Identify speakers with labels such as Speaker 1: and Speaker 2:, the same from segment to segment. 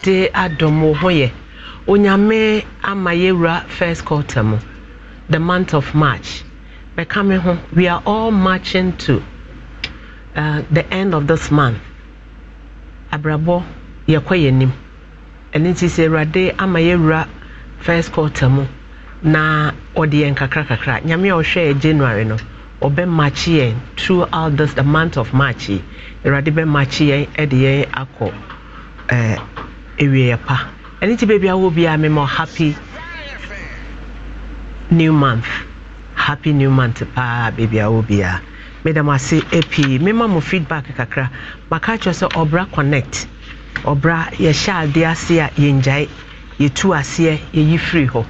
Speaker 1: de adom wo ho yɛ onyame ama yɛwura first quarter mu the month of march mɛka me ho we are all marching to uh, the end of this month abrabɔ yɛkɔ yɛ nim ɛno nti sɛ awurade ama yɛwura first quarter mu na ɔde yɛn kakra nyame a ɔhwɛ january no ɔbɛmakye yɛn throughout this the month of march yi awurade bɛmakye yɛn de yɛn akɔ Uh, awieeɛ pa ɛno nti baabi awɔ biara mema happy new month happy new month paa baabi awɔ biara meda mo ase pii mema mo feedback kakra maka kyerɛ sɛ ɔbra connect ɔbra yɛhyɛ adeɛ ase a yɛngyae yɛtu aseɛ yɛyi firi hɔ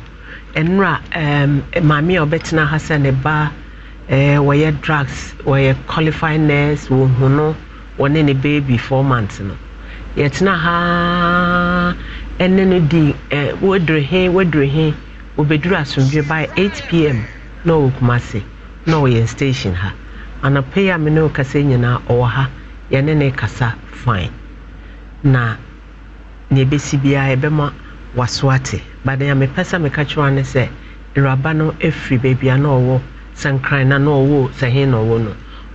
Speaker 1: ɛnora um, maame a ɔbɛtena ha sɛ ne ba eh, wɔyɛ drugs wɔyɛ qualified nurse wɔhu no wɔne ne baby four months no yɛtena haa ɛne no di ɛ wodere he wodere he obeduru asomdwe by 8pm na ɔwɔ kumase na ɔyɛ station ha anapa yi a me ne kasa nyinaa ɔwɔ ha yɛne ne kasa fine na nea ɛbɛsi biara ɛbɛma waso ate baden a mepɛ sɛ meka kyerɛ ne sɛ nwuraba no efiri beebi a na ɔwɔ sankran na na ɔwɔ sahin na ɔwɔ no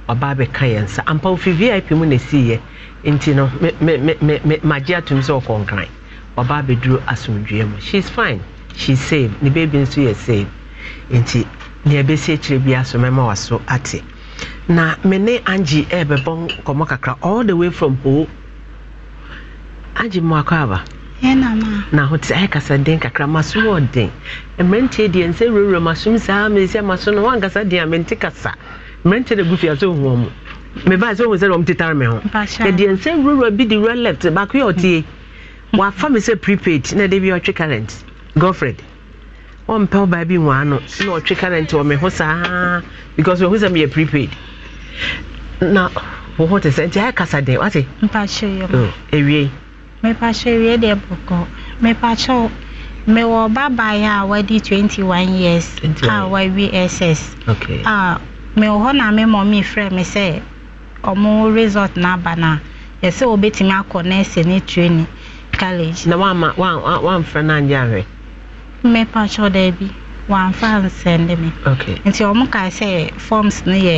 Speaker 1: ɔbaa bɛka yɛn nsa ampa ofi vip mu na yɛ. nti no magye atom sɛ ɔkɔnkran ɔba abɛduru asomdwea mu she's fine she's safe ne baby nso yɛ safe nti nea ɛbɛsi akyirɛ bi aso mɛma waso ate na me ne angye ɛrebɛbɔ nkɔmmɔ kakra all the way from hoo angye mmoakɔ aba na ho te ayɛ kasa den kakra maso wɔ den mmeranteɛ deɛ nsɛ wurawura masom saa mesɛ maso no woankasa den a mente kasa mmeranteɛ na gu fia sɛ ohua mu meba sɛ ohun sɛ ɔmo tetare mi ho ɛdi nsɛm rura bi di rura left baako yɛ ɔtie wafa mi sɛ prepaid na ɛde bi ɔtwe current girlfriend ɔmpɛ ɔbaa bi wɔn ano na ɔtwe current wɔ mi ho saa because ohun sɛ mi yɛ prepaid na wɔ hɔ te sɛ nti ayɛ e kasa dɛ wate. mpakyɛ yɛ mo oh, ewie.
Speaker 2: mepakyɛ ewie deɛ bɔkɔ mepakyɛ mewɔ babaayewa a wadi twenty one years a wawie ss a mewɔ hɔ na me mɔ mi frɛ me sɛ. ọmụmụ resọt na-aba na yɛsɛ wobɛtumi akọ nɛɛsɛ ne training kaleji. na
Speaker 1: wama wamfrɛ no anyɛ ahwɛ
Speaker 2: mmepa kyɛw daa bi wamfa nsɛnde me nti ɔmo ka sɛ forms no yɛ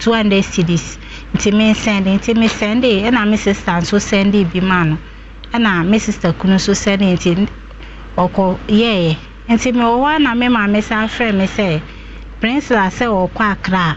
Speaker 2: 200 cds nti mensɛnde nti mesɛnde ɛna me sister nso sɛnde bi ma nọ, ɛna e me sister kunu nso sɛnde nti ɔkɔ yɛɛyɛ nti mewɔ hɔ na me maame sa frɛ me sɛ prinsila sɛ ɔkɔ akra a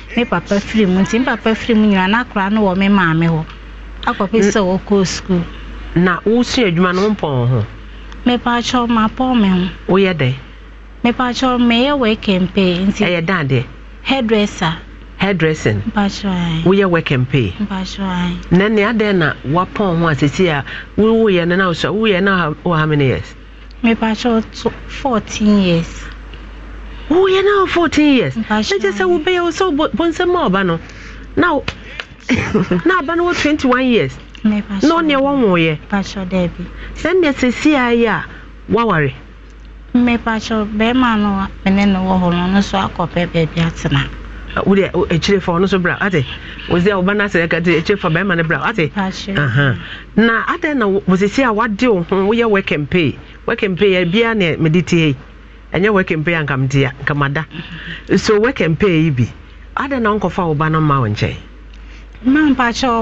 Speaker 2: me papa firi mu nti me papa firi mu nyinaa n'akora no wɔ me maame hɔ akɔpɛ mm. sɛ wɔkɔ sukuu. na wosua adwuma no mpɔn ho. mepaakyɛw ma pɔn me ho. woyɛ dɛ. meyɛ wɛkɛmpe nti. ɛyɛ dan deɛ. hairdresser.
Speaker 1: hairdressing. woyɛ wɛkɛmpe. na nea na ho a no na wosua no wɔ how many
Speaker 2: years. fourteen years. woyɛ na 14 years
Speaker 1: ɛgye sɛ wobɛyɛ wo sɛ bonsɛm ma ɔba no na na aba no
Speaker 2: twenty-one years na ɔneɛ wɔwoyɛ sɛ nneɛ sɛsie ayɛ a woaware mmepakyɛ bɛrima no mene ne wɔ hɔ no ɔno so akɔpɛ baabi atena
Speaker 1: wode akyire fa ɔno so bra ate wosɛ a woba no asɛ kate akyire fa bɛrima no bra ate na adɛn na wosɛsie a wade wo ho woyɛ wɛkɛmpee wɛkɛmpee biaa ne mede tie ɛnyɛ wɛkɛmpe a nkamdea nkamada so wɛkɛmpe yi bi adɛn na nkɔfa wo ba no ma wo nkyɛn
Speaker 2: mampakyɛw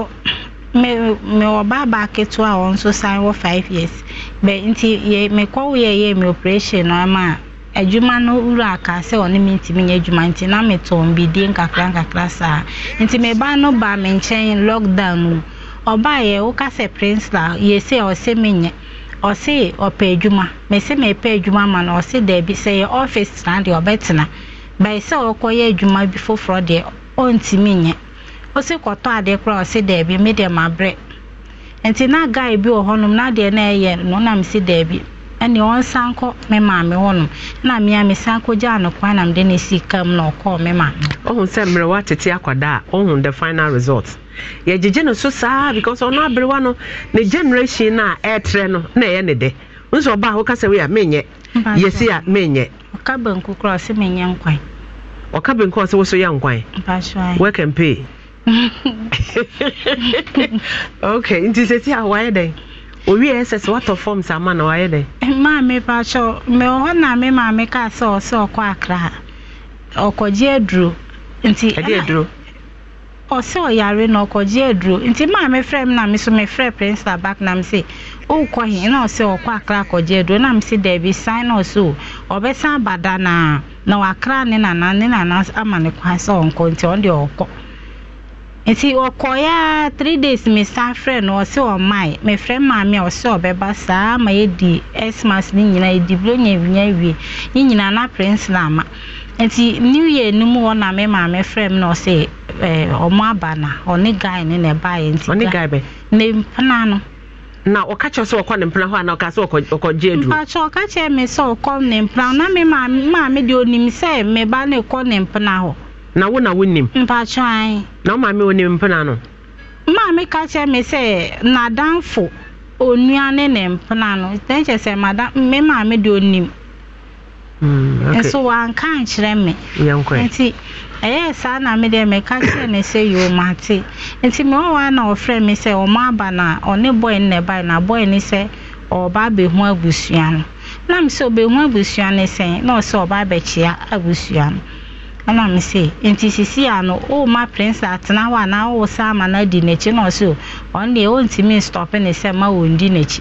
Speaker 2: mewɔ baabaa ketewa a wɔn nso san wɔ five years bɛ nti mekɔwo yɛyɛ me operation no ama a adwuma no wura aka sɛ ɔne me ntumi nyɛ adwuma nti na metɔn bidie nkakra nkakra saa nti meba no baa me nkyɛn lockdown mu ɔbaa yɛ woka sɛ prince la yɛsɛ ɔsɛ menyɛ ɔse ɔpɛ adwuma mɛsɛ mɛpɛ adwuma ma no ɔse daabi sɛ yɛ ɔfis tena deɛ ɔbɛtena bɛyɛ sɛ ɔkɔyɛ adwuma bi foforɔ deɛ ɔntumi nyɛ ɔse kɔtɔ adeɛ kora ɔse daabi me deɛ mabrɛ nti na guy bi wɔ hɔnom na deɛ na ɛyɛ no nam si daabi ɛne ɔnsan kɔ me maame hɔnom na mea mesan kɔgyaa no kwan na mede ne sika mu na ɔkɔɔ me maame
Speaker 1: ɔhu sɛ mmerɛ woatete akwadaa a ɔhu the final result yɛgyegye no so saa because ɔno aberewa no ne generation no a ɛɛtrɛ no na ɛyɛ ne dɛ nso ɔba a woka sɛ wei a menyɛ yɛsi a menyɛ
Speaker 2: ɔka banku kora ɔsɛ menyɛ nkwan
Speaker 1: ɔka banku a ɔsɛ wo so yɛ nkwan work and pay okay nti sɛsi a wayɛ dɛn owie ẹ sẹsẹ wàtọ fọms ama na wàyẹ dẹ.
Speaker 2: maame pàṣọ mẹ ọ na mi maame ká sọ ọsọ ọkọ akra ọkọjẹ eduro nti ẹdí eduro. ọsẹ ọyàrá na ọkọjẹ eduro nti maame frẹ m na mi so mi frẹ prince abak na mi sẹ ọkọ hin na ọsẹ ọkọ akra ọkọjẹ eduro na mi sẹ dẹbi sign ọsọ ọbẹ sàn abada na na wakra ne nana ne nana ama ne kwan sẹ ọnkọ nti ọ dị ọkọ. nti ọkọ ya three days mr sa frɛ no ɔsɛ ɔmae mefrɛ maame a ɔsɛ ɔbɛba saa ma yɛdi xmas ne nyinaa yɛdi bulonya awia ewie ne nyinaa na prince na ama nti new year no mu na me maame frɛ m na ɔsɛ eh, ɔmo aba na ɔne guy ne na ɛbaeɛ nti ɔne guy bɛ ne mpena no
Speaker 1: na ɔka kyerɛ sɛ ɔkɔ ne mpena hɔ ana ɔka sɛ ɔkɔgye aduro
Speaker 2: mpakyɛ ɔka kyerɛ me sɛ ɔkɔ ne mpena na me maame deɛ onim sɛ meba ne kɔ ne mpena hɔ
Speaker 1: na wo na wonim mpatwan
Speaker 2: na womame wonim mpena no maame ka kyerɛ me sɛ nadamfo onua ne ne mpena no ɛn kyerɛ sɛ mada me maame deɛ onim mm, nso wanka nkyerɛ me nti ɛyɛ saa na me deɛ meka kyerɛ ne sɛ yoo mate nti me wɔwaa na ɔfrɛ me sɛ ɔmo aba na ɔne bɔe ne bae na bɔe ne sɛ ɔba abɛhu abusua no na me be ɔbɛhu abusua ne sɛn na ɔsɛ ɔba abɛkyea abusua no ɛna me se nti sisi ano ɔma prince atena hɔ a na ɔsa ama na di n'akyi na ɔse o deɛ ɔntumi stɔpe ne sɛ ma wɔndi n'akyi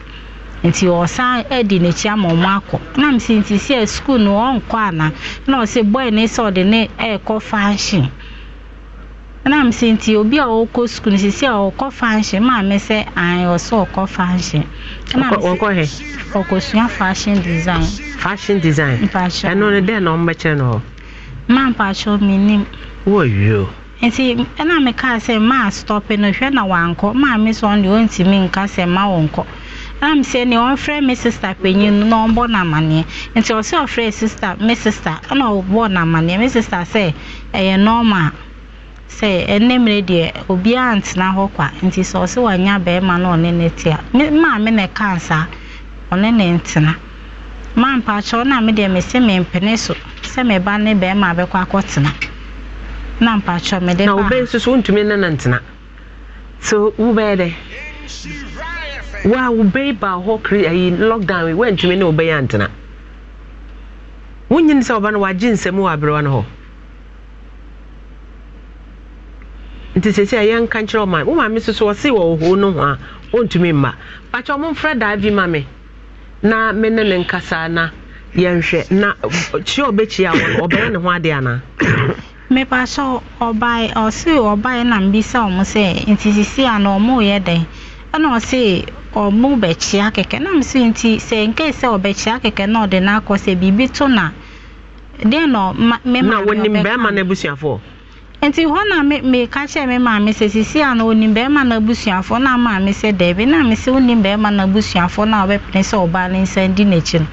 Speaker 2: nti ɔsan adi n'akyi ama ɔmo akɔ na me se nti si a sukuu no ɔnkɔ ana na ɔse boy ne sɛ ɔde ne ɛɛkɔ function na me se nti obi a ɔkɔ sukuu no sisi a ɔkɔ function maa sị sɛ an ɔkɔ function na me se ɔkɔ sua fashion design fashion design ɛno ne dɛn na ɔmo bɛkyerɛ na hɔ ma mpakyɛw menim wɔwie o nti ɛna mekaa sɛ maa stɔpe no hwɛ na wankɔ maa me sɛ ɔno deɛ ɔntumi nka sɛ ma wɔnkɔ ɛna me sɛ nea ɔmfrɛ me sista panyin no na ɔmbɔ n'amanneɛ nti ɔsɛ ɔfrɛ sista me sista ɛna ɔbɔ n'amanneɛ me sista sɛ ɛyɛ nɔɔma sɛ ɛnɛ mmerɛ deɛ obiara ntena hɔ kwa nti sɛ ɔsɛ wanya bɛrima na ɔne ne tea maa me na ɛkaa ɔne ne ntena ma mpakyɛw na me deɛ mese mempene so sɛ me ne bɛrima abɛkɔ akɔtena na mpakyɛw mede na wobɛn
Speaker 1: nso so wontumi ne no so wobɛyɛ dɛ wo wobɛyi baa hɔ kre lockdown yi woantumi ne wobɛyɛ antena sɛ wɔba no wagye nsɛm wɔ no hɔ nti sɛ sɛ yɛnka nkyerɛ wo maame so so wɔse wɔ ɔhoo no ho a mma ɔmomfrɛ daa bi ma me na me nkasa na yɛn hwɛ na kyi ɔbɛkyi a ɔbɛyɛ ne ho adi ana.
Speaker 2: mepa sɛ ɔbae ɔse ɔbae na mbisa ɔmo sɛ nti sisi a na ɔmo yɛ dɛn ɛna ɔse ɔmo bɛkyia kɛkɛ na mo so nti sɛ nke sɛ ɔbɛkyia kɛkɛ na ɔde n'akɔ sɛ biribi to na deɛ na mema na wɔnim bɛrima no abusuafoɔ nti hɔ na me me ka me sisi a na onim bɛrima na abusuafoɔ na maame sɛ dɛbi na me sɛ bɛrima na abusuafoɔ na ɔbɛpene sɛ ɔbaa ne nsa di n'akyi no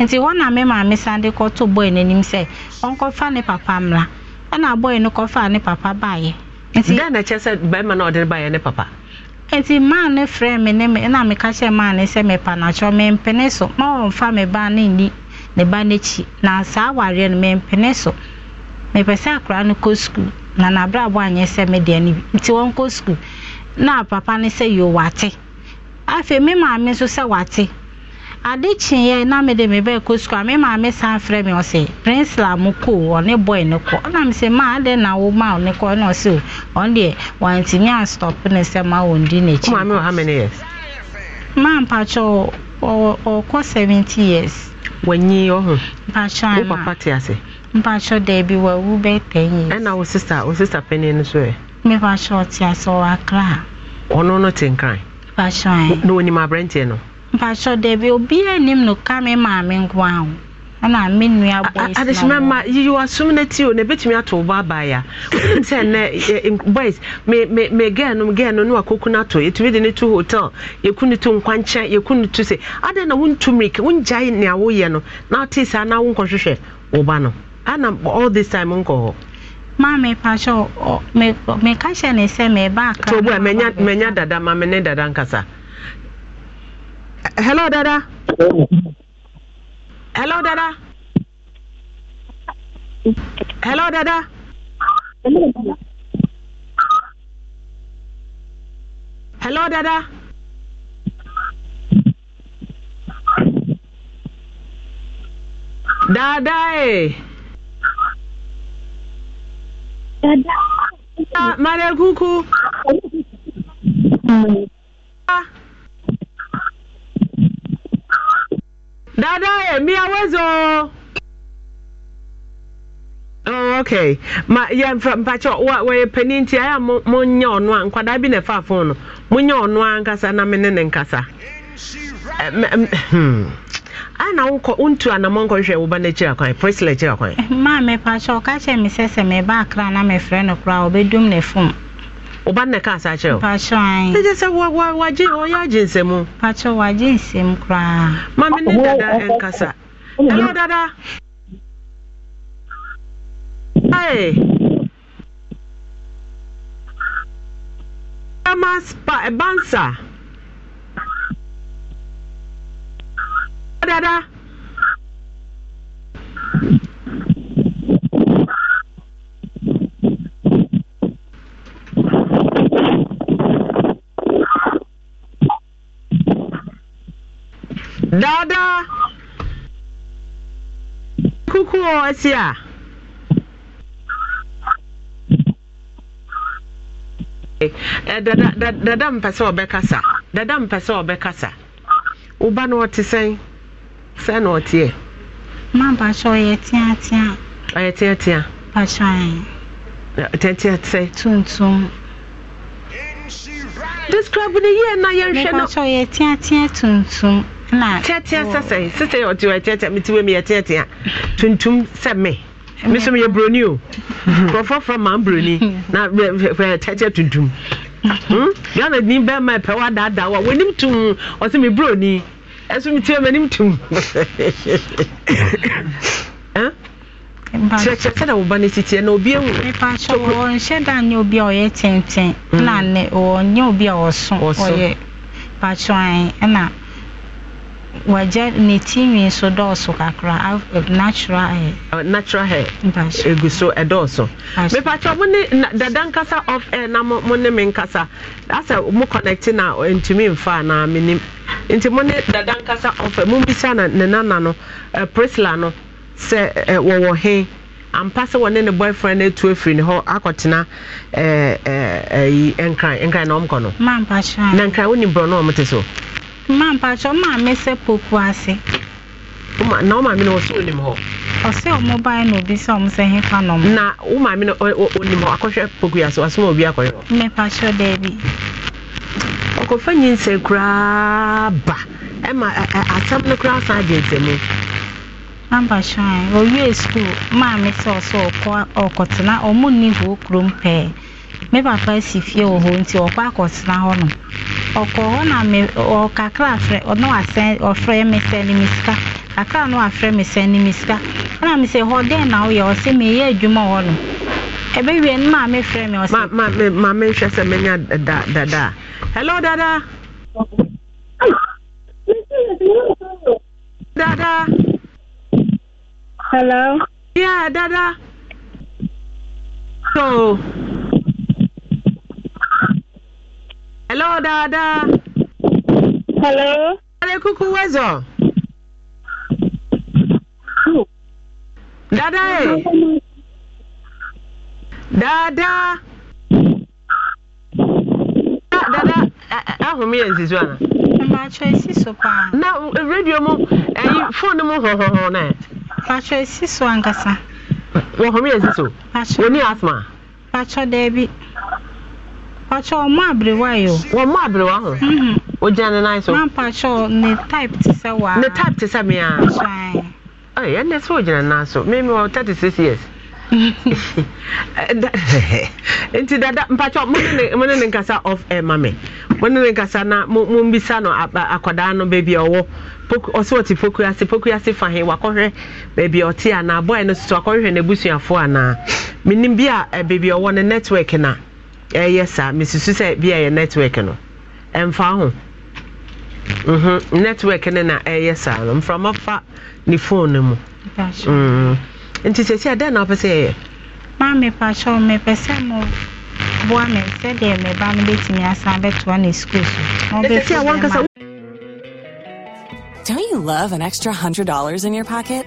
Speaker 2: nti hɔ na me maame san de kɔto n'anim sɛ ɔnkɔfa ne papa ɛna no kɔfa ne papa baayɛ. nti na kyerɛ sɛ bɛrima na ɔde baayɛ ne papa. nti maa ne frɛ me ne ɛna kyerɛ mepa me ba ne ni ne ba n'akyi na saa awareɛ no na n'abrabọ anyị sị media n'ibi nti wọn kọ na papa ne sị yo wate afei me maame nso sị wate ade kyeeɛ na me de me bɛɛ kɔ skul a maame san frɛ me Princilla prinsila mu ko ɔne bɔi Ọ kɔ ɔna me maa ade na ọ ma ɔne kɔ ɛna ɔsɛ ọ. ɔn deɛ wantumi anstɔp ne sɛ ma wɔn di n'akyi. maame Ọ how many years. maa mpatsɔ ɔkɔ seventy years. wɔnyi ɔho. mpatsɔ ana o papa te ase. mpatsɔ dɛbi wa wu bɛ ten yi. ɛna eh, wo sista wo sista pɛni ni so yɛ. Eh. mi patsɔ ɔti asɔ wa kra.
Speaker 1: ɔno no te nkran. patsɔ yɛ. na onim aberanteɛ eh. no.
Speaker 2: mpatsɔ dɛbi obi anim e no ka mi maame nko ahu ɛna mi nua ya. esi na adesima ma yiyi wa sum na ti o na ebetumi ato
Speaker 1: ɔbɔ abaya wɔn sɛ nɛ boys me me me gɛɛ no gɛɛ no no akoko na to etumi de ne to hotel yeku ni tu nkwankyɛn yeku ni tu se adan na wɔn tu mirika wɔn ni nea
Speaker 2: wɔyɛ no na ɔte saa na wɔn nkɔhwehwɛ ɔba no ana all this time nkɔ hɔ maame pakyɛ meka hyɛ ne sɛ meba akatobu a manya dada
Speaker 1: ma me ne dada nkasa
Speaker 2: hello dada
Speaker 1: hello dada hello dada
Speaker 3: hello dada dada eh Ah, Mara kuku.
Speaker 1: Ah. Dada emi awezo. Oh, okay. Ma ya mpacho wa we peninti aya ọnụ ono ankwada bi na fa phone. Monye
Speaker 2: ono ankasa na mene nkasa.
Speaker 1: Eh, hmm. ana wokɔ wontu anamɔ nkɔhwɛ woba no akyira kwan prisla akyira kwan
Speaker 2: maa mepa kyɛ ɔka kyɛ me sɛ sɛ meba akra na mefrɛ no koraa ɔbɛdum ne fom woba no ka asa kyerɛ wopakyɛɛgye sɛ wagye ɔyɛ agye nsɛmu pakyɛ wagye nsɛm koraa ma
Speaker 1: dada dada spa ɛbansa Eh, eh, dada. dada kuku ọsị a. dada dada mpɛ sɛ ɔbɛkasa dada mpɛ sɛ ɔbɛkasa woba na ɔte sɛn sɛ na
Speaker 2: ɔteɛ ma bakyɛ ɔyɛ teatea ɔyɛ teatea bakyɛ teatea sɛ tuntum describe ne yie na yɛnhwɛ no bakyɛ ɔyɛ teatea tuntum na teatea sɛ sɛ sɛ ɔte
Speaker 1: ɔyɛ teatea mete wɔ mu yɛ teatea tuntum sɛ me me so meyɛ buroni o nkurɔfoɔ fra ma buroni na teatea tuntum hmm? ghana ni bɛrima ɛpɛ wɔ adaadaa wɔ wɔnim tum ɔsɛ me buroni ɛso metia m'anim tim kyerɛkyerɛ sɛ na woba no sitiɛ na obi ahu
Speaker 2: mepakyɛ wɔnhyɛ da nyɛ obi a ɔyɛ tenten na ne wɔnyɛ obi a ɔso ɔyɛ pakyɛ ɛna wagya ne nso dɔɔso kakra eh, natural hair. Uh, natural hair
Speaker 1: egu so ɛdɔɔso eh, mipatsɔ eh, mo ne dada nkasa off air na mo ne nkasa asɛ mo connect na ntumi nfa na mi nim nti mo dada nkasa off air mo bisa na ne nana no prisla no sɛ wɔwɔ ampa sɛ wɔne ne boyfriend etu efiri ne hɔ akɔtena ɛɛ ɛɛ ɛyi na ɔmo kɔ no. na nkran wo ni
Speaker 2: mma mpakyɛ ɔma mesɛ popo ase na ɔsɛ onim hɔ ɔsɛ ɔmo ban na obi sɛ ɔmo sɛ fa na wo maame
Speaker 1: e, e, no hɔ akɔhwɛ poku ase wasoma obi akɔhwɛ hɔ
Speaker 2: mepakyɛ daabi ɔkɔfa nyinsɛ koraa ba ɛma asɛm no koraa san agye ntɛmu mampakyɛ a sukuu ɔsɛ ɔkɔ ɔkɔtena ɔmo nni hɔ kurom pɛɛ Oh, me papa si fie wɔ hɔ nti ɔkɔ akɔtena hɔnom ɔkɔ hɔ na me ɔkakra afrɛ ɔno asɛn ɔfrɛ me sɛne me sika kakra no afrɛ me sɛne me sika ɛna me sɛ hɔ dɛn na woyɛ ɔsɛ meyɛ adwuma hɔ no ɛbɛwie no maa mefrɛ me ɔsɛ ma oh, Ma ma menhwɛ sɛ menya dada
Speaker 1: hello dada dada hello yeah dada so Hello, Dada. Hello. Hello, Kuku Wezo. Oh. Dada. eh Dada. Dada, ahụ m ihe ana. Mmacho esi so paa. Na e, redio mu, eyi phone
Speaker 2: mu hụhụhụ na. Mmacho esi so ankasa. Wọhụ m ihe nzizi so. Mmacho. Oni asma. Mmacho debi. Pacho, ọmọ abiriwa yi o. Wọ́n mọ abiriwa hàn. Mhm. O jẹ́ ẹni náà sọ. Máa pacho ne type ti sẹ́ wàá. Ne type ti sẹ́ mi à.
Speaker 1: Ẹ ẹ ndé sọ o jẹ́ ẹni náà sọ. Mímí wọ thirty six years. Mhm. Nti dada mpacho mo ne ne nkasa off air eh, ma mi. Mo ne ne nkasa na mo mbisa no akwadaa no beebi a eh, ọwọ. Ọsọ ọtí fokuasi fokuasi fahin wakọhwẹ beebi ọtí àná abọ́ ẹ̀ no soso akọhwẹ n'ebusuafo àná. Minim bi a beebi ọwọ ne network na. ɛyɛ saa mesusu sɛ network no ɛmfa ho mm-hmm. network no na ɛyɛ saa no mframa fa ne phone mu mm-hmm.
Speaker 2: nti sɛsi adɛn na wopɛ sɛ yɛyɛ maa kyɛw sɛ sɛdeɛ asan bɛtoa ne
Speaker 4: so Don't you love an extra $100 in your pocket?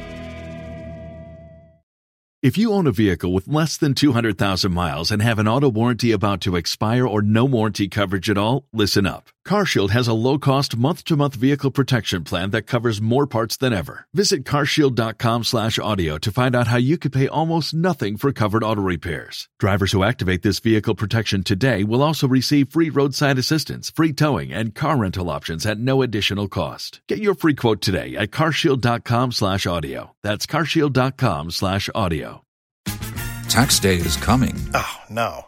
Speaker 5: If you own a vehicle with less than 200,000 miles and have an auto warranty about to expire or no warranty coverage at all, listen up. CarShield has a low-cost month-to-month vehicle protection plan that covers more parts than ever. Visit carshield.com/audio to find out how you could pay almost nothing for covered auto repairs. Drivers who activate this vehicle protection today will also receive free roadside assistance, free towing, and car rental options at no additional cost. Get your free quote today at carshield.com/audio. That's carshield.com/audio. Tax day is coming. Oh
Speaker 6: no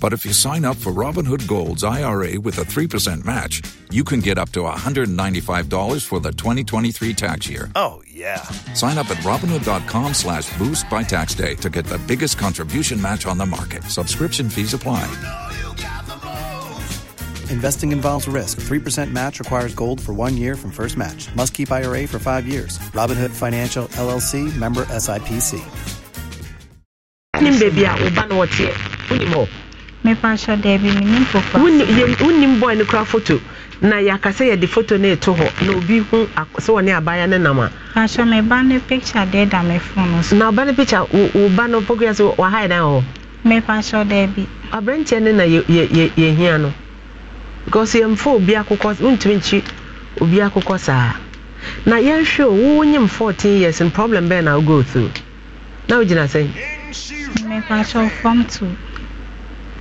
Speaker 6: but if you sign up for Robinhood Gold's IRA with a 3% match, you can get up to $195 for the 2023 tax year. Oh, yeah. Sign up at Robinhood.com slash boost by tax day to get the biggest contribution match on the market. Subscription fees apply. You know you Investing involves risk. 3% match requires gold for one year from first match. Must keep IRA for five years. Robinhood Financial LLC member SIPC.
Speaker 1: wonim bɔe no kora foto na yɛaka yɛde foto no ɛto hɔ na obi hu sɛ wɔne abaya nam a
Speaker 2: na ɔba no picture wo ba no pokua sɛ dan hɔ
Speaker 1: no na yɛhia no because yɛmfa obi akokɔ wontumi nkyi obi akokɔ saa na yɛnhwɛ o wonyim 14 years n problem bɛɛ na wogo through na wogyina sɛn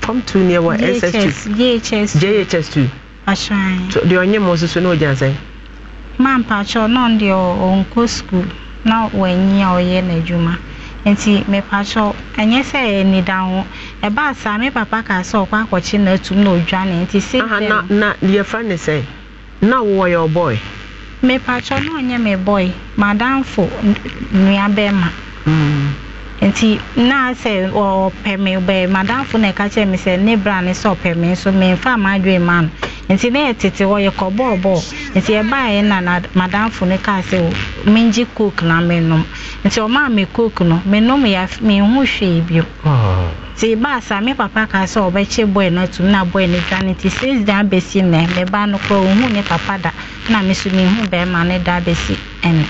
Speaker 1: form two ni ɛwɔ ss two jhs jhs two ahyɛn deɛ ɔnyɛ mu nso so na ogya nsɛn.
Speaker 2: maa mpatsɔ náà deɛ ɔnkɔ sukuu na wɔanyi a ɔyɛ n'adwuma nti mepatsɔ ɛnyɛ sɛ ɛyɛ nida ho ɛbaa saa me papa kaa sɛ ɔkɔ akɔkye n'atum na odwane nti se. aha na
Speaker 1: na yɛfrɛ ne sɛ na wɔwɔ yɛ ɔbɔɛ.
Speaker 2: mepatsɔ náà ɔnyɛ me Madam madamfo nua bɛɛ ma. Mm. nti na sɛ ɔpɛ me bɛɛ madamfo na ɛka kyerɛ me sɛ ne bra ne sɛ ɔpɛ me nfa ama maadwene ma no nti na yɛtete hɔ yɛkɔ bɔɔbɔɔ nti yɛbaeɛ na madamfo no kaa sɛ oh, mengye coke na menom nti ɔmaa me coke no menom menho hwee bio ah. nti baasa me papa kaa sɛ ɔbɛkye bɔɛ na atum na bɔɛ no dwane nti six da abɛsi nnɛ meba no koraa ɔhu ne papa da na me so menhu bɛrima ne da abɛsi ɛnɛ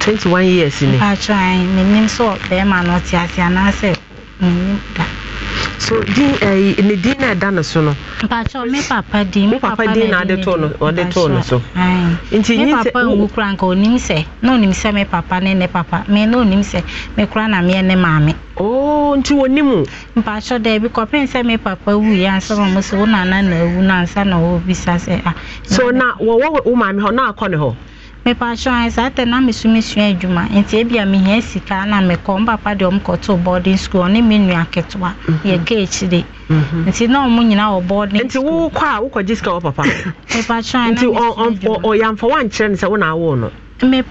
Speaker 1: twenty one years ni.
Speaker 2: atwa ah, anyị menim sọ bẹẹma na ọtí ase anaasẹ menim da.
Speaker 1: so din ɛyi eh, ne din na ɛda ne so no.
Speaker 2: mpatsɔ mi papa din mi papa din na ɔde too no
Speaker 1: ɔde too no so.
Speaker 2: nti nyi sɛ mi papa nwu kura nka onim sɛ na onim sɛ mi papa ne ne papa mi na onim sɛ mi kura na mi ne maame. ooo oh, nti wɔ nim. mpatsɔ dɛ ebi kɔpem sɛ mi papa wu yi ansa ma mo sɛ wo nana na ewu na ansa na ɔwɔ bisa sɛ a. Ah. so na
Speaker 1: wɔwɔ wo maame hɔ na akɔ ne hɔ.
Speaker 2: mepatwa anyị saa tɛ na mesumesua adwuma nti ebia mehia sika na mekɔ mpapa deɛ ɔmo boarding school ɔne me nua ketewa mhm. yɛ mhm. nti na ɔmo nyinaa wɔ boarding school. nti wokɔ a sika papa. nti wankyerɛ ne sɛ awo no. na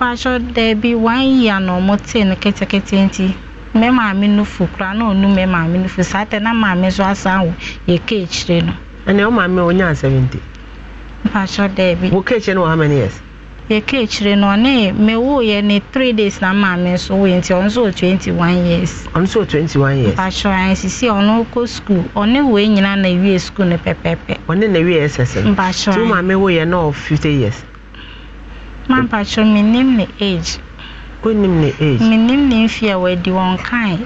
Speaker 2: ɔmo te ketekete nti mme maame no fu na mme maame no saa tɛ na maame nso asan yɛ no. yɛka akyire no ɔne mewooyɛ ne three days na maame nso woyɛ nti ɔno nso wɔ twenty one years
Speaker 1: ɔno twenty
Speaker 2: one years mpakyɛ ɔn sisi ɔno kɔ school ɔne wei nyinaa na wie school no pɛpɛpɛ ɔne na wie ɛsɛsɛ no mpakyɛ ɔn tí maame wooyɛ fifty years ma mpakyɛ ɔn menim ne age onim ne age menim ne mfe a wadi wɔn kan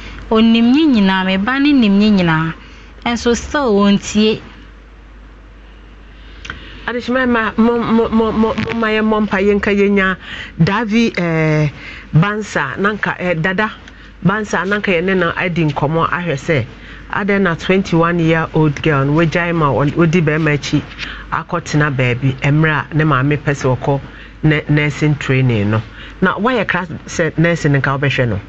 Speaker 2: onim ne nyinaa me ba no nim ne nyinaa nso sɛ wɔntie
Speaker 1: adehyemama momma yɛmmɔ mpa yɛnka yɛnya davi eh, bansa nanka eh, dada bansa nanka yɛne no adi nkɔmmɔ ahwɛ sɛ adɛn na 21 year old girl no wɔgyae ma wɔdi bɛrima akyi akɔtena baabi mmerɛ a ne maame pɛ sɛ ɔkɔ nursing training no na woayɛ kra sɛ nursing nka wobɛhwɛ no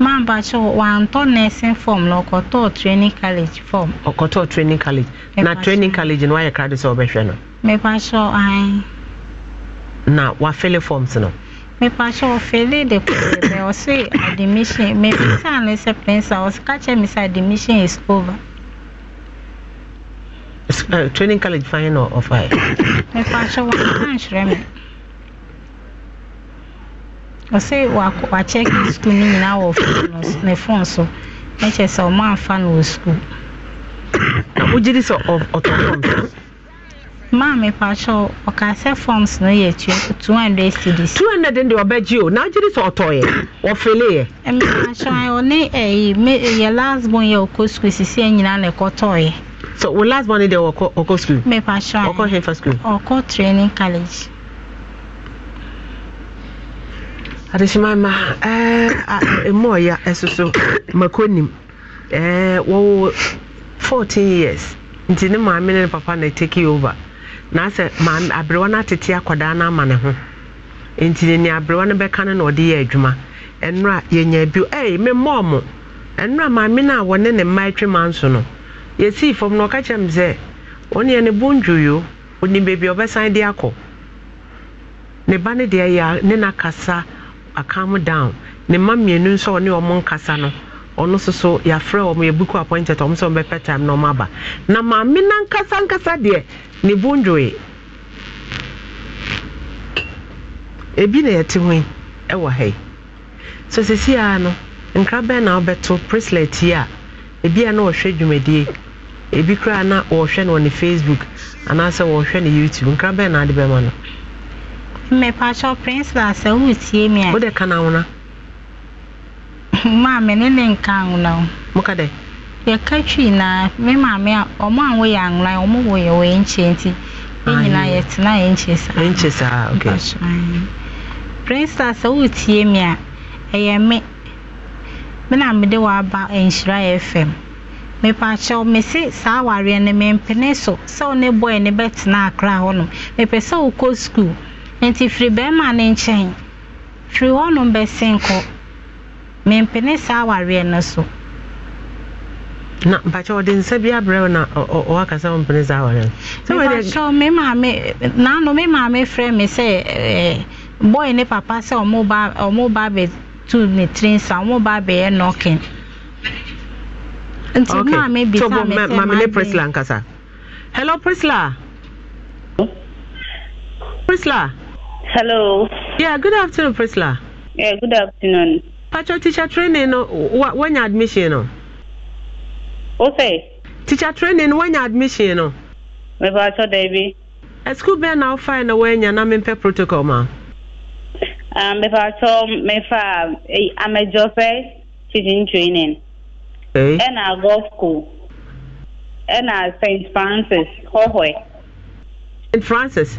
Speaker 2: mampakyɛ wantɔ nursing form na ɔkɔtɔɔ training college form.
Speaker 1: ɔkɔtɔɔ training college na training college no wayɛ krade sɛ ɔbɛhwɛ no.
Speaker 2: mepakyɛ an.
Speaker 1: na wafele forms no.
Speaker 2: mepakyɛ ɔfele de kɔɛ bɛ ɔse admission mebisa ne sɛ pɛnsa ɔsika kyɛ me sɛ admission is over.
Speaker 1: Uh, training college fan na ɔfa yɛ.
Speaker 2: mepakyɛ wɔn ankyerɛ me. ɔse wakyɛke sukuu no nyinaa wɔ ne fon so na kyerɛ sɛ ɔma amfa no wɔ sukuu na wogye di sɛ ɔtɔ forms maa mepakyɛw ɔka sɛ forms no yɛ 200 cds 200 deɛ ɔbɛgye o na wogye di sɛ ɔtɔeɛ wɔfeleeɛ mepakyɛw ɔne ɛyi yɛ last born yɛ ɔkɔ sukuu sisi nyinaa na ɛkɔtɔeɛ
Speaker 1: so wo last born no ɔkɔ sukuu mepakyɛw ɔkɔ hefa sukuu
Speaker 2: ɔkɔ training adehyemama
Speaker 1: ɛmu ɔya ɛso so mako nim eh, wɔwɔ fourteen years nti ne maame ne papa na take over na asɛ maame aberewa na atete akwadaa na ama ne ho nti ne nea no bɛka no na ɔde yɛ adwuma ɛnora yɛnya bi ɛɛ me mmɔɔ mo ɛnora maame na a wɔne ne mma atwe ma nso no yɛsii fam na ɔka kyerɛ me sɛ ɔne yɛ ne bo ndwoyo ɔnim baabi a ɔbɛsan de akɔ ne ba no deɛ yɛ ne nakasa calm down ne mma mmienu nso ɔne ɔmo nkasa no ɔno nso so yɛafrɛ ɔmo buku appointed ɔmo sɛ ɔmo bɛpɛ time na ɔmo aba na maame na nkasa nkasa deɛ ne bo ndwoe ebi na yɛte ho ɛwɔ ha yi so sisi ara no nkra na ɔbɛto bracelet yi a ebi a na ɔhwɛ dwumadie ebi koraa na ɔhwɛ no wɔ ne facebook anaasɛ ɔhwɛ ne youtube nkra na ade bɛma no.
Speaker 2: mmepakyɛ principal sɛ tie me a wode ka no awona maame ne ne nka awona o moka dɛ yɛka twii na mme maame a ɔmo a woyɛ awona ɔmo woyɛ ya nche nti ɛnyinaa tena ya nche saa nche saa ok principal sɛ tie me a ɛyɛ me mme na mede waba nhyira fm mepakyɛw mese saa awareɛ no mempene so sɛ wo ne bɔɛ ne bɛtena akra hɔnom mepɛ sɛ wokɔ skuul nti firi bɛrima ne nkyɛn firi hɔnom bɛsen kɔ mempene saa awareɛ no so
Speaker 1: na mpakyɛ ɔde nsa bi abrɛ wo na ɔwakasa wo mpene saa awareɛ mepakyɛ
Speaker 2: me maame naano me maame frɛ me sɛ eh, boy ne papa sɛ ɔmo ba ɔmo ba abɛtu ne tiri nsa ɔmo ba abɛyɛ nɔkin nti okay. maame bisa so, me sɛ maame ne Priscilla nkasa hello Priscilla
Speaker 1: Priscilla. Hello. Yeah, good afternoon, Priscilla. Yeah, good afternoon. Patro teacher training when your admission no. Okay. Teacher training when your
Speaker 7: admission no. Me patro Debbie.
Speaker 1: Eh, a school bɛn na wofae na woanya na per protocol ma
Speaker 7: um, mepatɔ mefa amɛdzɔƒe teaching training ɛna hey. golf school ɛna st francis hɔhɔe st francis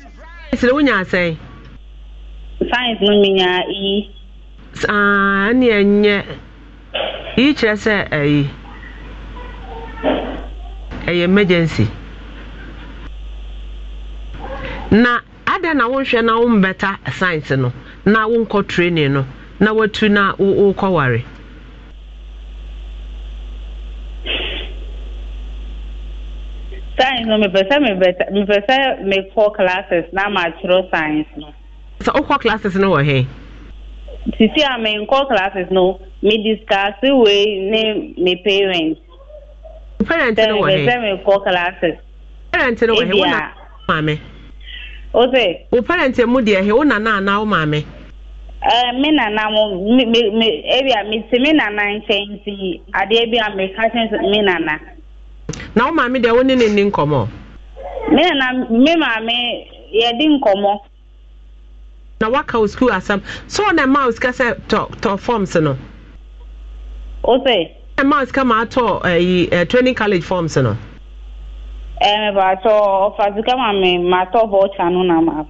Speaker 7: sɛ wonya asɛe science no menyaa eyi saa na enye
Speaker 1: eyi kyerɛ sɛ ɛyi emergency na ada na na wombɛta science no na wonkɔ training no na watu na
Speaker 7: science no mepɛ sɛ mepɛ sɛ mekɔ classes na makyerɛ science no. sɛ wokɔ oh, classes no wɔ eh, he. sisi a ah, menkɔ classes no me discuss wei ne me parent no eh, parent no wɔ he parent me nana mo me me ebi a me ti me nana nkyɛn ti adeɛ bi a meka kyɛn me nana. na wo maame deɛ wo ne ne nni nkɔmmɔ me na me ya yɛdi nkọmọ.
Speaker 1: na waka wo sukuu asɛm so na ɛma wo sika sɛ tɔ tɔ forms no o sɛ ɛma wo sika ma atɔ ɛyi eh, eh, training college forms no
Speaker 7: ɛɛ eh, baatɔ ɔfa sika ma me ma atɔ voucher no na ma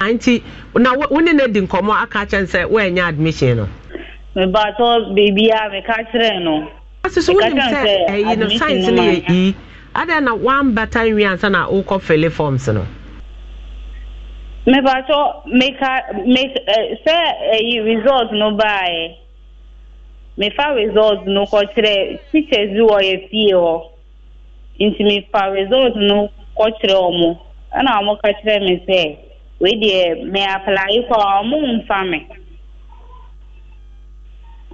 Speaker 7: anti ah, na wo ne ne di nkɔmmɔ aka kyɛn sɛ woanya admission no me baatɔ beebi a meka kyerɛ no ɔsi so wonim sɛ ɛyi no science no yɛ yi na one better nwi ansa na wokɔ fele forms no. mepatɔ meka me sɛ ɛyi result no baeɛ mefa result no kɔkyerɛ teachers bi wɔ yɛ fie hɔ nti mefa result no kɔkyerɛ wɔn ɛna wɔn ka kyerɛ me sɛ wei deɛ me apply kɔ wɔn mfa me.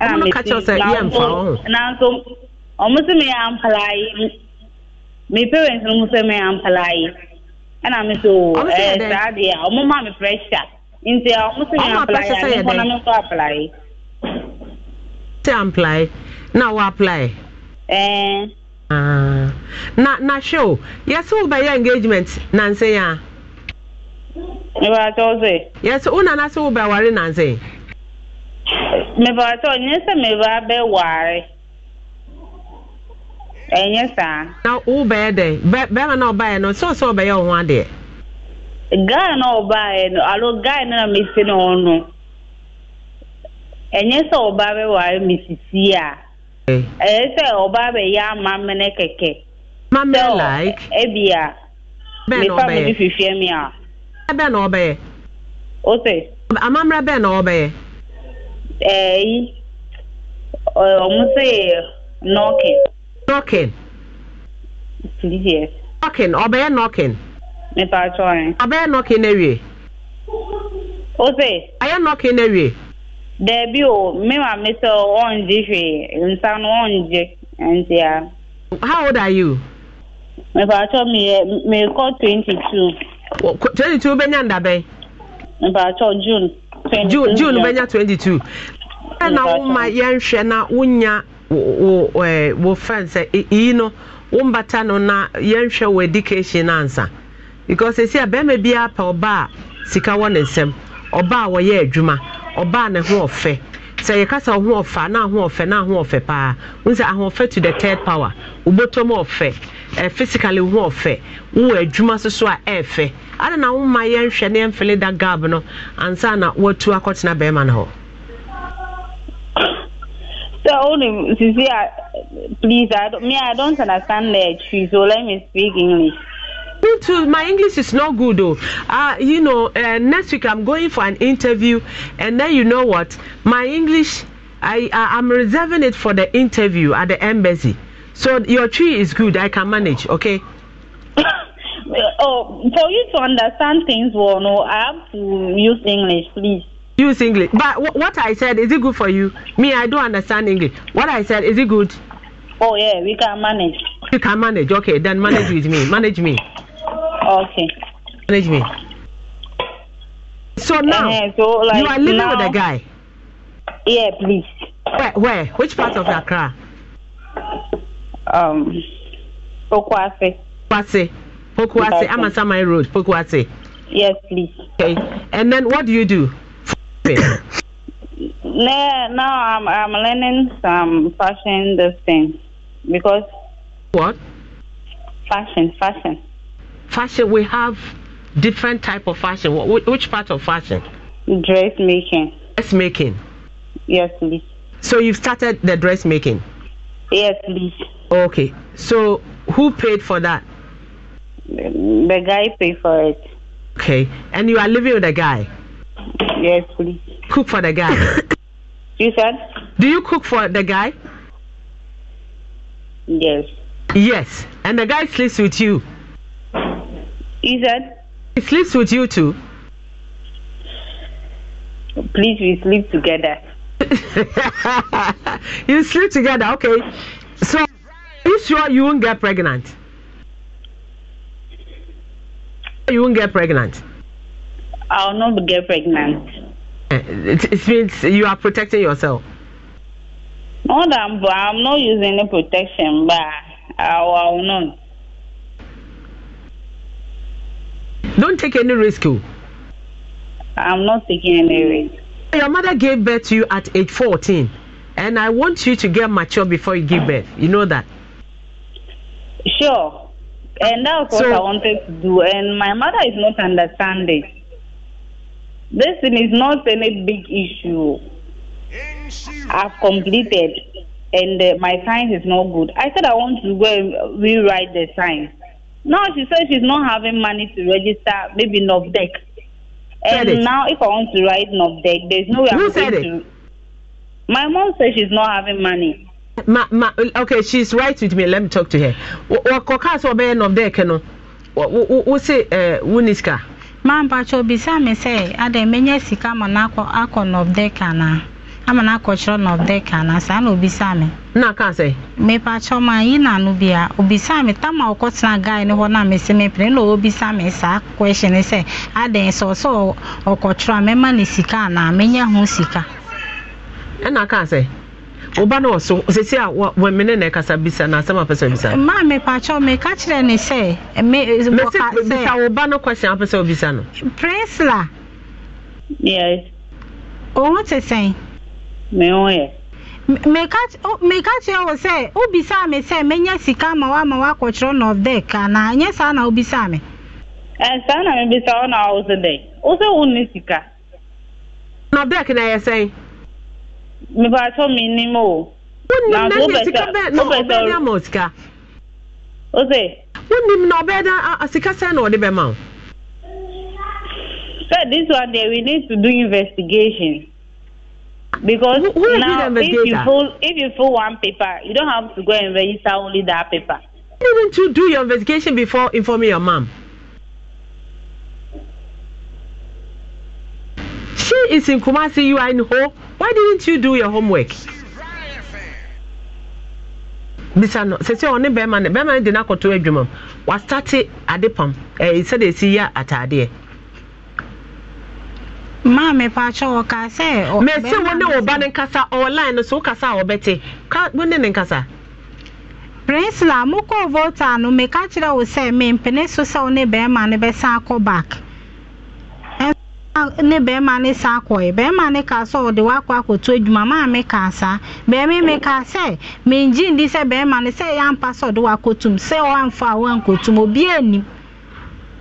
Speaker 4: ɛna mi ti
Speaker 7: nanso ɔmo sɛ mi yɛ ampala yi mi parents no mo sɛ mi yɛ ampala yi ɛna mi so ɛɛ saa deɛ ɔmo ma mi pressure nti ɔmo sɛ mi yɛ ampala yi a mi kɔ na mi kɔ ampala yi.
Speaker 1: ti yi na wɔ ampala yi. ɛɛ. na na hwɛ o yɛsɛ wo bɛyɛ engagement nanse ya. ìwà àtọ́sẹ̀. yɛsɛ wo nana sɛ wo bɛ wari nanse.
Speaker 7: mepatụ onye sị mebe abɛware ɛnyɛ saa. na wo bɛyɛ dɛ na no sɛ ɔsɛ ɔbɛyɛ ɔho adeɛ. guy na ɔbaeɛ no alo guy na mesi ne ho no ɛnyɛ sɛ ɔba bɛware me sisi a ɛyɛ sɛ ɔba bɛyɛ ama mene kɛkɛ. like. ebi a me a.
Speaker 1: na ɔbɛyɛ. o
Speaker 7: eyi ọmụ sị nọkin. nọkin. yes. nọkin ọ bụghị nọkin. mmepe achọ anyị. ọ bụghị nọkin ewie. ose. anyị nọkin ewie. debi o mmemme mmesa ọnji hwee nsa n'ọnji ntị a. how old are you. mmepe achọ m ihe mmekọ twenty two. twenty two benya ndabe. mmepe achọ june.
Speaker 1: june june bɛnya 22 ɛna woma yɛnhwɛ na wonya wo wo fɛn sɛ iyi no wo mbata no na yɛnhwɛ wo education ansa because esi a bɛrima biara pɛ ɔbaa sika wɔ ne nsam ɔbaa wɔyɛ adwuma ɔbaa ne ho ɔfɛ sɛ yɛka sɛ ɔho ɔfa na ahụ ɔfɛ na ahụ ɔfɛ paa wohu sɛ ahoɔfɛ to the third power wobɔtɔm ɔfɛ uh, physically ho ɔfɛ wowɔ adwuma so so a ɛɛfɛ ada na woma yɛnhwɛ ne yɛmfele da gab no ansa na watu akɔtena bɛrima no hɔ
Speaker 7: So, only, Sisi, please, I don't, me, I don't understand the issue, so let me speak English. me too. My English is not good, though. Uh, you know, uh, next week
Speaker 1: I'm going for an interview, and then you know what? My English, I, I I'm reserving it for the interview at the embassy. So your tree is good. I can manage. Okay.
Speaker 7: oh, for you to understand things well, no, I have to use English, please. Use English. But w- what I said, is it good for you? Me, I don't understand
Speaker 1: English. What I said, is it good? Oh, yeah, we can manage. You can manage. Okay, then manage with me. Manage me. Okay. Manage me.
Speaker 7: So now, uh, so, like, you are living now, with a guy? Yeah, please. Where? Where? Which part of Accra? Um, Pokwase.
Speaker 1: I'm on Amasamai Road. Pokwase. Yes, please. Okay. And then what do you do? now,
Speaker 7: now I'm I'm learning some fashion this thing because what? Fashion, fashion.
Speaker 1: fashion we have different type of fashion which, part of fashion
Speaker 7: dressmaking dressmaking yes
Speaker 1: please so you've started the dressmaking yes please okay
Speaker 7: so who paid for that the guy paid for it okay
Speaker 1: and you are living with a guy yes please cook for the guy you said do you cook for the guy yes yes and the guy sleeps with you you said? He sleeps with you too.
Speaker 7: Please, we sleep together.
Speaker 1: you sleep together, okay. So, are you sure you won't get pregnant?
Speaker 7: You won't get pregnant. I'll not get pregnant.
Speaker 1: Eh, it, it means you are protecting yourself.
Speaker 7: No, I'm, I'm not using any protection, but I will not.
Speaker 1: Don't take any risk. Oh. I'm not taking any risk. Your mother gave birth to you at age 14, and I want you to get mature before you give birth. You know that?
Speaker 7: Sure. And that's what so, I wanted to do. And my mother is not understanding. This thing is not any big issue. I've completed, and uh, my science is not good. I said I want to go and rewrite the science. No, she said she's not having money to register, maybe NovDeck. And now, if I want to write NovDeck, there's no way Who I'm said going it? to. My mom says she's not
Speaker 1: having money. Ma, ma, okay, she's right with me. Let me talk to her. Wakɔka sɛ ɔbɛyɛ NovDeck no, wose eh, wo ni sika?
Speaker 2: Maa mpatwa obisa mi sɛ, adan menye sika ma n'akɔ akɔ NovDeck anaa? ama na akɔkyerɛ no ɔbɛka na saa na obisa me na ka sɛ mepa kyɛ ma yi na no bia obisa me tam a ɔkɔtena guy ne hɔ na mese mepene na ɔbisa me saa question sɛ adɛn sɛ ɔsɛ ɔkɔkyerɛ a mɛma ne sika e na menya ho sika
Speaker 1: ɛna ka sɛ woba no ɔso sɛsi a wɔmene na ɛkasa bisa na asɛm apɛ sɛ bisa
Speaker 2: ma mepakyɛ meka kyerɛ ne sɛ bisa
Speaker 1: wo ba no question apɛ sɛ wobisa no
Speaker 2: presla yes ɔho te sɛn me ho yɛ meka kyerɛ wo sɛ wobisaa me sɛ menya sika ma woama woakɔkyerɛ north dek anaa ɛnyɛ saa na wobisaa me
Speaker 7: e, saa na mebisa wo na wo so dɛn wo sɛ wonni sika north na ɛyɛ sɛn mepatɔ mennim o wonnimnasikaama sika wo sɛ
Speaker 1: wonnim na ɔbɛɛda sika sɛn na ɔde bɛma wo sɛ this one there
Speaker 7: we need to do investigation because Who now if you fill if you fill one paper, you don't have to go and register only that paper. Didn't you do your investigation
Speaker 1: before informing your mom? She is in Kumasi, you are in Ho. Why didn't you do your homework? bisa no sɛ sɛ ɔne bɛrima no bɛrima no de no akɔto adwuma m wastate ade pam ɛɛ sɛdeɛ ɛsi yɛ ataadeɛ
Speaker 2: maa mepakyɛ ɔka sɛ mɛsi wo ne wo ba ne nkasa ɔwɔline no so wokasa
Speaker 1: a wɔbɛte wo ne ne nkasa
Speaker 2: prinsila mokɔɔ volta no meka kyerɛ wo sɛ mempene so sɛ wo ne bɛrima no bɛsan akɔ back ne bɛrima ne sa akɔɛ bɛrima ne ka sɛ ɔde wakɔ akɔto adwuma maa me ka saa bɛrima me ka sɛ mengye ndi sɛ bɛrima no sɛ ɛyɛ ampa sɛ ɔde wakɔtum sɛ ɔamfa a woankɔtum obiaa nim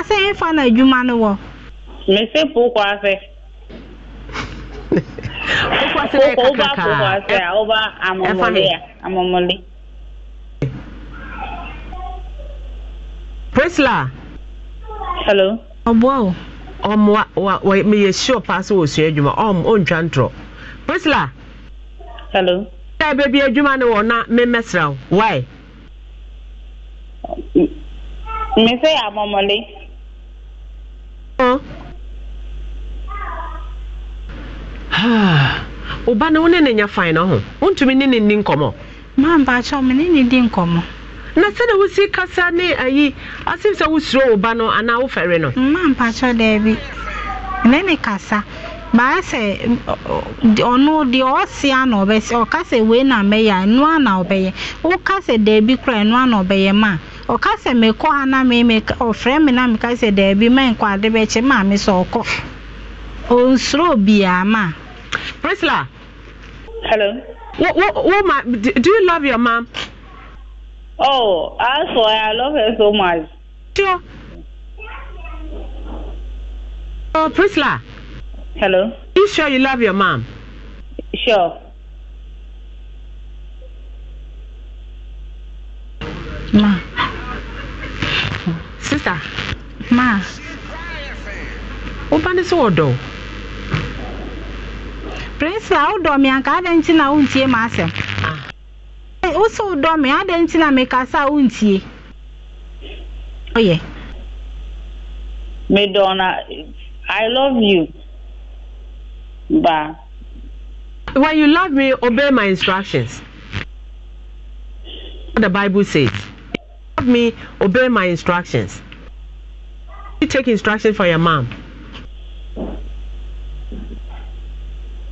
Speaker 2: ase nfa na adwuma no wɔ. mese pokɔ ase. pokɔ ase bɛyɛ kakraka
Speaker 7: pokɔ ase a ɔba amɔmɔle a amɔmɔle. prisla. hello. ɔboa o.
Speaker 1: ɔmoa wa wa meyɛ sure paa sɛ wɔsua adwuma ɔm ɔntwa ntorɔ prisla. hello. ɛyɛ baabi adwuma no wɔ na memmɛsra wo why. mese amomoli ụba na wo ne ne nyɛ fan no ho wontumi ne ne nni nkɔmmɔ mampaakyɛw me ne ne di nkɔmmɔ na sɛde
Speaker 2: wosi kasa ne ayi asem sɛ wosuro wo ba no anaa wofɛre no mampaakyɛw daabi ne ne kasa baa sɛ ɔno deɛ ɔsia na ɔbɛsi ɔka sɛ wei na mɛyɛ a ɛnoa na ɔbɛyɛ woka sɛ daabi koraa ɛnoa na ɔbɛyɛ ma ɔka sɛ mekɔ ha na meme ɔfrɛ me na meka sɛ daabi ma nkɔ ade bɛkyɛ maa me sɛ ɔkɔ ɔnsuro biaa ma
Speaker 1: priscilla
Speaker 7: hello what, what, what ma, do, you love your mom oh as for i love her so much sure oh prisla hello you sure you love your mom sure
Speaker 2: ma sista ma woba ne sɛ wɔdɔ prinsila wodɔ me anka adɛn nkyi na wontie ma asɛm wosɛ wodɔ me adɛn na mekasa a wontie ɔyɛ
Speaker 7: medɔ i love you ba when you love me
Speaker 1: obey my instructions what the bible says love me obey my instructions you take instructions for your mom?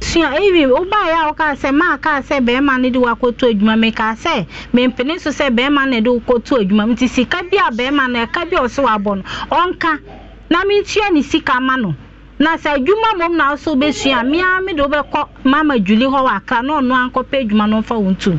Speaker 2: sua evi ụgbọala ya ụka sị ma ka sị bẹẹma na ịdị wakọtụ edwuma m ka sị mpene nso sị bẹẹma na ịdị wakọtụ edwuma m nti sika bi a bẹẹma na ịka bi a ọsị wabọ no ọnka na m tua ne sika ma no na sị edwuma mụ na ọsọ bụ esua mmea m de ọbɛkọ mama juli hɔ wọ akra na ɔno ankɔpɛ edwuma n'ofa wɔn tum.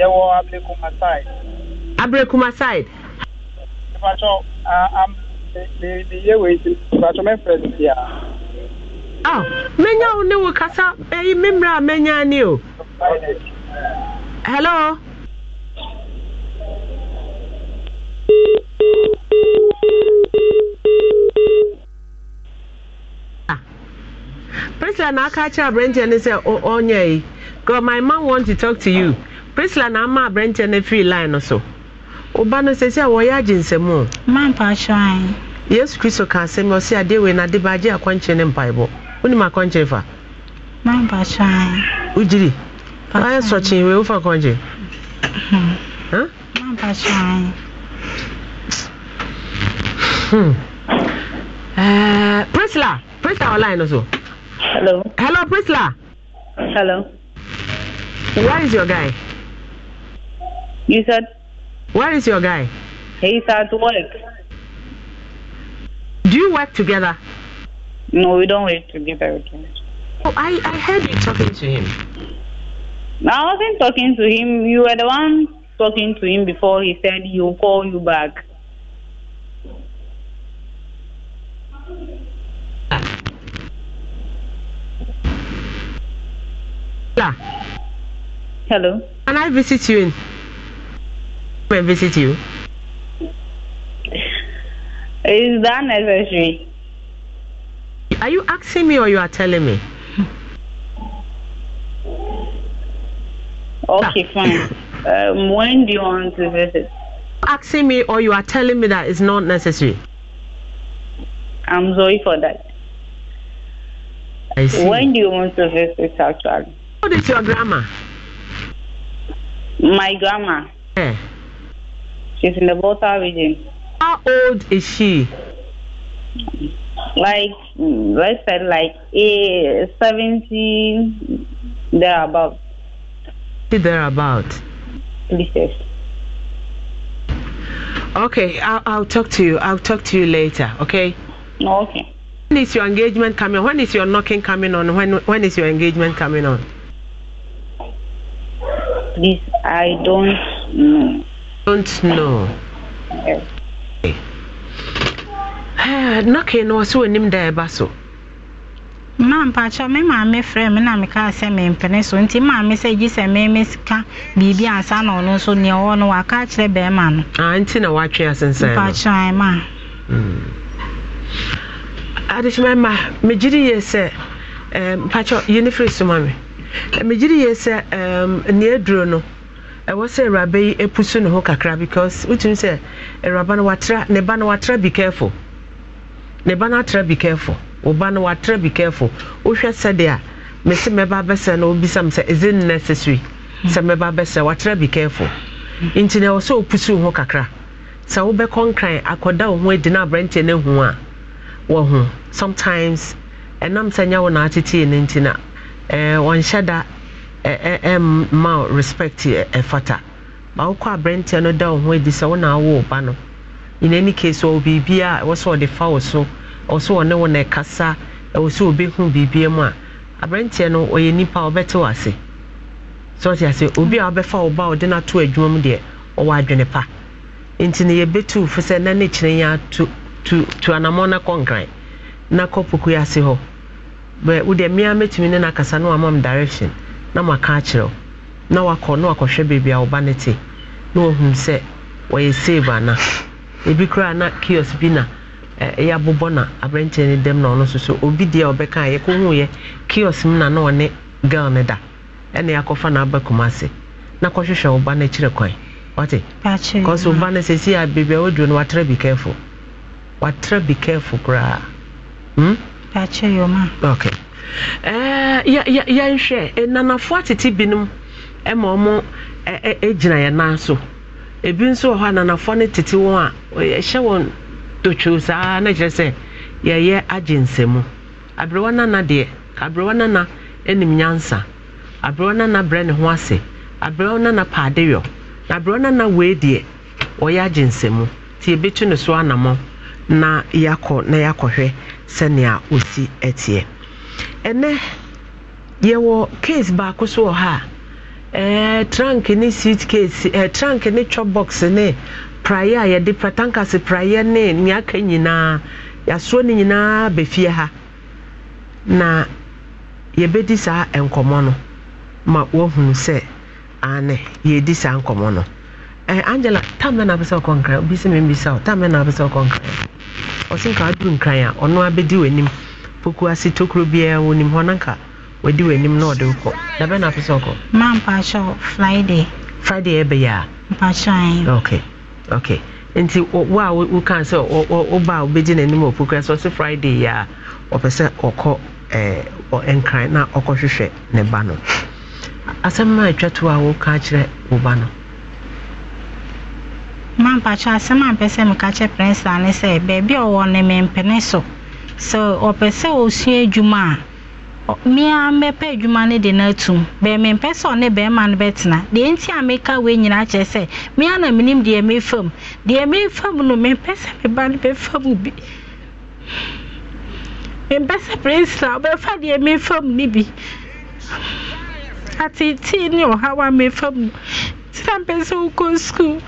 Speaker 8: ɛwɔ kuma side. kuma side. ìfàtɔ am mi mi
Speaker 1: yé wei si ìfàtɔ mɛ fɛ si a. ọ menya wo ne wo kasa eyi eh, mi mìíràn a menya ni ah. o. hello. Priscilla na aka akyerɛ aberanteɛ no sɛ ɔnyɛ yi God my man want to talk to you priscilla na ama aberɛnkyɛ no firi line no so ɔba no sɛ sɛ wɔyɛ agye nsɛm o mampahyɛn yesu kristo ka asɛm ɔsɛ adeɛ wei no ade baagye akɔnkyere ne mpaebɔ wonim akɔnkyere fa
Speaker 2: mampahyɛn wogyiri
Speaker 1: ayɛ sɔkyee wei wofa akɔnkyere mampahyɛn hmm. uh, priscilla priscilla online no so hello hello priscilla hello where is your guy You said? Where is your guy?
Speaker 7: He's at work. Do you work together? No, we don't work together. Oh, I, I heard you talking to him. I wasn't talking to him. You were the one talking to him before he said he'll call you back.
Speaker 1: Ah. Hello. Can I visit you in? and visit you?
Speaker 7: Is that necessary?
Speaker 1: Are you asking me or you are telling me? Okay, fine. um, when do you want to visit? Asking me or you are telling me that it's not necessary.
Speaker 7: I'm sorry for that. I see. When do you want to visit actually? What is your grandma? My grandma. Yeah. She's in the water region. How old is she? Like, let's mm, say, like eh, 70, thereabout.
Speaker 1: Thereabout. Please, yes. Okay, I'll, I'll talk to you. I'll talk to you later, okay? okay. When is your engagement coming? When is your knocking coming on? When when is your engagement coming on?
Speaker 7: Please, I don't know. don't know.
Speaker 2: na na
Speaker 1: ọsị onim da ịba so.
Speaker 2: mmaa mpaghara me maame frɛ me na meka sɛ mempene so nti maame sɛ gye sɛ meme sika biribi asa na ɔno nso nea ɔwɔ no waka no. aa ah, nti na watwe nsa no mpaghara ma. Hmm. adekyema ma
Speaker 1: megyere yie sɛ mpaghara eh, yie ne firi so ma eh, eh, no. ɛwɔ sɛ awuraba yi pusu ne ho kakra because wotumi sɛ awuraba no watra ne ba no watra be careful ne ba no atra be careful wo ba no watra be careful wohwɛ sɛdeɛ a mese mɛba abɛsɛ no wobisa me sɛ is it necessary sɛ hmm. mɛba abɛsɛ watra be careful nti na ɛwɔ sɛ wopusu ho kakra sɛ wobɛkɔ nkran akɔda wo ho adi na aberanteɛ no ahu a wɔ ho sometimes ɛnam sɛ nyɛ wo na atetee no nti na eh, wɔnhyɛ da Eh, eh, eh, ma respect ɛfata ma wokɔ aberanteɛ no da wo ho adi sɛ wo awo ba no in any case ɔwɔ biribiaa ɛwɔ sɛ ɔde fa wo so ɔwɔ sɛ ɔne wo na ɛkasa ɛwɔ sɛ ɔbɛhu biribia mu a aberanteɛ no ɔyɛ nipa ɔbɛte wo ase sɛ ɔte ase obi a ɔbɛfa wo ba a ɔde no ato adwuma mu deɛ ɔwɔ adwene pa nti no yɛbɛtu fo sɛ na ne kyerɛ yɛ ato tu anammɔ na nkran na kɔ pokua ase hɔ bɛ mmea mɛtumi ne no akasa no amam direction na maka akyerɛ wo na wakɔ na wakɔhwɛ a wo ba te na sɛ save ebi na kiosk bi na ɛyɛ abobɔ na aberanteɛ no dɛm na ɔno nso obi deɛ ɔbɛka a yɛkɔhuuɛ kiosk mu na na ɔne girl no da ɛna yɛakɔfa na aba na kɔhwehwɛ kwan ɔte kɔsɛ a a no bi careful bi koraa hmm? okay yɛnhwɛ nanafoɔ atete binom ma ɔmo gyina yɛ nan so ebi nso wɔ hɔ a no tete wɔn a yɛhyɛ wɔn totwo saa na kyerɛ sɛ yɛyɛ agye nsɛmu aberewa nana deɛ aberewa nana anim nyansa aberewa nana brɛ ne ho ase aberewa nana paadeyɔ na aberewa nana wei deɛ ɔyɛ agye nsɛmu nti ebi tu ne so na yɛakɔ na yɛakɔhwɛ sɛnea osi teɛ. ɛnɛ yɛwɔ case baako so wɔ ha a e, trunk ne suit case e, trunk ne chop box ne praeɛ a yɛde tankas praeɛ ne nea aka nyinaa yɛasoɔ no nyinaa bɛfie ha na yɛbɛdi saa nkɔmɔ no ma woahunu sɛ ane yɛdi saa nkɔmɔ no eh, angela tamɛ na apɛsɛ ɔkɔ nkran obi sɛ membisa wo tamɛ na apɛsɛ ɔkɔ nkran ɔsenka aduru nkran a ɔno abɛdi w'anim puku ase tokuro biara wɔ nim hɔ no nka wɔdi w'anim na ɔde wokɔ na bɛn na apɛ sɛ ɔkɔ
Speaker 2: ma mpakyɛw friday friday ɛbɛyɛ a mpakyɛn ok okay nti
Speaker 1: wo a woka sɛ woba a wobɛgye n'anim wɔ puku sɛ ɔse friday yɛ a ɔpɛ sɛ ɔkɔ nkran na ɔkɔhwehwɛ ne ba no asɛm
Speaker 2: ma atwa to a woka kyerɛ wo ba no mampakyɛ asɛm a mpɛ sɛ meka kyɛ prɛnsa ne sɛ baabi a ɔwɔ ne mempene so sɛ ɔpɛ sɛ osua adwuma a mmea mmɛpɛ adwuma no de no atum bɛɛmi mpɛ sɛ ɔne bɛrima no bɛtena deɛ nti a meka wei nyinaa kyerɛ sɛ mmea na menim deɛ mefam deɛ mefam no mempɛ sɛ meba no bɛfam bi mempɛ sɛ prinsila wobɛfa deɛ mefam no bi ateetee ne ɔhaw a mefam no nti na mpɛ sɛ wokɔ sukuu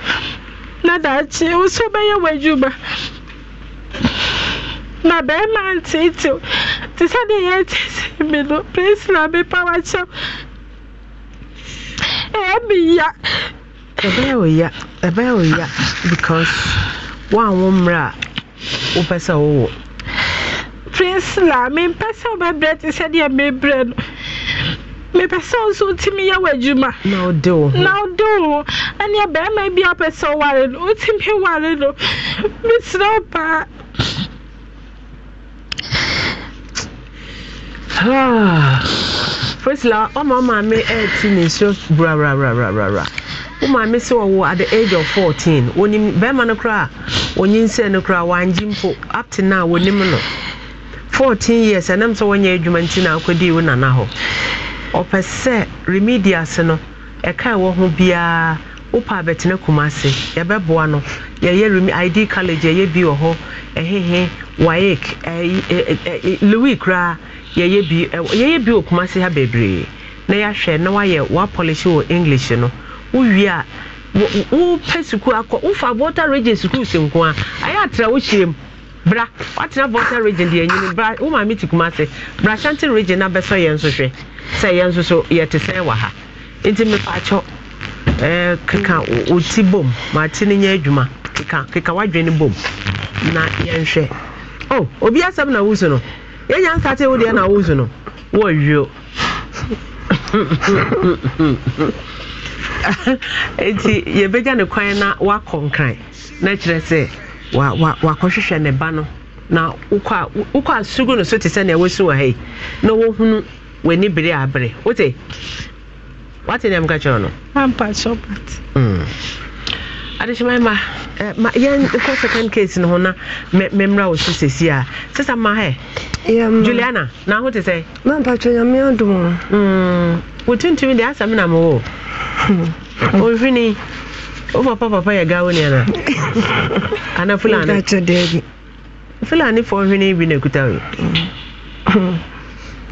Speaker 2: na daakye wo so wobɛyɛ w'adwuma na bɛrima ntiitiu
Speaker 3: te sɛ deɛ yɛtiitii mi no prisila mi pa wakyɛm
Speaker 1: ɛyɛ mi ya. ɛbɛyɛ o ya ɛbɛyɛ o ya because wɔn a wɔn mmerɛ a wopɛ sɛ wowɔ.
Speaker 2: mi mempɛ sɛ wobɛbrɛ te sɛ deɛ mebrɛ no mepɛ sɛ wo nso wotumi yɛ w'adwuma na wode wo na wode wo ɛneɛ bɛrima bi apɛ sɛ woware no wotumi ware no mesrɛ wo paa
Speaker 1: Priscilla, oh my mommy, eighteen is just bra bra bra bra bra bra. Oh, oh, at the age of fourteen. When you bema no cry, when you say no cry, one jimpo up to now, Fourteen years, and I'm so when you're jumentina, could you nana ho? Ọpɛ sɛ remedias no, ɛka ɛwɔ ho biara. wopa abɛtena no id college bi louis koraa yɛyɛ bi yɛyɛ bi okuma se ha bebree na yɛahwɛ na wayɛ wapolish wɔ english no a wopɛ sukuu akɔ wofa region sukuu si nko a ayɛ bra watena region deɛ bra wo kuma si bra shanti na bɛsɔ yɛn nso hwɛ sɛ yɛn ha nti ɛɛ keka oti bom ne nyɛ adwuma keka bom na oh yɛnya nkate wo deɛ na wozu no wɔwio nti yɛbɛgya ne kwan na wakɔ nkran na kyerɛ sɛ wakɔhwehwɛ ne ba no na wokɔ asugu no so te sɛnea wɔsi wɔ ha na wɔhunu w'ani bere abere wote wate nea meka kyerɛ no ampa sɛ adehyɛma ma eh, ma yɛn kɔ second case no ho na mmemmra wɔ so sɛsi a sesa ma hɛ juliana na ho te sɛ mampatwɛ nyame adom wo hmm, de asa asɛm na mewɔ ɔmfini hmm. wo papa papa yɛ gawo neana ana fulani fulani fɔ nhwene bi na ɛkuta O hmm.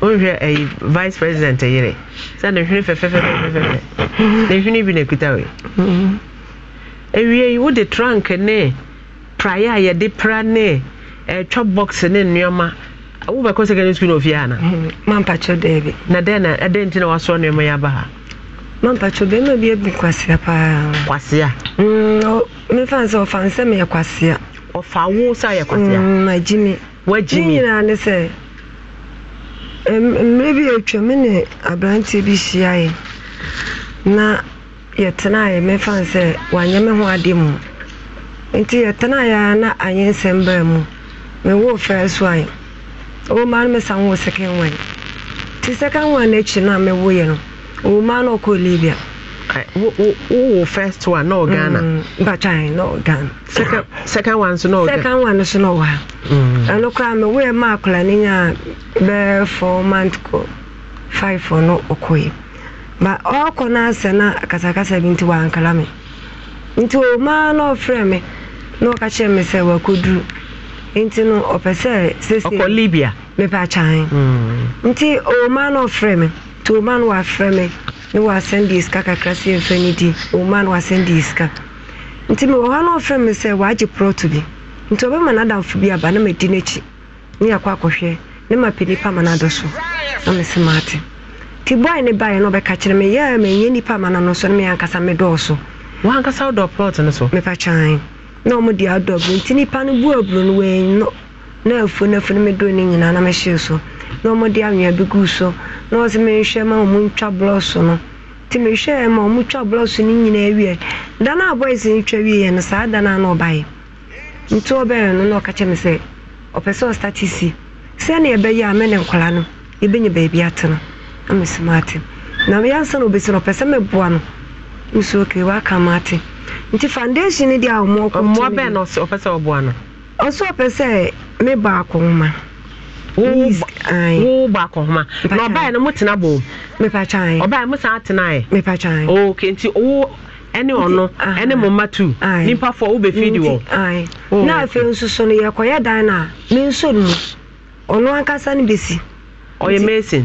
Speaker 1: wonhwɛ ayi eh, vice president yere sɛ ne hwene fɛfɛfɛfɛfɛfɛ ne hwene bi na ɛkuta we ewie yi wode trunk ne praeɛ a yɛde pra ne ɛtwa eh, box ne nneɛma wobɛkɔ secondary school na ofie ana mm, mampakyɛ daabi na dɛn na ɛdɛn nti na wasoa nneɛma yi aba ha
Speaker 9: mampakyɛ bɛrima bi abu kwasea paa kwasea mm, mefa sɛ ɔfa nsɛ meyɛ kwasea ɔfa wo sɛ ayɛ kwasea mm, agyi me wagyi me nyinaa ne sɛ mmerɛ bi atwa me ne aberanteɛ bi hyiaeɛ na yɛtenaeɛ mefa sɛ wanyɛ me ho ade mu nti yɛtenaeɛ a na anyɛ nsɛm baa mu mewoo first one ɔwɔma no mesa woo second one nti second one no akyi no a mewoeɛ no ɔwɔma no ɔkɔɔ libia wowɔ first one na ɔghana na ɔghana second one so na ɔghana second one na ma nyaa bɛɛ four five no ma ɔkɔ n'asɛ na kasakasa bi nti wankala me nti omaa na ɔfrɛ me na ɔka kyerɛ me sɛ wakɔduru hmm. nti no ɔpɛ sɛ sesɔkɔ libia mepɛ akyɛn nti omaa na ɔfrɛ me nti omaa no wafrɛ me na wasɛnde sika kakra sɛ ɛmfa no di omaa no wasɛnde sika nti mewɔ hɔ na ɔfrɛ me sɛ waagye prɔto bi nti ɔbɛma n'adamfo bi aba na madi n'akyi ne yɛkɔ akɔhwɛ ne mapɛ nipa ma no adɔ so na mese maate nti boy ne baeɛ no ɔbɛka kyerɛ me yɛ menyɛ nnipa ama no no so no meankasa medɔɔso wankasa wodɔ plot no so mepa na ɔmo de adɔ aburo nti nnipa no bu no wei no na afuo no afuo no medoro no nyinaa na mehyee so na ɔmo de anwea bi guu so na ɔsɛ mehwɛ ma ɔmo ntwa blɔso no nti mehwɛɛ ma ɔmo twa blɔso no nyinaa wie da no a boys no twa wieɛ no saa da no a na ɔbaeɛ nti ɔbɛyɛ no na ɔka kyerɛ me sɛ ɔpɛ sɛ ɔstate si sɛnea ɛbɛyɛ a me ne nkɔla no yɛbɛnya baabi ate no mesi maate na na na no ɔpɛ sɛ meboa no nsuo kei aka maate nti foundation no deɛ a ɔmmoa bɛn na
Speaker 1: ɔpɛ sɛ ɔboa no
Speaker 9: ɔso ɔpɛ baako wo
Speaker 1: baako na no bom mo ok nti wo ɛne ɔno ɛne mo mma tu nipa fo wɔ
Speaker 9: na afei dan nso ɔno ankasa ɔyɛ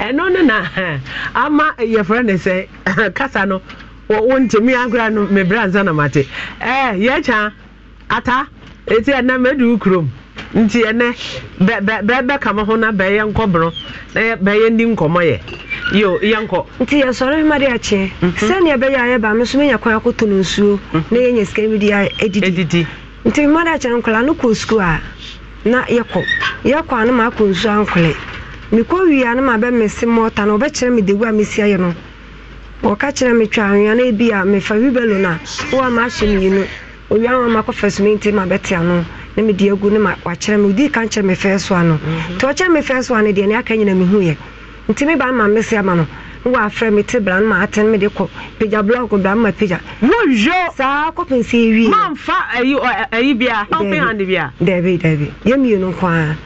Speaker 9: ɛno no na ama yɛfrɛ
Speaker 1: no sɛ kasa no wontimi agora no mebrɛ ansa na mate yɛkya ata ɛti ɛnɛ mɛdi kurom nti ɛnɛ bɛbɛka ma ho na bɛyɛ nkɔborɔ na bɛyɛ ndi nkɔmmɔ yɛ yo yɛnkɔ nti yɛsɔre
Speaker 9: mma de akyeɛ mhm. sɛnea ɛbɛyɛ a yɛba me so menya mhm. na edidi nti de akyɛ nkɔla kɔ sukuu a na yɛkɔ yɛkɔ ano ma akɔ nsu ankwele mekɔ wie no ma bɛmese mɔta no wɔbɛkyerɛ me degu a mesi ayɛ no wɔka kyerɛ me twa anwea no bi a mefa wibelo no a woa ma ahyɛ mmienu owia wa ma kɔfa suminti ma bɛte ano na mede agu ne ma wakyerɛ me wodii ka nkyerɛ me fɛɛ so ano mhm. nti ɔkyerɛ me fɛɛ so ano deɛ ne aka nyina yɛ nti meba ma mese ama no wafrɛ me te bra no ma atene de kɔ pagya blɔk bra ma pagya woyo saa kɔpem sɛ
Speaker 1: ɛwie ayi bia open hand bia
Speaker 9: dabi dabi yɛmmienu nko a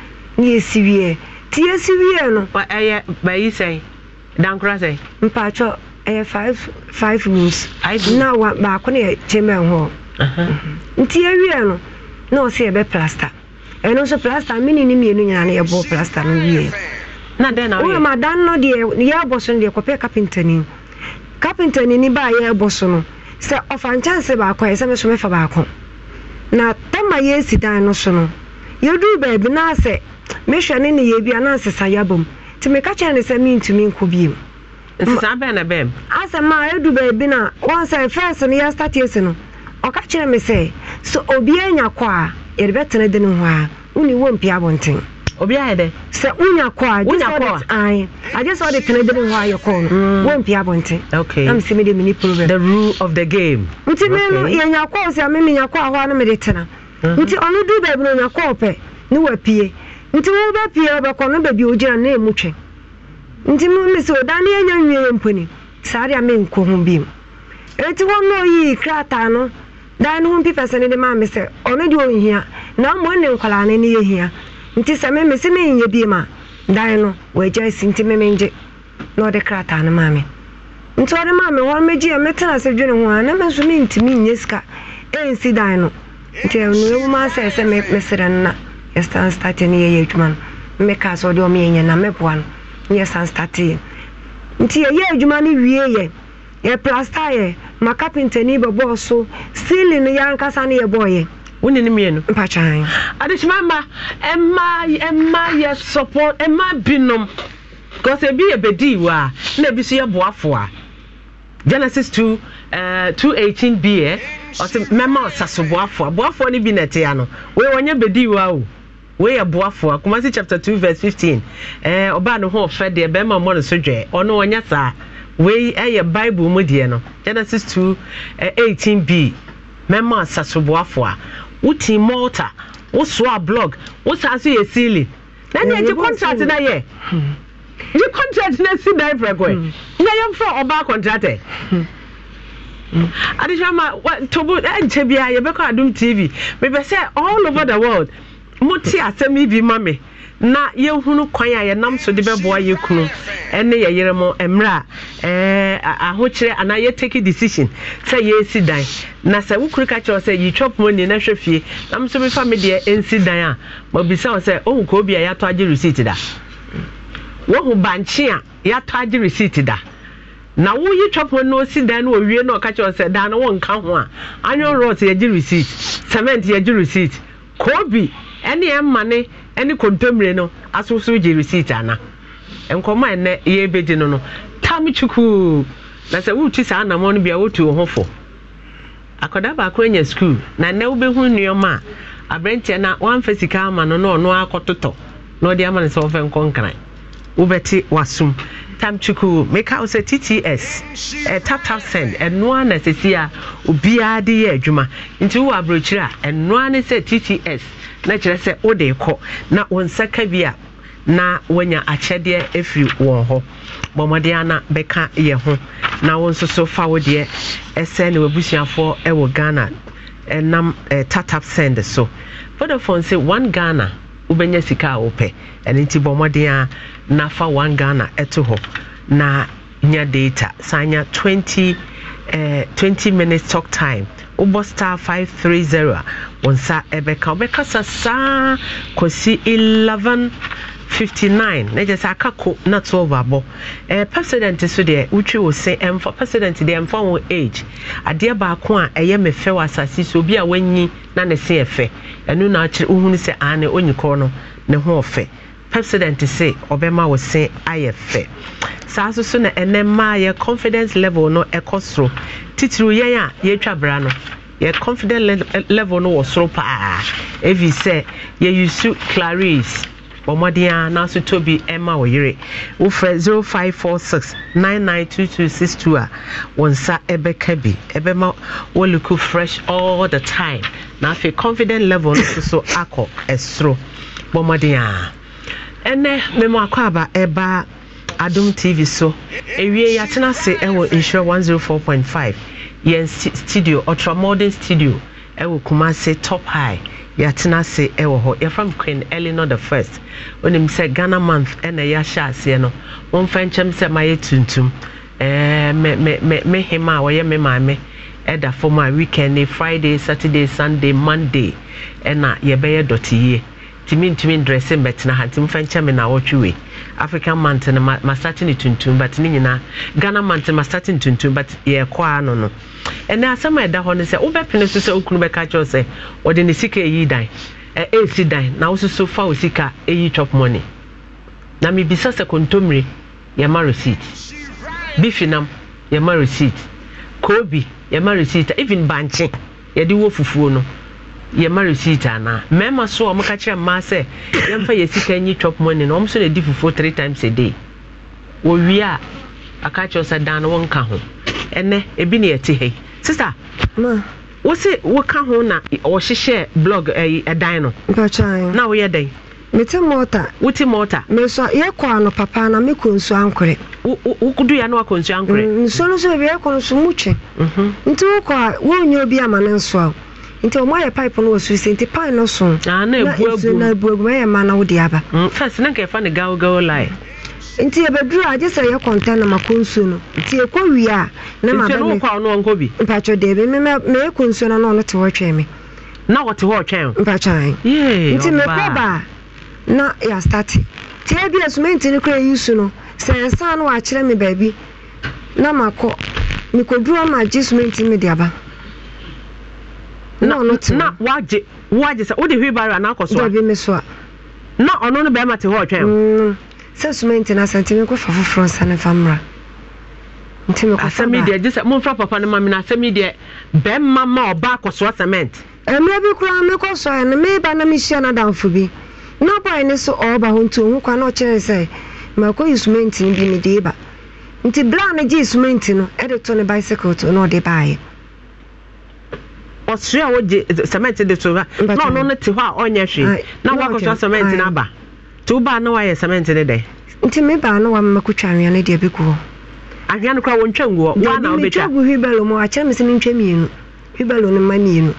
Speaker 9: ne yɛsi wieɛ nti yɛsi wieɛ no
Speaker 1: ɛyɛ bayi sɛe dankora sɛe
Speaker 9: mpatwɔ ɛyɛ five rooms na wa, baako ne yɛ chamber hɔ nti yɛwieɛ no na ɔsɛ yɛbɛ plasta ɛno eh, nso plasta mene ne mmienu nyinaa no yɛbɔɔ plasta no wieɛ dan no deɛ yɛabɔ so no deɛ kɔpɛ kapentani kapentani ni baa yɛabɔ so no sɛ ɔfa nkyɛnse baako a ɛsɛ me so mefa baako na tama yɛsi dan no so no yɛduru baabi na sɛ mehwɛ ne ne yɛbi ana nsesa yɛabɔ mu nti meka kyerɛ ne sɛ mentumi nkɔ biom
Speaker 1: asɛm
Speaker 9: a ɛdu baabi no wɔn sɛ fɛs no yɛstatiesi no ɔka kyerɛ me sɛ sɛ obiaa nya kɔ a yɛde bɛtena de no ho a wone wɔ mpi abɔnten obi ayɛ dɛ sɛ wonya kɔ a agye sɛ tena hɔ ayɛ kɔ no mm.
Speaker 1: na mesɛ mede mene problem the rule of nti
Speaker 9: no a no tena mm-hmm. nti ɔno du baabi no ɔnya kɔɔ pɛ ne nti wobɛpie wobɛkɔ no baabi ogyina na ɛmu twɛn nti me sɛ oda ne yɛnya nwie yɛ mponi saa de a menkɔ ho biom eti krataa no ne ho mpi nti sɛ meme sɛ menyɛ bie ma dan no wɔagya si nti meme ngye na ɔde krataa no ma me nti ɔde maa me hɔ mɛgye ɛ metena sɛ dwene ho a na me nso mentumi nyɛ sika ɛnsi dan no nti ɛnoɛwuma sɛ sɛ meserɛ no na yɛsan state no yɛyɛ adwuma no meka sɛ ɔde ɔmeyɛnyɛ na mɛboa no na yɛsan statee nti yɛyɛ adwuma no wie yɛ plasta yɛ ma kapentani bɛbɔɔ so stealing no yɛankasa no yɛbɔɔyɛ wone no mmienu mpakyan
Speaker 1: adekyima ma ɛma ɛma yɛ support ɛma binom because ebi yɛ bedii wa na ebi nso yɛ boafo a genesis two uh, two eighteen bi yɛ eh? ɔsɛ mɛma ɔsaso boafo a boafo no bi na ɛte ano wei wɔnyɛ bedii wa o wei yɛ boafo a kumasi chapter two verse fifteen ɛɛ eh, ɔbaa no ho ɔfɛ deɛ bɛrima ɔmo no so dwɛ ɔno ɔnyɛ saa wei ɛyɛ bible mu deɛ no genesis two uh, eighteen bi mɛma ɔsaso boafo a wotin malta wosoa blog wosan so yɛ ceiling na neɛ contract na yɛ Eji contract na si dan prɛkɔ na hmm. yɛmfa ɔbaa contractor e? hmm. hmm. adehwɛma tobo ɛnkyɛ e, biara yɛbɛkɔ adom tv mepɛ sɛ all over the world mote asɛm yi bi ma me na yɛhunu kwan a yɛnam so de bɛboa yɛ kunu ne yɛ yere mu mmerɛ a ahokyerɛ anaa yɛtake decision sɛ yɛsi dan na sɛ wo kuru ka kyerɛ sɛ yitwa poma ni na hwɛ fie na m mefa me deɛ ɛnsi dan a mabisa wo sɛ ohu kɔ obi a yɛatɔ agye receipt da wohu bankye a yɛatɔ agye receipt da na woyi twapɔ na osi dan no owie na ɔka kyerɛ sɛ dan no nka ho a anyon rot yɛgye receipt cement yɛgye receipt kobi ɛne ɛma ɛne kontomire no asosoro gye receipt ana nkɔmɔ a ɛnɛ yɛ ebegye no no tam tukuu na sɛ wotu saa anamɔ no bia wotu wo ho fo akwadaa baako anya sukuu na nnɛ wobɛhu nneɛma a aberanteɛ na wamfa sika ama no na ɔno akɔtotɔ na ɔde ama no sɛ ɔfɛ nkɔ nkran wobɛte wasum tamchiku meka wo sɛ tts taptapsend ɛnoa na sɛsi a obiara de yɛ adwuma nti wowɔ aborɔkyiri a ɛnoa ne sɛ tts na kyerɛ sɛ wode kɔ na wo nsa ka bi a na wanya akyɛdeɛ ɛfiri wɔn hɔ bɔmmɔden ana bɛka yɛ ho na wo nso so fa wo deɛ ɛsɛ ne wabusuafoɔ ɛwɔ ghana ɛnam tap tap send so vodafone sɛ one ghana wobɛnya sika a wopɛ ɛno nti bɔ mmɔden a nafa 1 ghana ɛto hɔ na nya data saa nya 20 eh, 20 minutes talk time wobɔ star 530 a wo nsa ɛbɛka Kosi saa kɔsi 11 59 na gye sɛ aka ko na 12 abɔ eh, president so deɛ wotwi wo se ɛmfa president deɛ ɛmfa wo age adeɛ baako a ɛyɛ me fɛ wɔ asase so obi a wanyi na ne se ɛfɛ ɛno na akyerɛ wohunu sɛ ane onyi kɔ no ne ho ɔfɛ president se ɔbɛma wo se ayɛ fɛ saa so so na ɛnɛ mmaa yɛ confidence level no ɛkɔ soro titiri yɛn a yɛtwa bra no yɛ confidence level no wɔ soro paa evi sɛ yɛyi clarice bɔ mmɔden a n'aso tɔ bi ɛma wɔ wofrɛ zero five four six nine nine two two six two a wɔn nsa ɛbɛka bi ɛbɛma wɔluku fresh all the time na afei confident level no nso akɔ ɛsoro bɔ mmɔden a ɛnɛ mmɛmɔ akɔ aba ɛba adum tv so ewie yɛatena ase ɛwɔ nhyira one zero four point five yɛn studio ultra modern studio ɛwɔ kumase top high yɛatena ase wɔ hɔ yɛfam queen eleanor the first onim sɛ ghana month ɛna yɛahyɛ aseɛ no momfa nkyɛm sɛ mayɛ tuntum me hema a wɔyɛ me maame ɛda fam a weekend ne friday saturday sunday monday ɛna yɛbɛyɛ dɔte yie ntumi ntumi ndrɛse mbɛtena ha nti momfa nkyɛ na wɔtwe wei african mountain masate ne tuntum but ne nyinaa ghana mountain masate ne tuntum but yɛkɔ ano no ɛnɛ asɛm a ɛda hɔ no sɛ wobɛpene so sɛ wokunu bɛka kyerɛw sɛ ɔde ne sika ɛyi dan ɛɛsi e, e dan na wo soso fa wo sika ɛyi chop money na mebisa sɛ kontommire yɛma receipt bifinam yɛma receipt kobi yɛma receipt even bankye yɛde wɔ fufuo no yɛma receipt anaa mmarima so a ɔmoka kyerɛ mmaa sɛ yɛmfa yɛ sika chop money ọmụsọ na edi fufuo three times a day wɔwie a aka kyerɛ sɛ dan no wonka ho ɛnɛ ebi ne yɛte hɛ sista woka ho na wɔhyehyɛ blog ɛdan eh, eh, no na woyɛ
Speaker 9: mete mɔta wote mɔta yɛkɔ ano papa na mekɔ nsu ankorɛ woduya na wakɔ nsu ankorɛ mm, nsuo no so yɛkɔ no so mhm. nti wokɔ a obi ama ne nti ɔmo ayɛ pipe no wɔ soro sɛ nti pipe no so ah, na nsuo na ebu agu ɛyɛ ma na wode aba. Mm, first na nkɛfa ne gawgaw line. nti ebeduru agye sɛ yɛ kɔntɛn na ma mako nsuo no nti ekɔ wie a na ma bɛ mi nti n'okɔ ɔno ɔnkɔ bi. mpatwɛ deebi mi mɛ mɛ ekɔ nsuo na ɔno te hɔ twɛn mi. na wɔte hɔ twɛn. mpatwɛ anyi nti mɛkɔ ba na yɛ asitati te ebi esumenti ne kura eyi su no sɛ ɛsan no wɔ akyerɛ mi baabi na ma makɔ mikɔ duro ma gye sumenti mi de aba. na wagye wagye sɛ wode hwilbaro anaakɔ so a na ɔno no bɛrima te hɔ ɔtwɛn mm. sɛ soma nti no asɛnti mekɔfa foforɔ nsa ne fa mmra nti asɛm yi deɛ
Speaker 1: gye sɛ papa na asɛm yi deɛ bɛrima ma ɔba cement
Speaker 9: eh, mmerɛ bi koraa mekɔ na mehyia no adamfo bi na so hɔ nti ɔhu kwa na ɔkyerɛ sɛ no bi mede ba nti berɛ a no no ɛde to ne bicycle to na
Speaker 1: a wogye cement de na ɔno no te hɔ a ɔnyɛ hwee na cement no aba nti wobaa na cement no dɛ
Speaker 9: nti na anwea no deɛ bɛgu hɔ no
Speaker 1: wɔntwa ngu hɔ wobɛtwa
Speaker 9: gu mu akyerɛ me sɛ mmienu no ma mmienu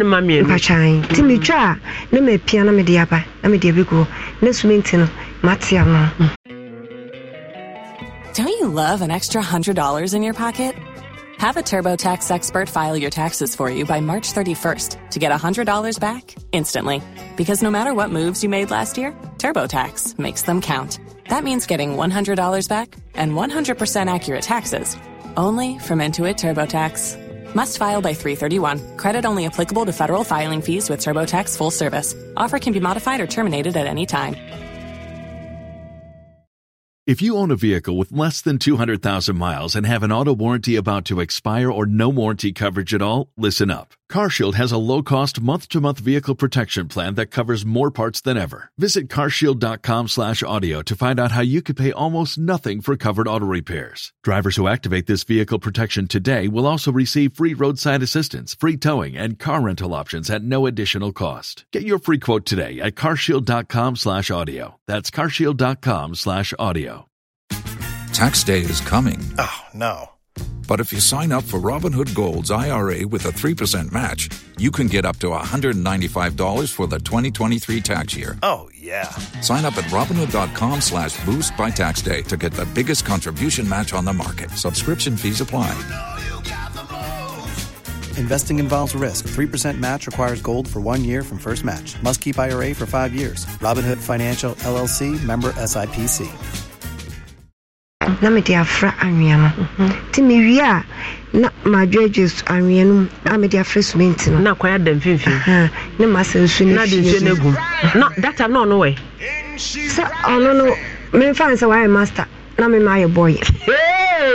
Speaker 9: no ma mmienu mpakyan nti mm. metwa a na mapia na mede aba na mede abɛgu hɔ na no matea no
Speaker 4: Don't you love an extra $100 in your pocket? Have a TurboTax expert file your taxes for you by March 31st to get $100 back instantly. Because no matter what moves you made last year, TurboTax makes them count. That means getting $100 back and 100% accurate taxes only from Intuit TurboTax. Must file by 331. Credit only applicable to federal filing fees with TurboTax full service. Offer can be modified or terminated at any time.
Speaker 5: If you own a vehicle with less than 200,000 miles and have an auto warranty about to expire or no warranty coverage at all, listen up. CarShield has a low-cost month-to-month vehicle protection plan that covers more parts than ever. Visit carshield.com/audio to find out how you could pay almost nothing for covered auto repairs. Drivers who activate this vehicle protection today will also receive free roadside assistance, free towing, and car rental options at no additional cost. Get your free quote today at carshield.com/audio. That's carshield.com/audio. Tax day is coming. Oh
Speaker 6: no but if you sign up for Robinhood Gold's IRA with a 3% match, you can get up to $195 for the 2023 tax year. Oh, yeah. Sign up at Robinhood.com slash boost by tax day to get the biggest contribution match on the market. Subscription fees apply. Investing involves risk. 3% match requires gold for one year from first match. Must keep IRA for five years. Robinhood Financial, LLC, member SIPC.
Speaker 9: na mede afra anwea no nti mewie a na madwagye anwea no mu a mede afra sumenti no na kwan ada mfimfini ne masa nsu no hyehyɛ no gu na data na ɔno wɛ sɛ ɔno no memfa sɛ wayɛ master na mema ayɛ bɔyɛ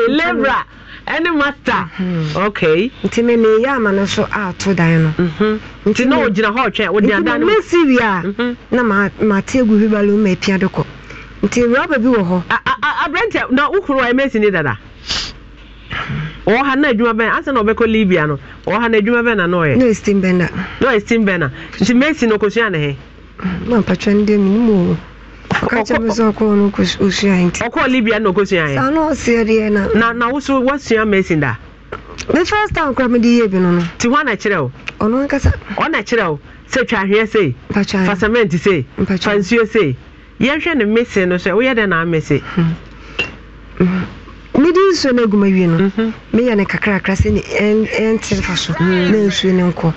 Speaker 9: lebra ɛne master mhm. ok nti me meyɛ ama no so ato dan no mhm. nti na ogyina hɔ ɔtwɛn ogyina dan no mɛsi wie a mhm. na mate agu hwibalo ma apia de kɔ nti rɔba bi wɔ hɔ. aberante na ukuru wa
Speaker 1: emesi ni dada ɔwɔ ha na adwuma bɛn na ɔbɛkɔ libya no ɔwɔ ha na adwuma bɛn na n'ɔyɛ. n'o ye steam bender. n'o ye steam bender nti mesi na okosua ne he.
Speaker 9: maa mpatwa ndi emu mu o kakyɛ bi sɛ ɔkɔɔ no osua yi nti. libya na okosua yɛ. saa n'ɔsia deɛ na. na na woso
Speaker 1: wasua mesi da.
Speaker 9: the first time kura mi di yie bi no no. ti hɔ na kyerɛ o. ɔno ɔna
Speaker 1: kyerɛ o sɛ sei. mpatwa sei. mpatwa sei. yɛhwɛ no mese no sɛ woyɛ dɛn na amese hmm.
Speaker 9: mede nsuo no aguma wie no mhm. meyɛ no kakrakra sɛ ɛntere fa so hmm. na nsuo no nkɔ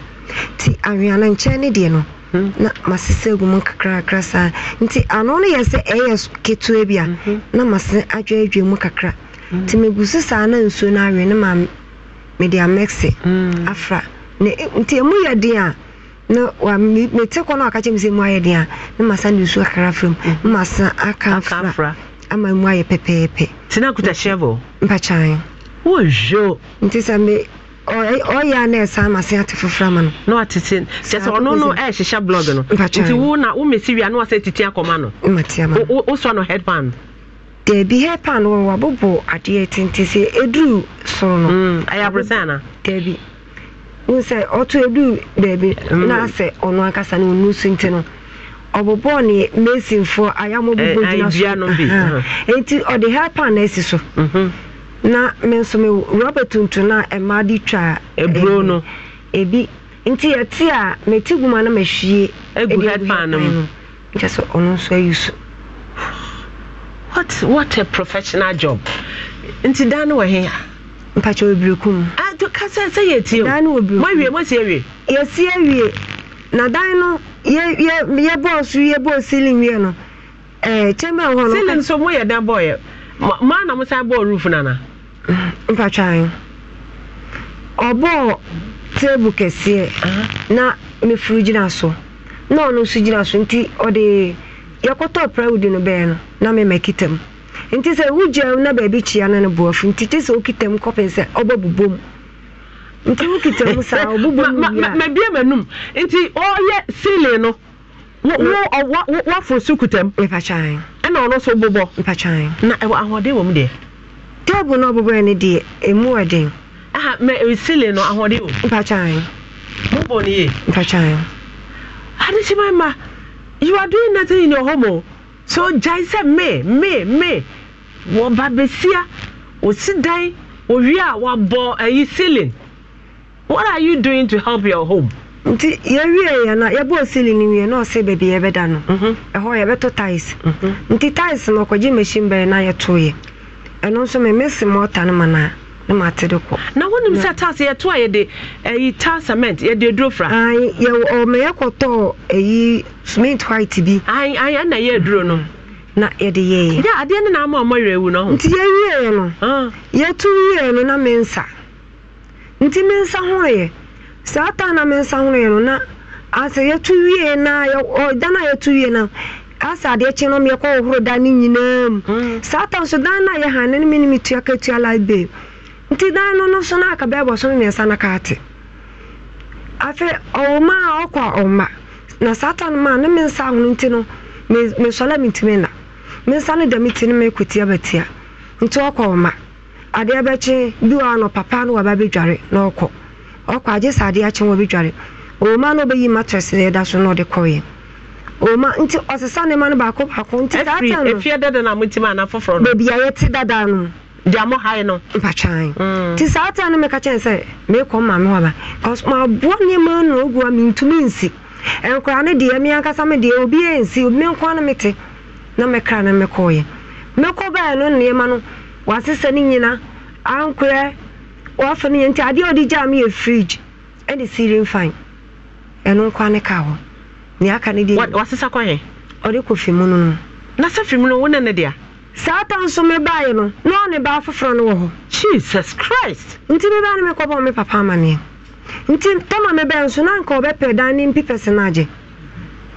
Speaker 9: nti aweano nkyɛn ne deɛ no hmm. na masese agu mu kakrakra saa nti ano no yɛ sɛ ɛyɛ ketewa bi a mhm. na mase adwaadwa mu kakra nti megu so saa na nsuo no awe no ma mede amɛse afra nti ɛmu yɛ den a na mete kɔ mm. mm. e, no ɔka kyɛ me sɛ mu ayɛ den a ne masa ne nsuo kakra fra mu aka mfra ama mu ayɛ pɛpɛɛpɛ nti na
Speaker 1: hyɛbɔ
Speaker 9: mpakyan wohwo nti sɛ me ɔyɛ a na ate foforɔ ama no na watete kyɛ sɛ ɔno no ɛɛhyehyɛ e, blog no nti wo
Speaker 1: na womɛsi wie a na wasɛ titi akɔma no
Speaker 9: no wɔ adeɛ sɛ ɛduru soro no
Speaker 1: ɛyɛ mm, e
Speaker 9: n sɛ ɔtɔ edu beebi mm. na sɛ ɔno ankasa no onu so nti no ɔbɔbɔ ne mesinfoɔ ayamɔ bɔbɔ eh, gyina eh, so nti ɔde pan na esi so mhm. na me nso me rɔba tuntum na mmaa de twa eburo no ebi nti yɛte a meti guma na mehwie egu pan no mu nkyɛ sɛ ɔno nso ayi e so.
Speaker 1: what what a professional job nti dan no wɔ he a.
Speaker 9: mpakyɛ obiriku mu. ato kasa sɛ yɛ tie o dan no obiriku na dan no yɛ yɛ yɛ bɔɔ yɛ bɔɔ ceiling wie no
Speaker 1: ɛɛ chamber hɔ no. ceiling so mo yɛ dan bɔɔ yɛ mo ana san bɔɔ roof nana.
Speaker 9: anyi ɔbɔɔ kɛseɛ na mefuru gyina so na ɔno nso gyina so nti ɔde yɛkɔtɔ no no na mu. nti sɛ wogya na baabi kyia no no boɔfo nti kyɛ sɛ wokita mu kɔpen sɛ ɔbɛbobɔ mu nti wokita mu saa ɔbobɔ mu nti ɔyɛ sili no so ɛna ɔno na ɛwɔ ahoɔden wɔ mu deɛ table no ɔbobɔɛ no deɛ ɛmu
Speaker 1: sili no ahoɔden
Speaker 9: wɔ
Speaker 1: no adekyema ma you are doing nothing in your home o so gyae sɛ me me me wɔba besia osi dan wɔwie a wɔabɔ ceiling what are you doing to help your home.
Speaker 9: nti yɛwie yɛ no yɛbɔɔ ceiling no wie na ɔsɛ baabi yɛbɛda no ɛhɔ yɛbɛto tiles mm-hmm. nti tiles no ɔkɔgye machine bɛyɛ na yɛtoeɛ ɛno nso memese mɔta no ma na mate de kɔ
Speaker 1: na wonim sɛ tas yɛto a yɛde ayi ta cement yɛde aduro
Speaker 9: cement white bi ɛna eduro no na yɛde yɛɛ yɛ adeɛ no naama ɔmɔ werɛ awu no ho nti yɛwieɛ no ah. yɛtu wieɛ no na me nsa nti me nsa horoeɛ saa taa na me nsa horoeɛ no na asɛ yɛtu wie na ɔda no a yɛtu wie no asɛ adeɛ kye no yɛkɔ hohoro da no nyinaa mu hmm. saa taa nso dan na a yɛhane no me ne metua katua library nti dan no no so no aka bɛɛbɔ so no na no kaate afei ɔwoma a ɔkɔ a na saa taa no ma ne me nsa ahono nti no mesɔla mentumi na mensa no ti no ma batia nti ɔkɔ ma adeɛ bɛkye bi wɔ no papa no waba bɛdware na ɔkɔ ɔkɔ agye sɛ adeɛ akye wɔ ɔma no na ɛda so na ɔde ɔma nti ɔsesa ne ma no baako baako nti dada na mo a yɛte dada no hae no mpatwan mm. ti saa no kyɛn sɛ meekɔ waba ma nneɛma a mentumi nsi nkora ne deɛ me deɛ obi obi na mekra na mekɔɔyɛ mekɔ bɛɛ no nneɛma no wasesa nyina ankorɛ no yɛ nti adeɛ a ɔde me yɛ fridge ɛne ɛno ka hɔ aka
Speaker 1: kɔyɛ
Speaker 9: ɔde kɔ fi no na sɛ fi mu no ne ne saa ta nso mebaeɛ no na ɔne baa foforɔ no wɔ hɔ jesus christ nti mebaa no mekɔbɔ me papa nti tama mebɛɛ nso na anka ɔbɛpɛ dan ne se no agye